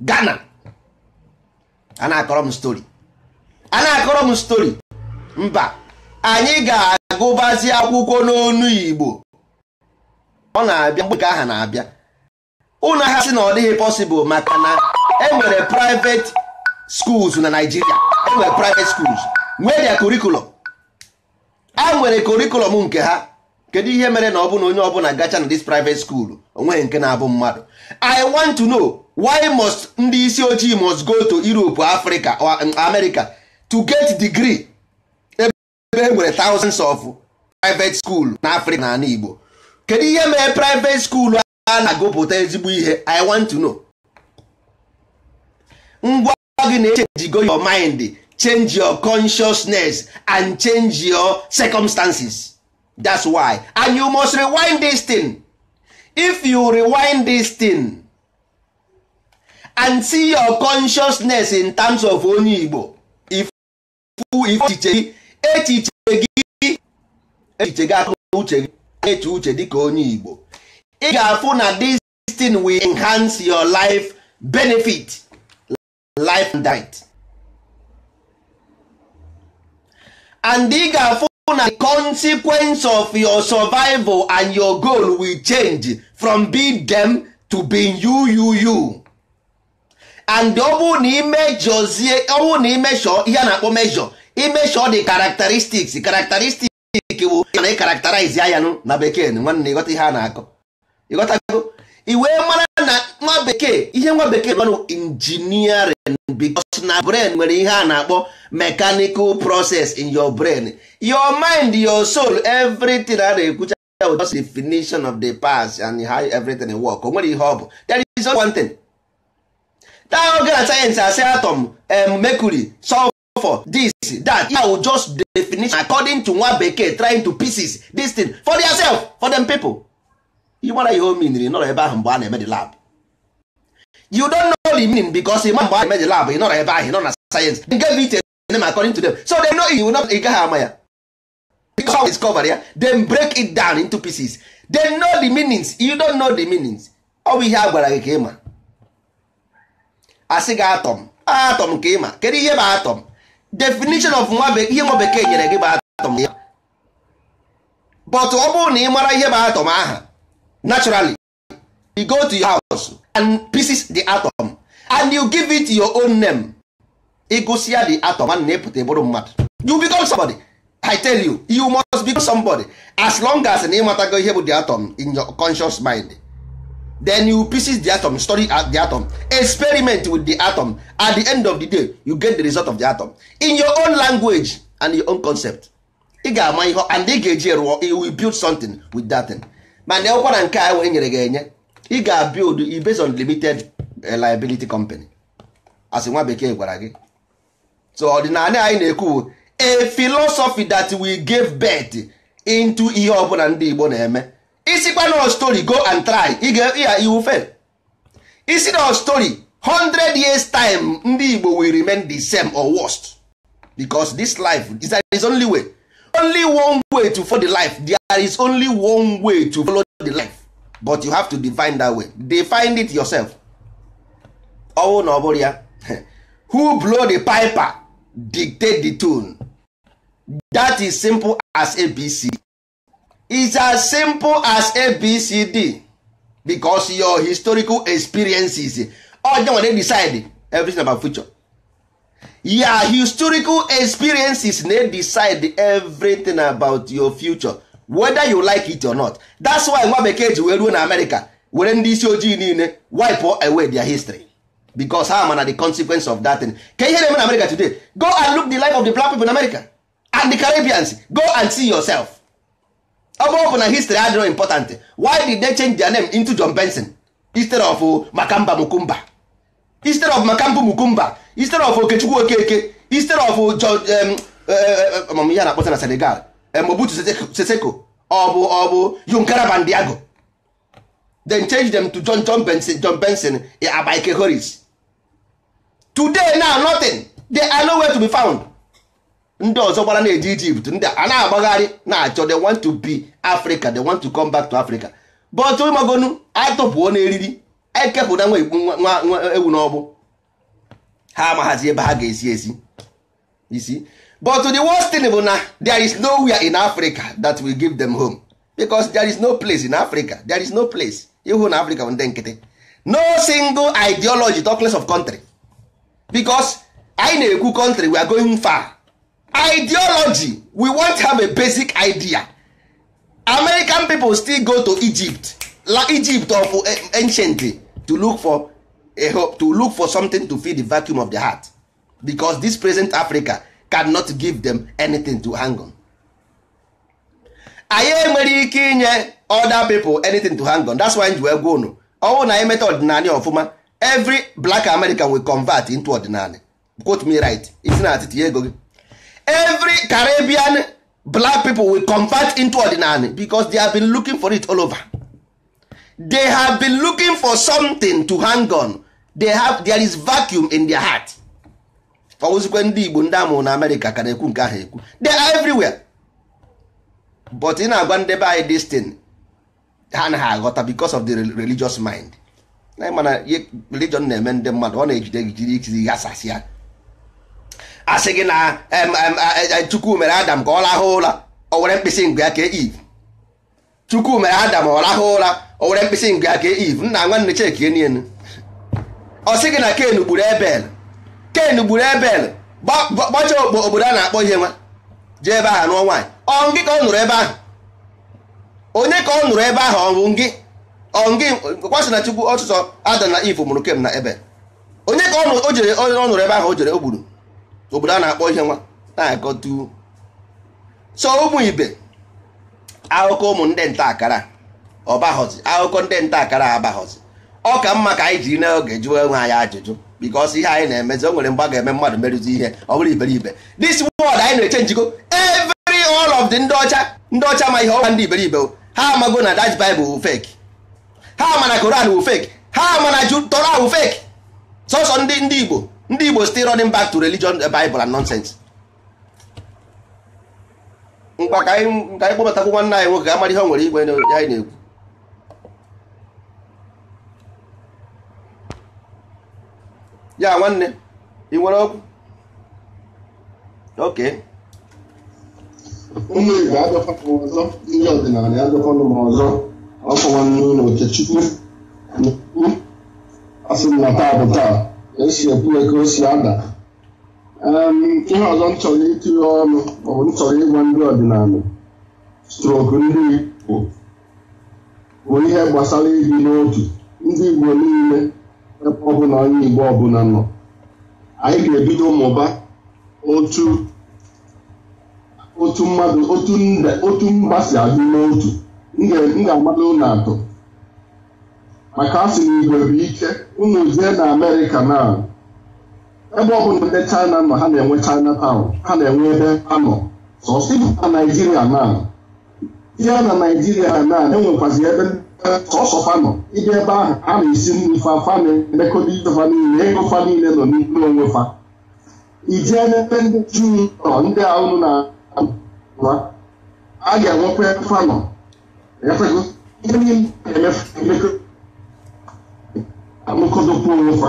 Gana. a na-akọrọ m stori a na-akọrọ m stori mba anyị ga-agụbazi akwụkwọ n'onu Igbo ọ na-abịa mgbe nke aha na-abịa ụlọ ha sị na ọ dịghị possible maka na enwere private schools na Nigeria enwere private schools nwee dia curriculum a e nwere curriculum nke ha kedu ihe mere na ọ na onye ọbụla gacha na dis private school onweghị nke na-abụ mmadụ I want to know why must ndị isi ojii must go to Europe Africa or um, America to get degree ebe e nwere thousands of private school na Africa na ala Igbo kedu ihe mere private school a na-agụpụta ezigbo ihe i want to know ngwa gị na-echenjigo your mind change your consciousness and change your circumstances that's why and you must rewind this thing if you rewind this thing and see your consciousness in terms of onye Igbo echiche gị echiche gị akụrụ uche gị uche dịka onye Igbo ị ga-afụ na this thing will enhance your life benefit life and diet and ị ga-afụ na the consequence of your survival and your goal will change from being them to being you you you and ọ bụ na imejozie ọ bụ na imesho ihe a na-akpọ mesho imesho the characteristics characteristics bụ na ị karakterize ya ya na bekee nwanne ịghọta ihe a na-akọ ịghọtago wee mara na nwa bekee ihe nwa bekee nọ engineering because na brain nwere ihe a na-akpọ mechanical process in your brain your mind your soul everything a na-ekwucha just definition of the past and how everything work o nwere ihe ọ bụ there is one thing that oge na sayensị asị atom um, mercury sulfur this that ya just definition according to nwa bekee trying to pieces this thing for theirself for them people ị mara ihe o miniri nọrọ ebe ahụ mgbe a na-eme the lab you don't know the meaning because ị ịma mgbe a na-eme the lab ị nọrọ ebe ahụ ị nọ na sayensị they gave it a name according to them so they know you not ị gaghị ama ya because how discover ya then break it down into pieces they know the meanings you don't know the meanings ọ bụ ihe a gwara gị ka ịma asị gị atọm atọm ka ịma kedu ihe bụ atọm definition of nwa ihe nwa bekee nyere gị bụ atọm ya but ọ oh, bụrụ na ị mara ihe bụ atọm aha naturally you go to your house and pieces the atom and you give it your own name ịgụsịa the atom and na-epụta bụrụ mmadụ you become somebody i tell you you must become somebody as long as na ịmatago ihe bụ the atom in your conscious mind then you pieces the atom study the atom experiment with the atom at the end of the day you get the result of the atom in your own language and your own concept ị ga-ama ihe and ị ga-eji rụọ you will build something with that thing. mana ọkwa na nke a enyere nyere gị enye ị ga-build based on limited eh, liability company asị nwa bekee gwara gị so ọdịnala anyị na-ekwu a philosophy that we give birth into ihe ọbụla ndị Igbo na-eme isikwa na story go and try ịga iwu fail isi na story 100 years time ndị Igbo will remain the same or worst because this life is only way only one way to follow the life there is only one way to follow the life but you have to define that way define it yourself ọwụ na ọ ya who blow the piper dictate the tune that is simple as abc is as simple as abcd because your historical experiences ọjọọ nwere decide everything about future ya historical experiences na decide everything about your future whether you like it or not that's why nwa bekee ji wee ruo na America were ndị isi ojii niile wipe away their history because ha mana the consequence of that thing ka ihe na-eme na America today go and look the life of the black people in America and the Caribbeans go and see yourself ọ bụrụ na history adịrọ important why did they change their name into John Benson instead of Makamba Mukumba instead of makambu mukumba instead of okechukwu okeke instead of um, um, uh, uh, um, ya na-akpọta na senegal mobutu seseko ọ ọbụ ọ bụ yunkara bandiago then change them to john john benson john benson e, abike horis today now nothing they are nowhere to be found ndị ọzọ gbara na-eje Egypt ndị a na-agbagharị na-achọ they want to be Africa they want to come back to Africa but ụmagonu atụpụo n'eriri ekepụta nwa igbu nwa ewu n'ọbụ ha amaghazi ebe ha ga-esi esi isi but the worst thing bụ na there is nowhere in Africa that will give them home because there is no place in Africa there is no place ihu na Africa bụ ndị nkịtị no single ideology talkless of country because anyị na-ekwu country we are going far ideology we want have a basic idea American people still go to Egypt la Egypt of eh, anciently to look for a hope to look for something to fill the vacuum of their heart because this present Africa cannot give them anything to hang on. anyị enwere ike inye other people anything to hang on that's why ji wee gwa unu ọnwụ na anyị meta ọdịnala ọfụma every black American will convert into ordinary quote me right isi na atịtị ego gị every Caribbean black people will convert into ordinary because they have been looking for it all over. they have been looking for something to hang on they have there is vacuum in their heart ọwụzikwe ndị igbo ndị amụrụ na amerịka ka na-ekwu nke ahụ ekwu they are everywhere but ị na-agwa ndebe be anyị destin ha na ha aghọta because of the religious mind na mana religion na-eme ndị mmadụ ọ na-ejide gị jiri ikizi ghasasị ya asị gị na chukwu mere adam ka ọ rahụ ụra o were mkpịsị ngụ ya ka eve chukwu mere adam ọ rahụ ụra o were mkpịsị nke aka e iv nna nwanne chekie nienu ọ sị gị na ken gburu ebel ken gburu ebel bọcha obodo a na-akpọ ihe nwa jee ebe ahụ nụọ nwaanyị ọ ngị ka ọ nụrụ ebe ahụ onye ka ọ nụrụ ebe ahụ ọ ngị ọ kwasị na chukwu ọtụtụ adam na iv mụrụ kem na ebel onye ka ọ jere ọ nụrụ ebe ahụ o jere o obodo a na-akpọ ihe nwa na agọtu so ụmụ ibe akụkọ ụmụ ndị nta akara ọbaghọzi akụkọ ndị nta akara abaghọzi ọ ka mma ka anyị jiri n'oge jụọ onwe anyị ajụjụ because ihe anyị na-emezi o nwere mgbe a ga-eme mmadụ merụzi ihe ọ bụrụ iberibe this word anyị na-eche njikọ every all of the ndị ọcha ndị ọcha ma ihe ọwa ndị iberibe ha amago na dach baịbụl wu fake ha mana Koran wu fake ha mana na Torah wu fake sọsọ ndị ndị Igbo ndị Igbo still running back to religion eh, Bible and nonsense mkpa ka anyị kpọbatakwu nwanne anyị nwoke ga amara ihe o nwere igwe anyị na-ekwu ya nwanne ị nwere okwu oke ụmụ igbo agafọm ọzọ ndị ọdịnala agafọnụ m ọzọ ọkụ nwanne ụlọ okechukwu na-ekwu asị m na taa bụ taa esi ekwu ka o si ada ihe ọzọ m chọrọ itinye ọnụ maọbụ m chọrọ ịgwa ndị ọdịnala strok ndị igbo bụ ihe gbasara ibi n'otu ndị igbo niile ebe ọbụla onye Igbo ọbụla nọ anyị ga-ebido mụba otu otu mmadụ otu mba si adị n'otu m ga-agbado ụlọ atọ maka asị sị na Igbo bụ ike unu jee na Amerịka na ebe ọbụla ndị China nọ ha na-enwe China town ha na-enwe ebe ha nọ sọsọ na Naijiria na ya na Naijiria na enwekwazi ebe sọsọfanọ ịdị ebe ahụ a na-esi nri fa fa na-emekọta ifefa niile ego fa niile nọ n'ime onwe fa Ije n'ebe ndị juu nọ ndị ahụ na wa a ga-enwekwa fanọ ihe niile amụkọdokwa onwe fa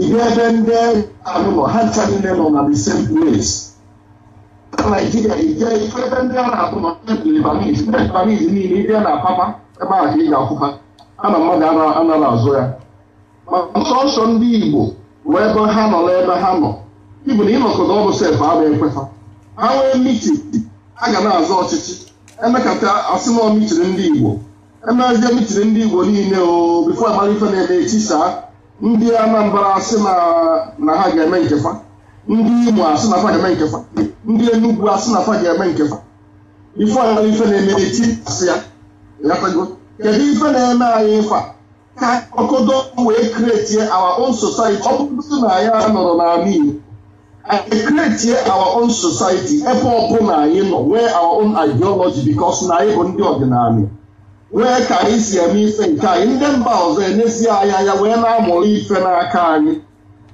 ihe ebe ndị ahụ nọ ha ncha niile nọ na the same place na Naijiria ije ife ebe ndị a na-atụ nọ ndị Lebanese ndị Lebanese niile ndị a na-apapa ebe a ka ị ga-akwụkwa ha na mmadụ anaghị azụ ya ma nsọ nsọ ndị igbo wee ebe ha nọ ebe ha nọ ibu na ịnọkọta ọbụ sef abụ ekweta ha nwee mitiri a ga na azụ ọchịchị emekata asị na mitiri ndị igbo emezie mitiri ndị igbo niile o bifo amara ife na-eme etisaa ndị anambra asị na ha ga-eme nkefa ndị imo asị na fa ga-eme nkefa ndị enugwu asị na fa ga-eme nkefa ife amara ife na-eme eti asị kedu ife na-eme anyị a. ka ọkọdọ wee kretie our own society ọ bụrụ na anyị nọrọ n'ala Igbo anyị kretie our own society ebe ọbụla anyị nọ nwee our own ideology because na anyị bụ ndị ọdịnala nwee ka anyị si eme ife nke anyị ndị mba ọzọ enesi anyị anya wee na-amụrụ ife n'aka anyị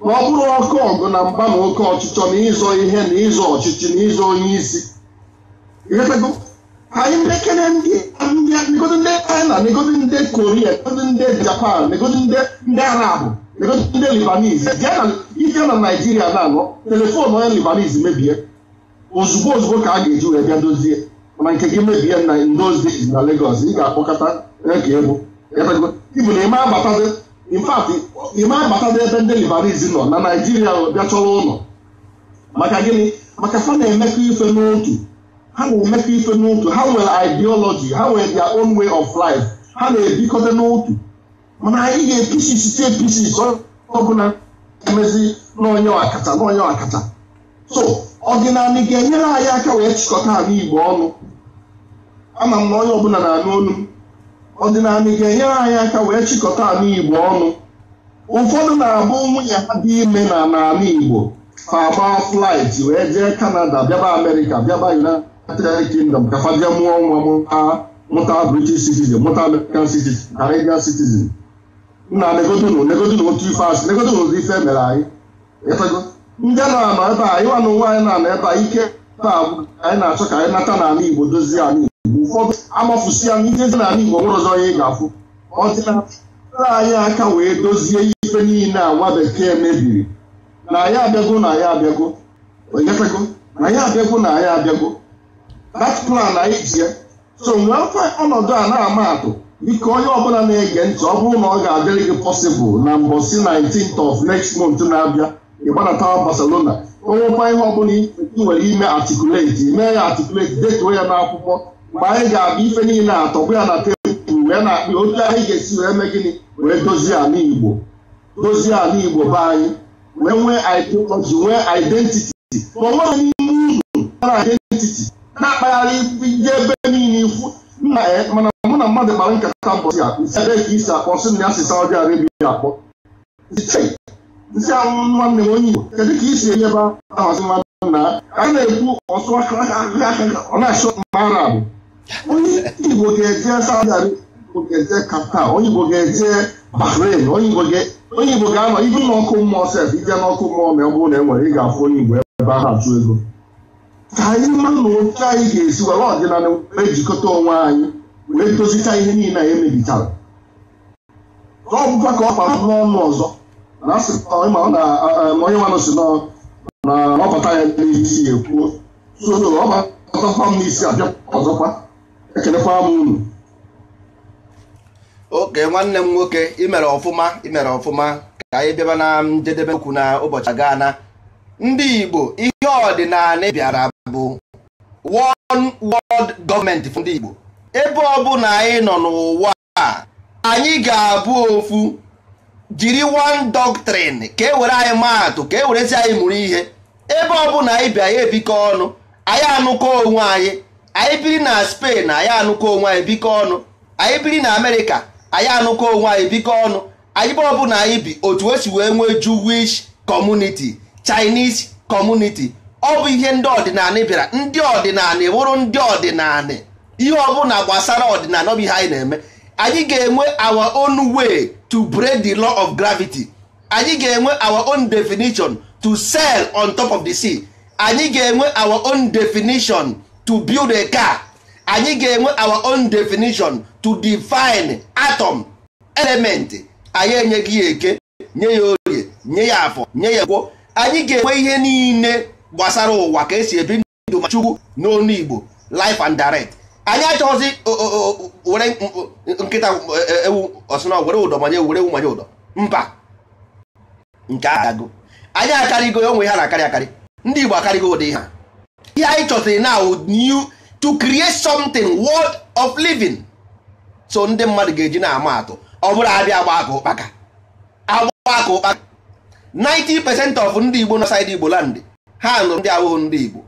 na ọ bụrụ ọkụ ọgụ na mba na oke ọchịchọ na ịzọ ihe na ịzọ ọchịchị na ịzọ onye isi anyị ndị kene ndị negozi ndị china negozi ndị koria negozi ndị japan negozi ndị arabụ negozi ndị libanese ije na naijiria na-anọ telefon onye libanese mebie ozugbo ozugbo ka a ga-eji wee bịa dozie mana nke gị mebie na those days na Lagos ị ga-akpọkọta ege egwu ibu na ime agbatazi in fact ime agbatazi ebe ndị libanese nọ na naijiria bịa chọrọ ụlọ maka gịnị maka fa na-emekọ ife n'otu ha na-emefe ife n'otu ha nwere ideology ha nwere their own way of life ha na-ebikọta n'otu mana anyị ga-episi site episi ọbụla emezi n'onye ọkacha n'onye ọkacha so ọdịnala ga-enyere anyị aka wee chịkọta ala igbo ọnụ ama m na onye ọbụla na-anụ olu m ọdịnala ga-enyere anyị aka wee chịkọta ala igbo ọnụ ụfọdụ na-abụ nwunye ha dị ime na n'ala igbo fa agba flight wee jee kanada bịaba amerịka bịaba united United Kingdom kakwaje mụọ nwa mụta mụta British citizen mụta American citizen Canadian citizen nna negodunu negodunu otu ife asị negodunu ụdị ife eh? mere anyị ịfego ndị a na-anọ ebe a ịwa na ụwa anyị na-anọ ebe a ike taa anyị na-achọ ka anyị nata n'ala Igbo dozie ala Igbo ụfọdụ amafusi ya n'ihe dị n'ala Igbo nwere ọzọ onye ị ga-afụ Ọ ọdịnala anyị aka wee dozie ife niile a nwa bekee mebiri na ya abịago na anyị abịago na ya abịago na anyị abịago that plan anyị ji ya so nwee mfe ọnọdụ a na-ama atụ ike onye ọbụla na-ege ntị ọ bụrụ na ọ ga-adịrị gị possible na mbọsi 19th of next month na-abịa ịgbanatawa Barcelona onwekwa ihe ọbụla ị nwere ime articulate mee ya articulate detuo ya n'akwụkwọ mgbe anyị ga-abịa ife niile atọbụ ya na tebụl wee na-akpị otu anyị ga-esi wee mee gịnị wee dozie ala Igbo dozie ala Igbo be anyị wee nwee ideology nwee identity ma onwe nweghị n'ime uru na identity na-akpagharị ije ebe niile ikwu nna ya eh, mana mụ na mmadụ kpara nkata mbọsi a isi ebe ka isi akpọ sị na ya si Saudi Arabia akpọ nsị anwụ nwanne m onye Igbo kedu ka isi enye ebe ahazi mmadụ na a na-ekwu ọsụ ọ na-achọ mma arabụ onye Igbo ga-eje Saudi Arabia onye Igbo ga-eje Qatar onye Igbo ga-eje Bahrain onye Igbo ga-anọ ibu n'ọkụ mmụọ sef ije n'ọkụ mmụọ ma ọ bụrụ na e nwere ị ga-afụ onye Igbo ebe ahụ achụ ego ka anyị mara na otu anyị ga-esi were ọdịnala wee jikọta onwe anyị wee tozicha ihe niile anyị emebichara ọ bụkwa ka ọ gbara n'ọnụ ọzọ na e, onye nwanụ si na ọbata ya n'ihe isi ekwuo soro ọbatakwa m isi abịa ọzọkwa ekelekwa m unu oke nwanne m nwoke imere ọfụma imere ọfụma ka anyị bịaba na njedebe okwu na ụbọchị gaa na ndị Igbo ihe ọdịnala bịara bụ one world gọọmenti ndị Igbo ebe ọbụla anyị nọ n'ụwa a anyị ga-abụ ofu jiri one doctrine ka e were anyị maatụ ka e werezi anyị mụrụ ihe ebe ọbụla anyị bi anyị ebikọ ọnụ anyị anụkọ onwe anyị anyị biri na Spain anyị anụkọ onwe anyị bikọ ọnụ anyị biri na Amerịka anyị anụkọ onwe anyị bikọ ọnụ anyị ebe ọbụla anyị bi otu esi wee nwee Jewish community Chinese community ọ bụ ihe ndị ọdịnala bịara ndị ọdịnala e wụrụ ndị ọdịnala ihe ọ na gbasara ọdịnala ọ bụ ihe anyị na-eme anyị ga-enwe our own way to break the law of gravity anyị ga-enwe our own definition to sail on top of the sea anyị ga-enwe our own definition to build a car anyị ga-enwe our own definition to define atom element anyị enyeghị ya eke nye ya orie nye ya afọ nye ya gwo anyị ga-enwe ihe niile gbasara ụwa ka esi ebi ndụ ma chukwu n'onu igbo life and direct anyị achọghịzi were nkịta e, e, ewu ọsụna were ụdọ manye were ewu manye ụdọ mba nke agago anyị akarịgo onwe ha na-akarị akarị ndị igbo akarịgo ụdị ha ihe anyị chọtara na new to create something world of living so ndị mmadụ ga-eji na-ama atụ ọ bụrụ abịa agba aka ụkpaka agba aka ụkpaka 90 percent of ndị igbo na saịdị igbo landị ha nụrụ ndị awụghụ ndị Igbo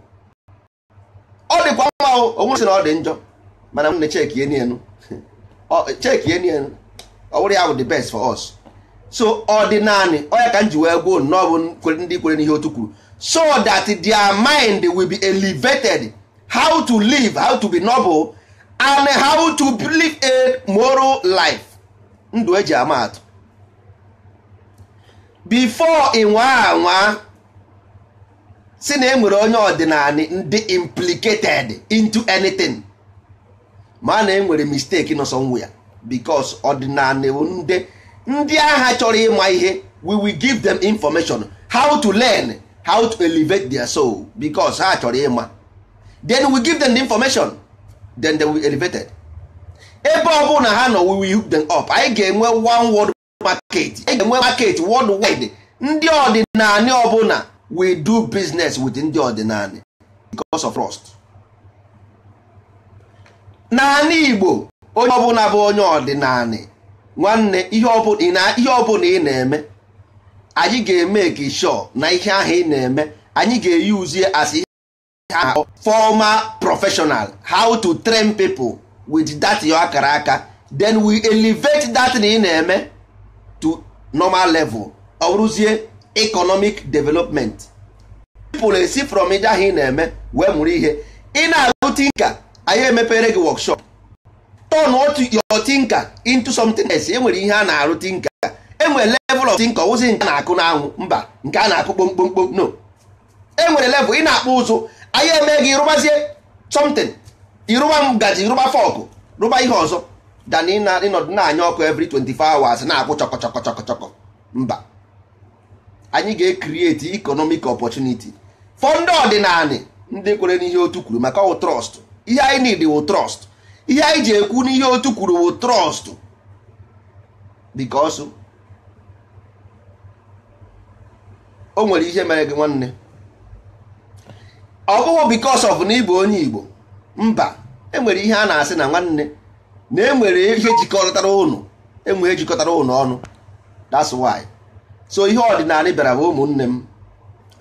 ọ dịkwa mma onwe na ọ dị njọ mana m na cheki enu cheki enu ọ wụrụ ya bụ the best for us so ọ dị naanị onye ka m ji wee gwuo nnọọ bụ ndị kwere n'ihe otu kwuru so that their mind will be elevated how to live how to be noble and how to live a moral life ndụ eji ama atụ before ị nwa anwa si na enwere onye ọdịnala ndị implicated into anything ma na enwere mistake nọ somewhere because ọdịnala ndị ndị agha chọrọ ịma ihe we will give them information how to learn how to elevate their soul because ha chọrọ ịma then we give them the information then they will be elevated ebe ọ bụla ha nọ we will hook them up anyị ga-enwe one world market anyị ga-enwe market worldwide ndị ọdịnala ọbụla we do business with ndị ọdịnala because of trust n'ala Igbo onye ọbụla bụ onye ọdịnala nwanne ihe ọbụla ị na-eme anyị ga-eme ka sure na ihe ahụ ị na-eme anyị ga-eyuzie as ihe formal professional how to train people with that yo akara aka then we elevate that na ị na-eme to normal level ọ bụrụzie economic development people esi from ije ahụ ị na-eme wee mụrụ ihe ị na-alụ tinka anyị emepere gị wọkshọp. Tọn otu your tinka into something else e nwere ihe a na-arụ tinka enwere level of tinka ọwụzi nke a na-akụ n'anwụ mba nke a na-akụ kpomkpomkpom no enwere level ị na-akpụ ụzụ anyị eme gị rụbazie something ịrụba ngaji rụba fọkụ rụba ihe ọzọ dan ịnọdụ na-anya ọkụ every 24 hours na-akwụ chọkọ chọkọ chọkọ chọkọ mba anyị ga-ekriti economic opportunity for ndị ọdịnala ndị kwere n'ihe otu kwuru maka ọwụ trọst ihe anyị nidi wụ trọst ihe anyị ji ekwu n'ihe otu kwuru wụ trọst because o nwere ihe mere gị nwanne ọ bụghị because ọf na ịbụ onye Igbo mba enwere ihe a na-asị na nwanne na enwere ihe jikọtara ụnụ enwere ihe jikọtara ụnụ ọnụ that's why. so ihe ọdịnala bịara bụ ụmụnne m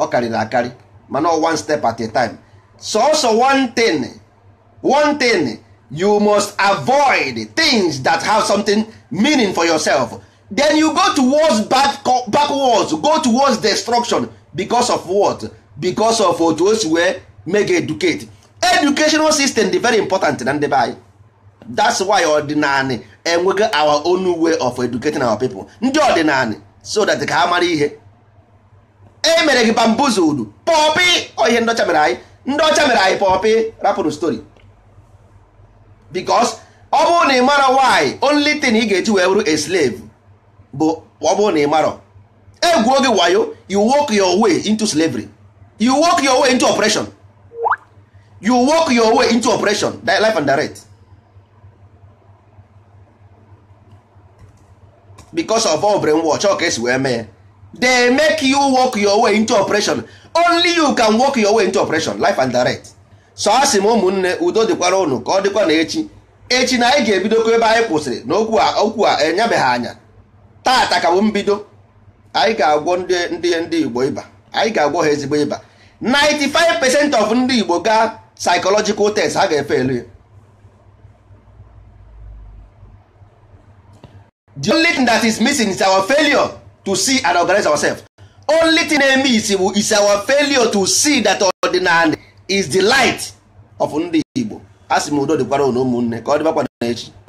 ọ karịrị akarị mana one step at a time sọsọ one thing one thing you must avoid things that have something meaning for yourself then you go towards back, backwards go towards destruction because of what because of otu wey wee make educate educational system dị very important na ndị that's why ọdịnala enweghị our own way of educating our people ndị ọdịnala so that ka ha mara ihe e mere gị bambuzudu pọpị ihe ndị ọcha mere anyị ndị ọcha mere anyị pọpị rapụrụ stori because ọ bụrụ na ị mara why only thing ị ga-eji wee bụrụ a slave bụ ọ bụrụ na ị mara egwuo gị wayo you work your way into slavery you work your way into oppression you work your way into oppression life and direct because of ọ brain ọka ka esi wee mee ya they make you work your way into operation only you can work your way into operation life and direct so a sị m ụmụnne udo dịkwara ụnụ ka ọ dịkwa na echi echi na anyị ga-ebidokwa ebe anyị kwụsịrị na okwu a okwu a enyebeghị anya tata ka bụ mbido anyị ga-agwọ ndị ndị ndị igbo ịba anyị ga-agwọ ha ezigbo ịba 95 percent of ndị igbo gaa psychological test ha ga-efe elu ya the only thing that is missing is our failure to see and organize ourselves. only thing na-eme isi is our failure to see that ordinary is the light of ndị Igbo a sị m udo dịkwara ụmụnne ka ọ dịbakwa na echi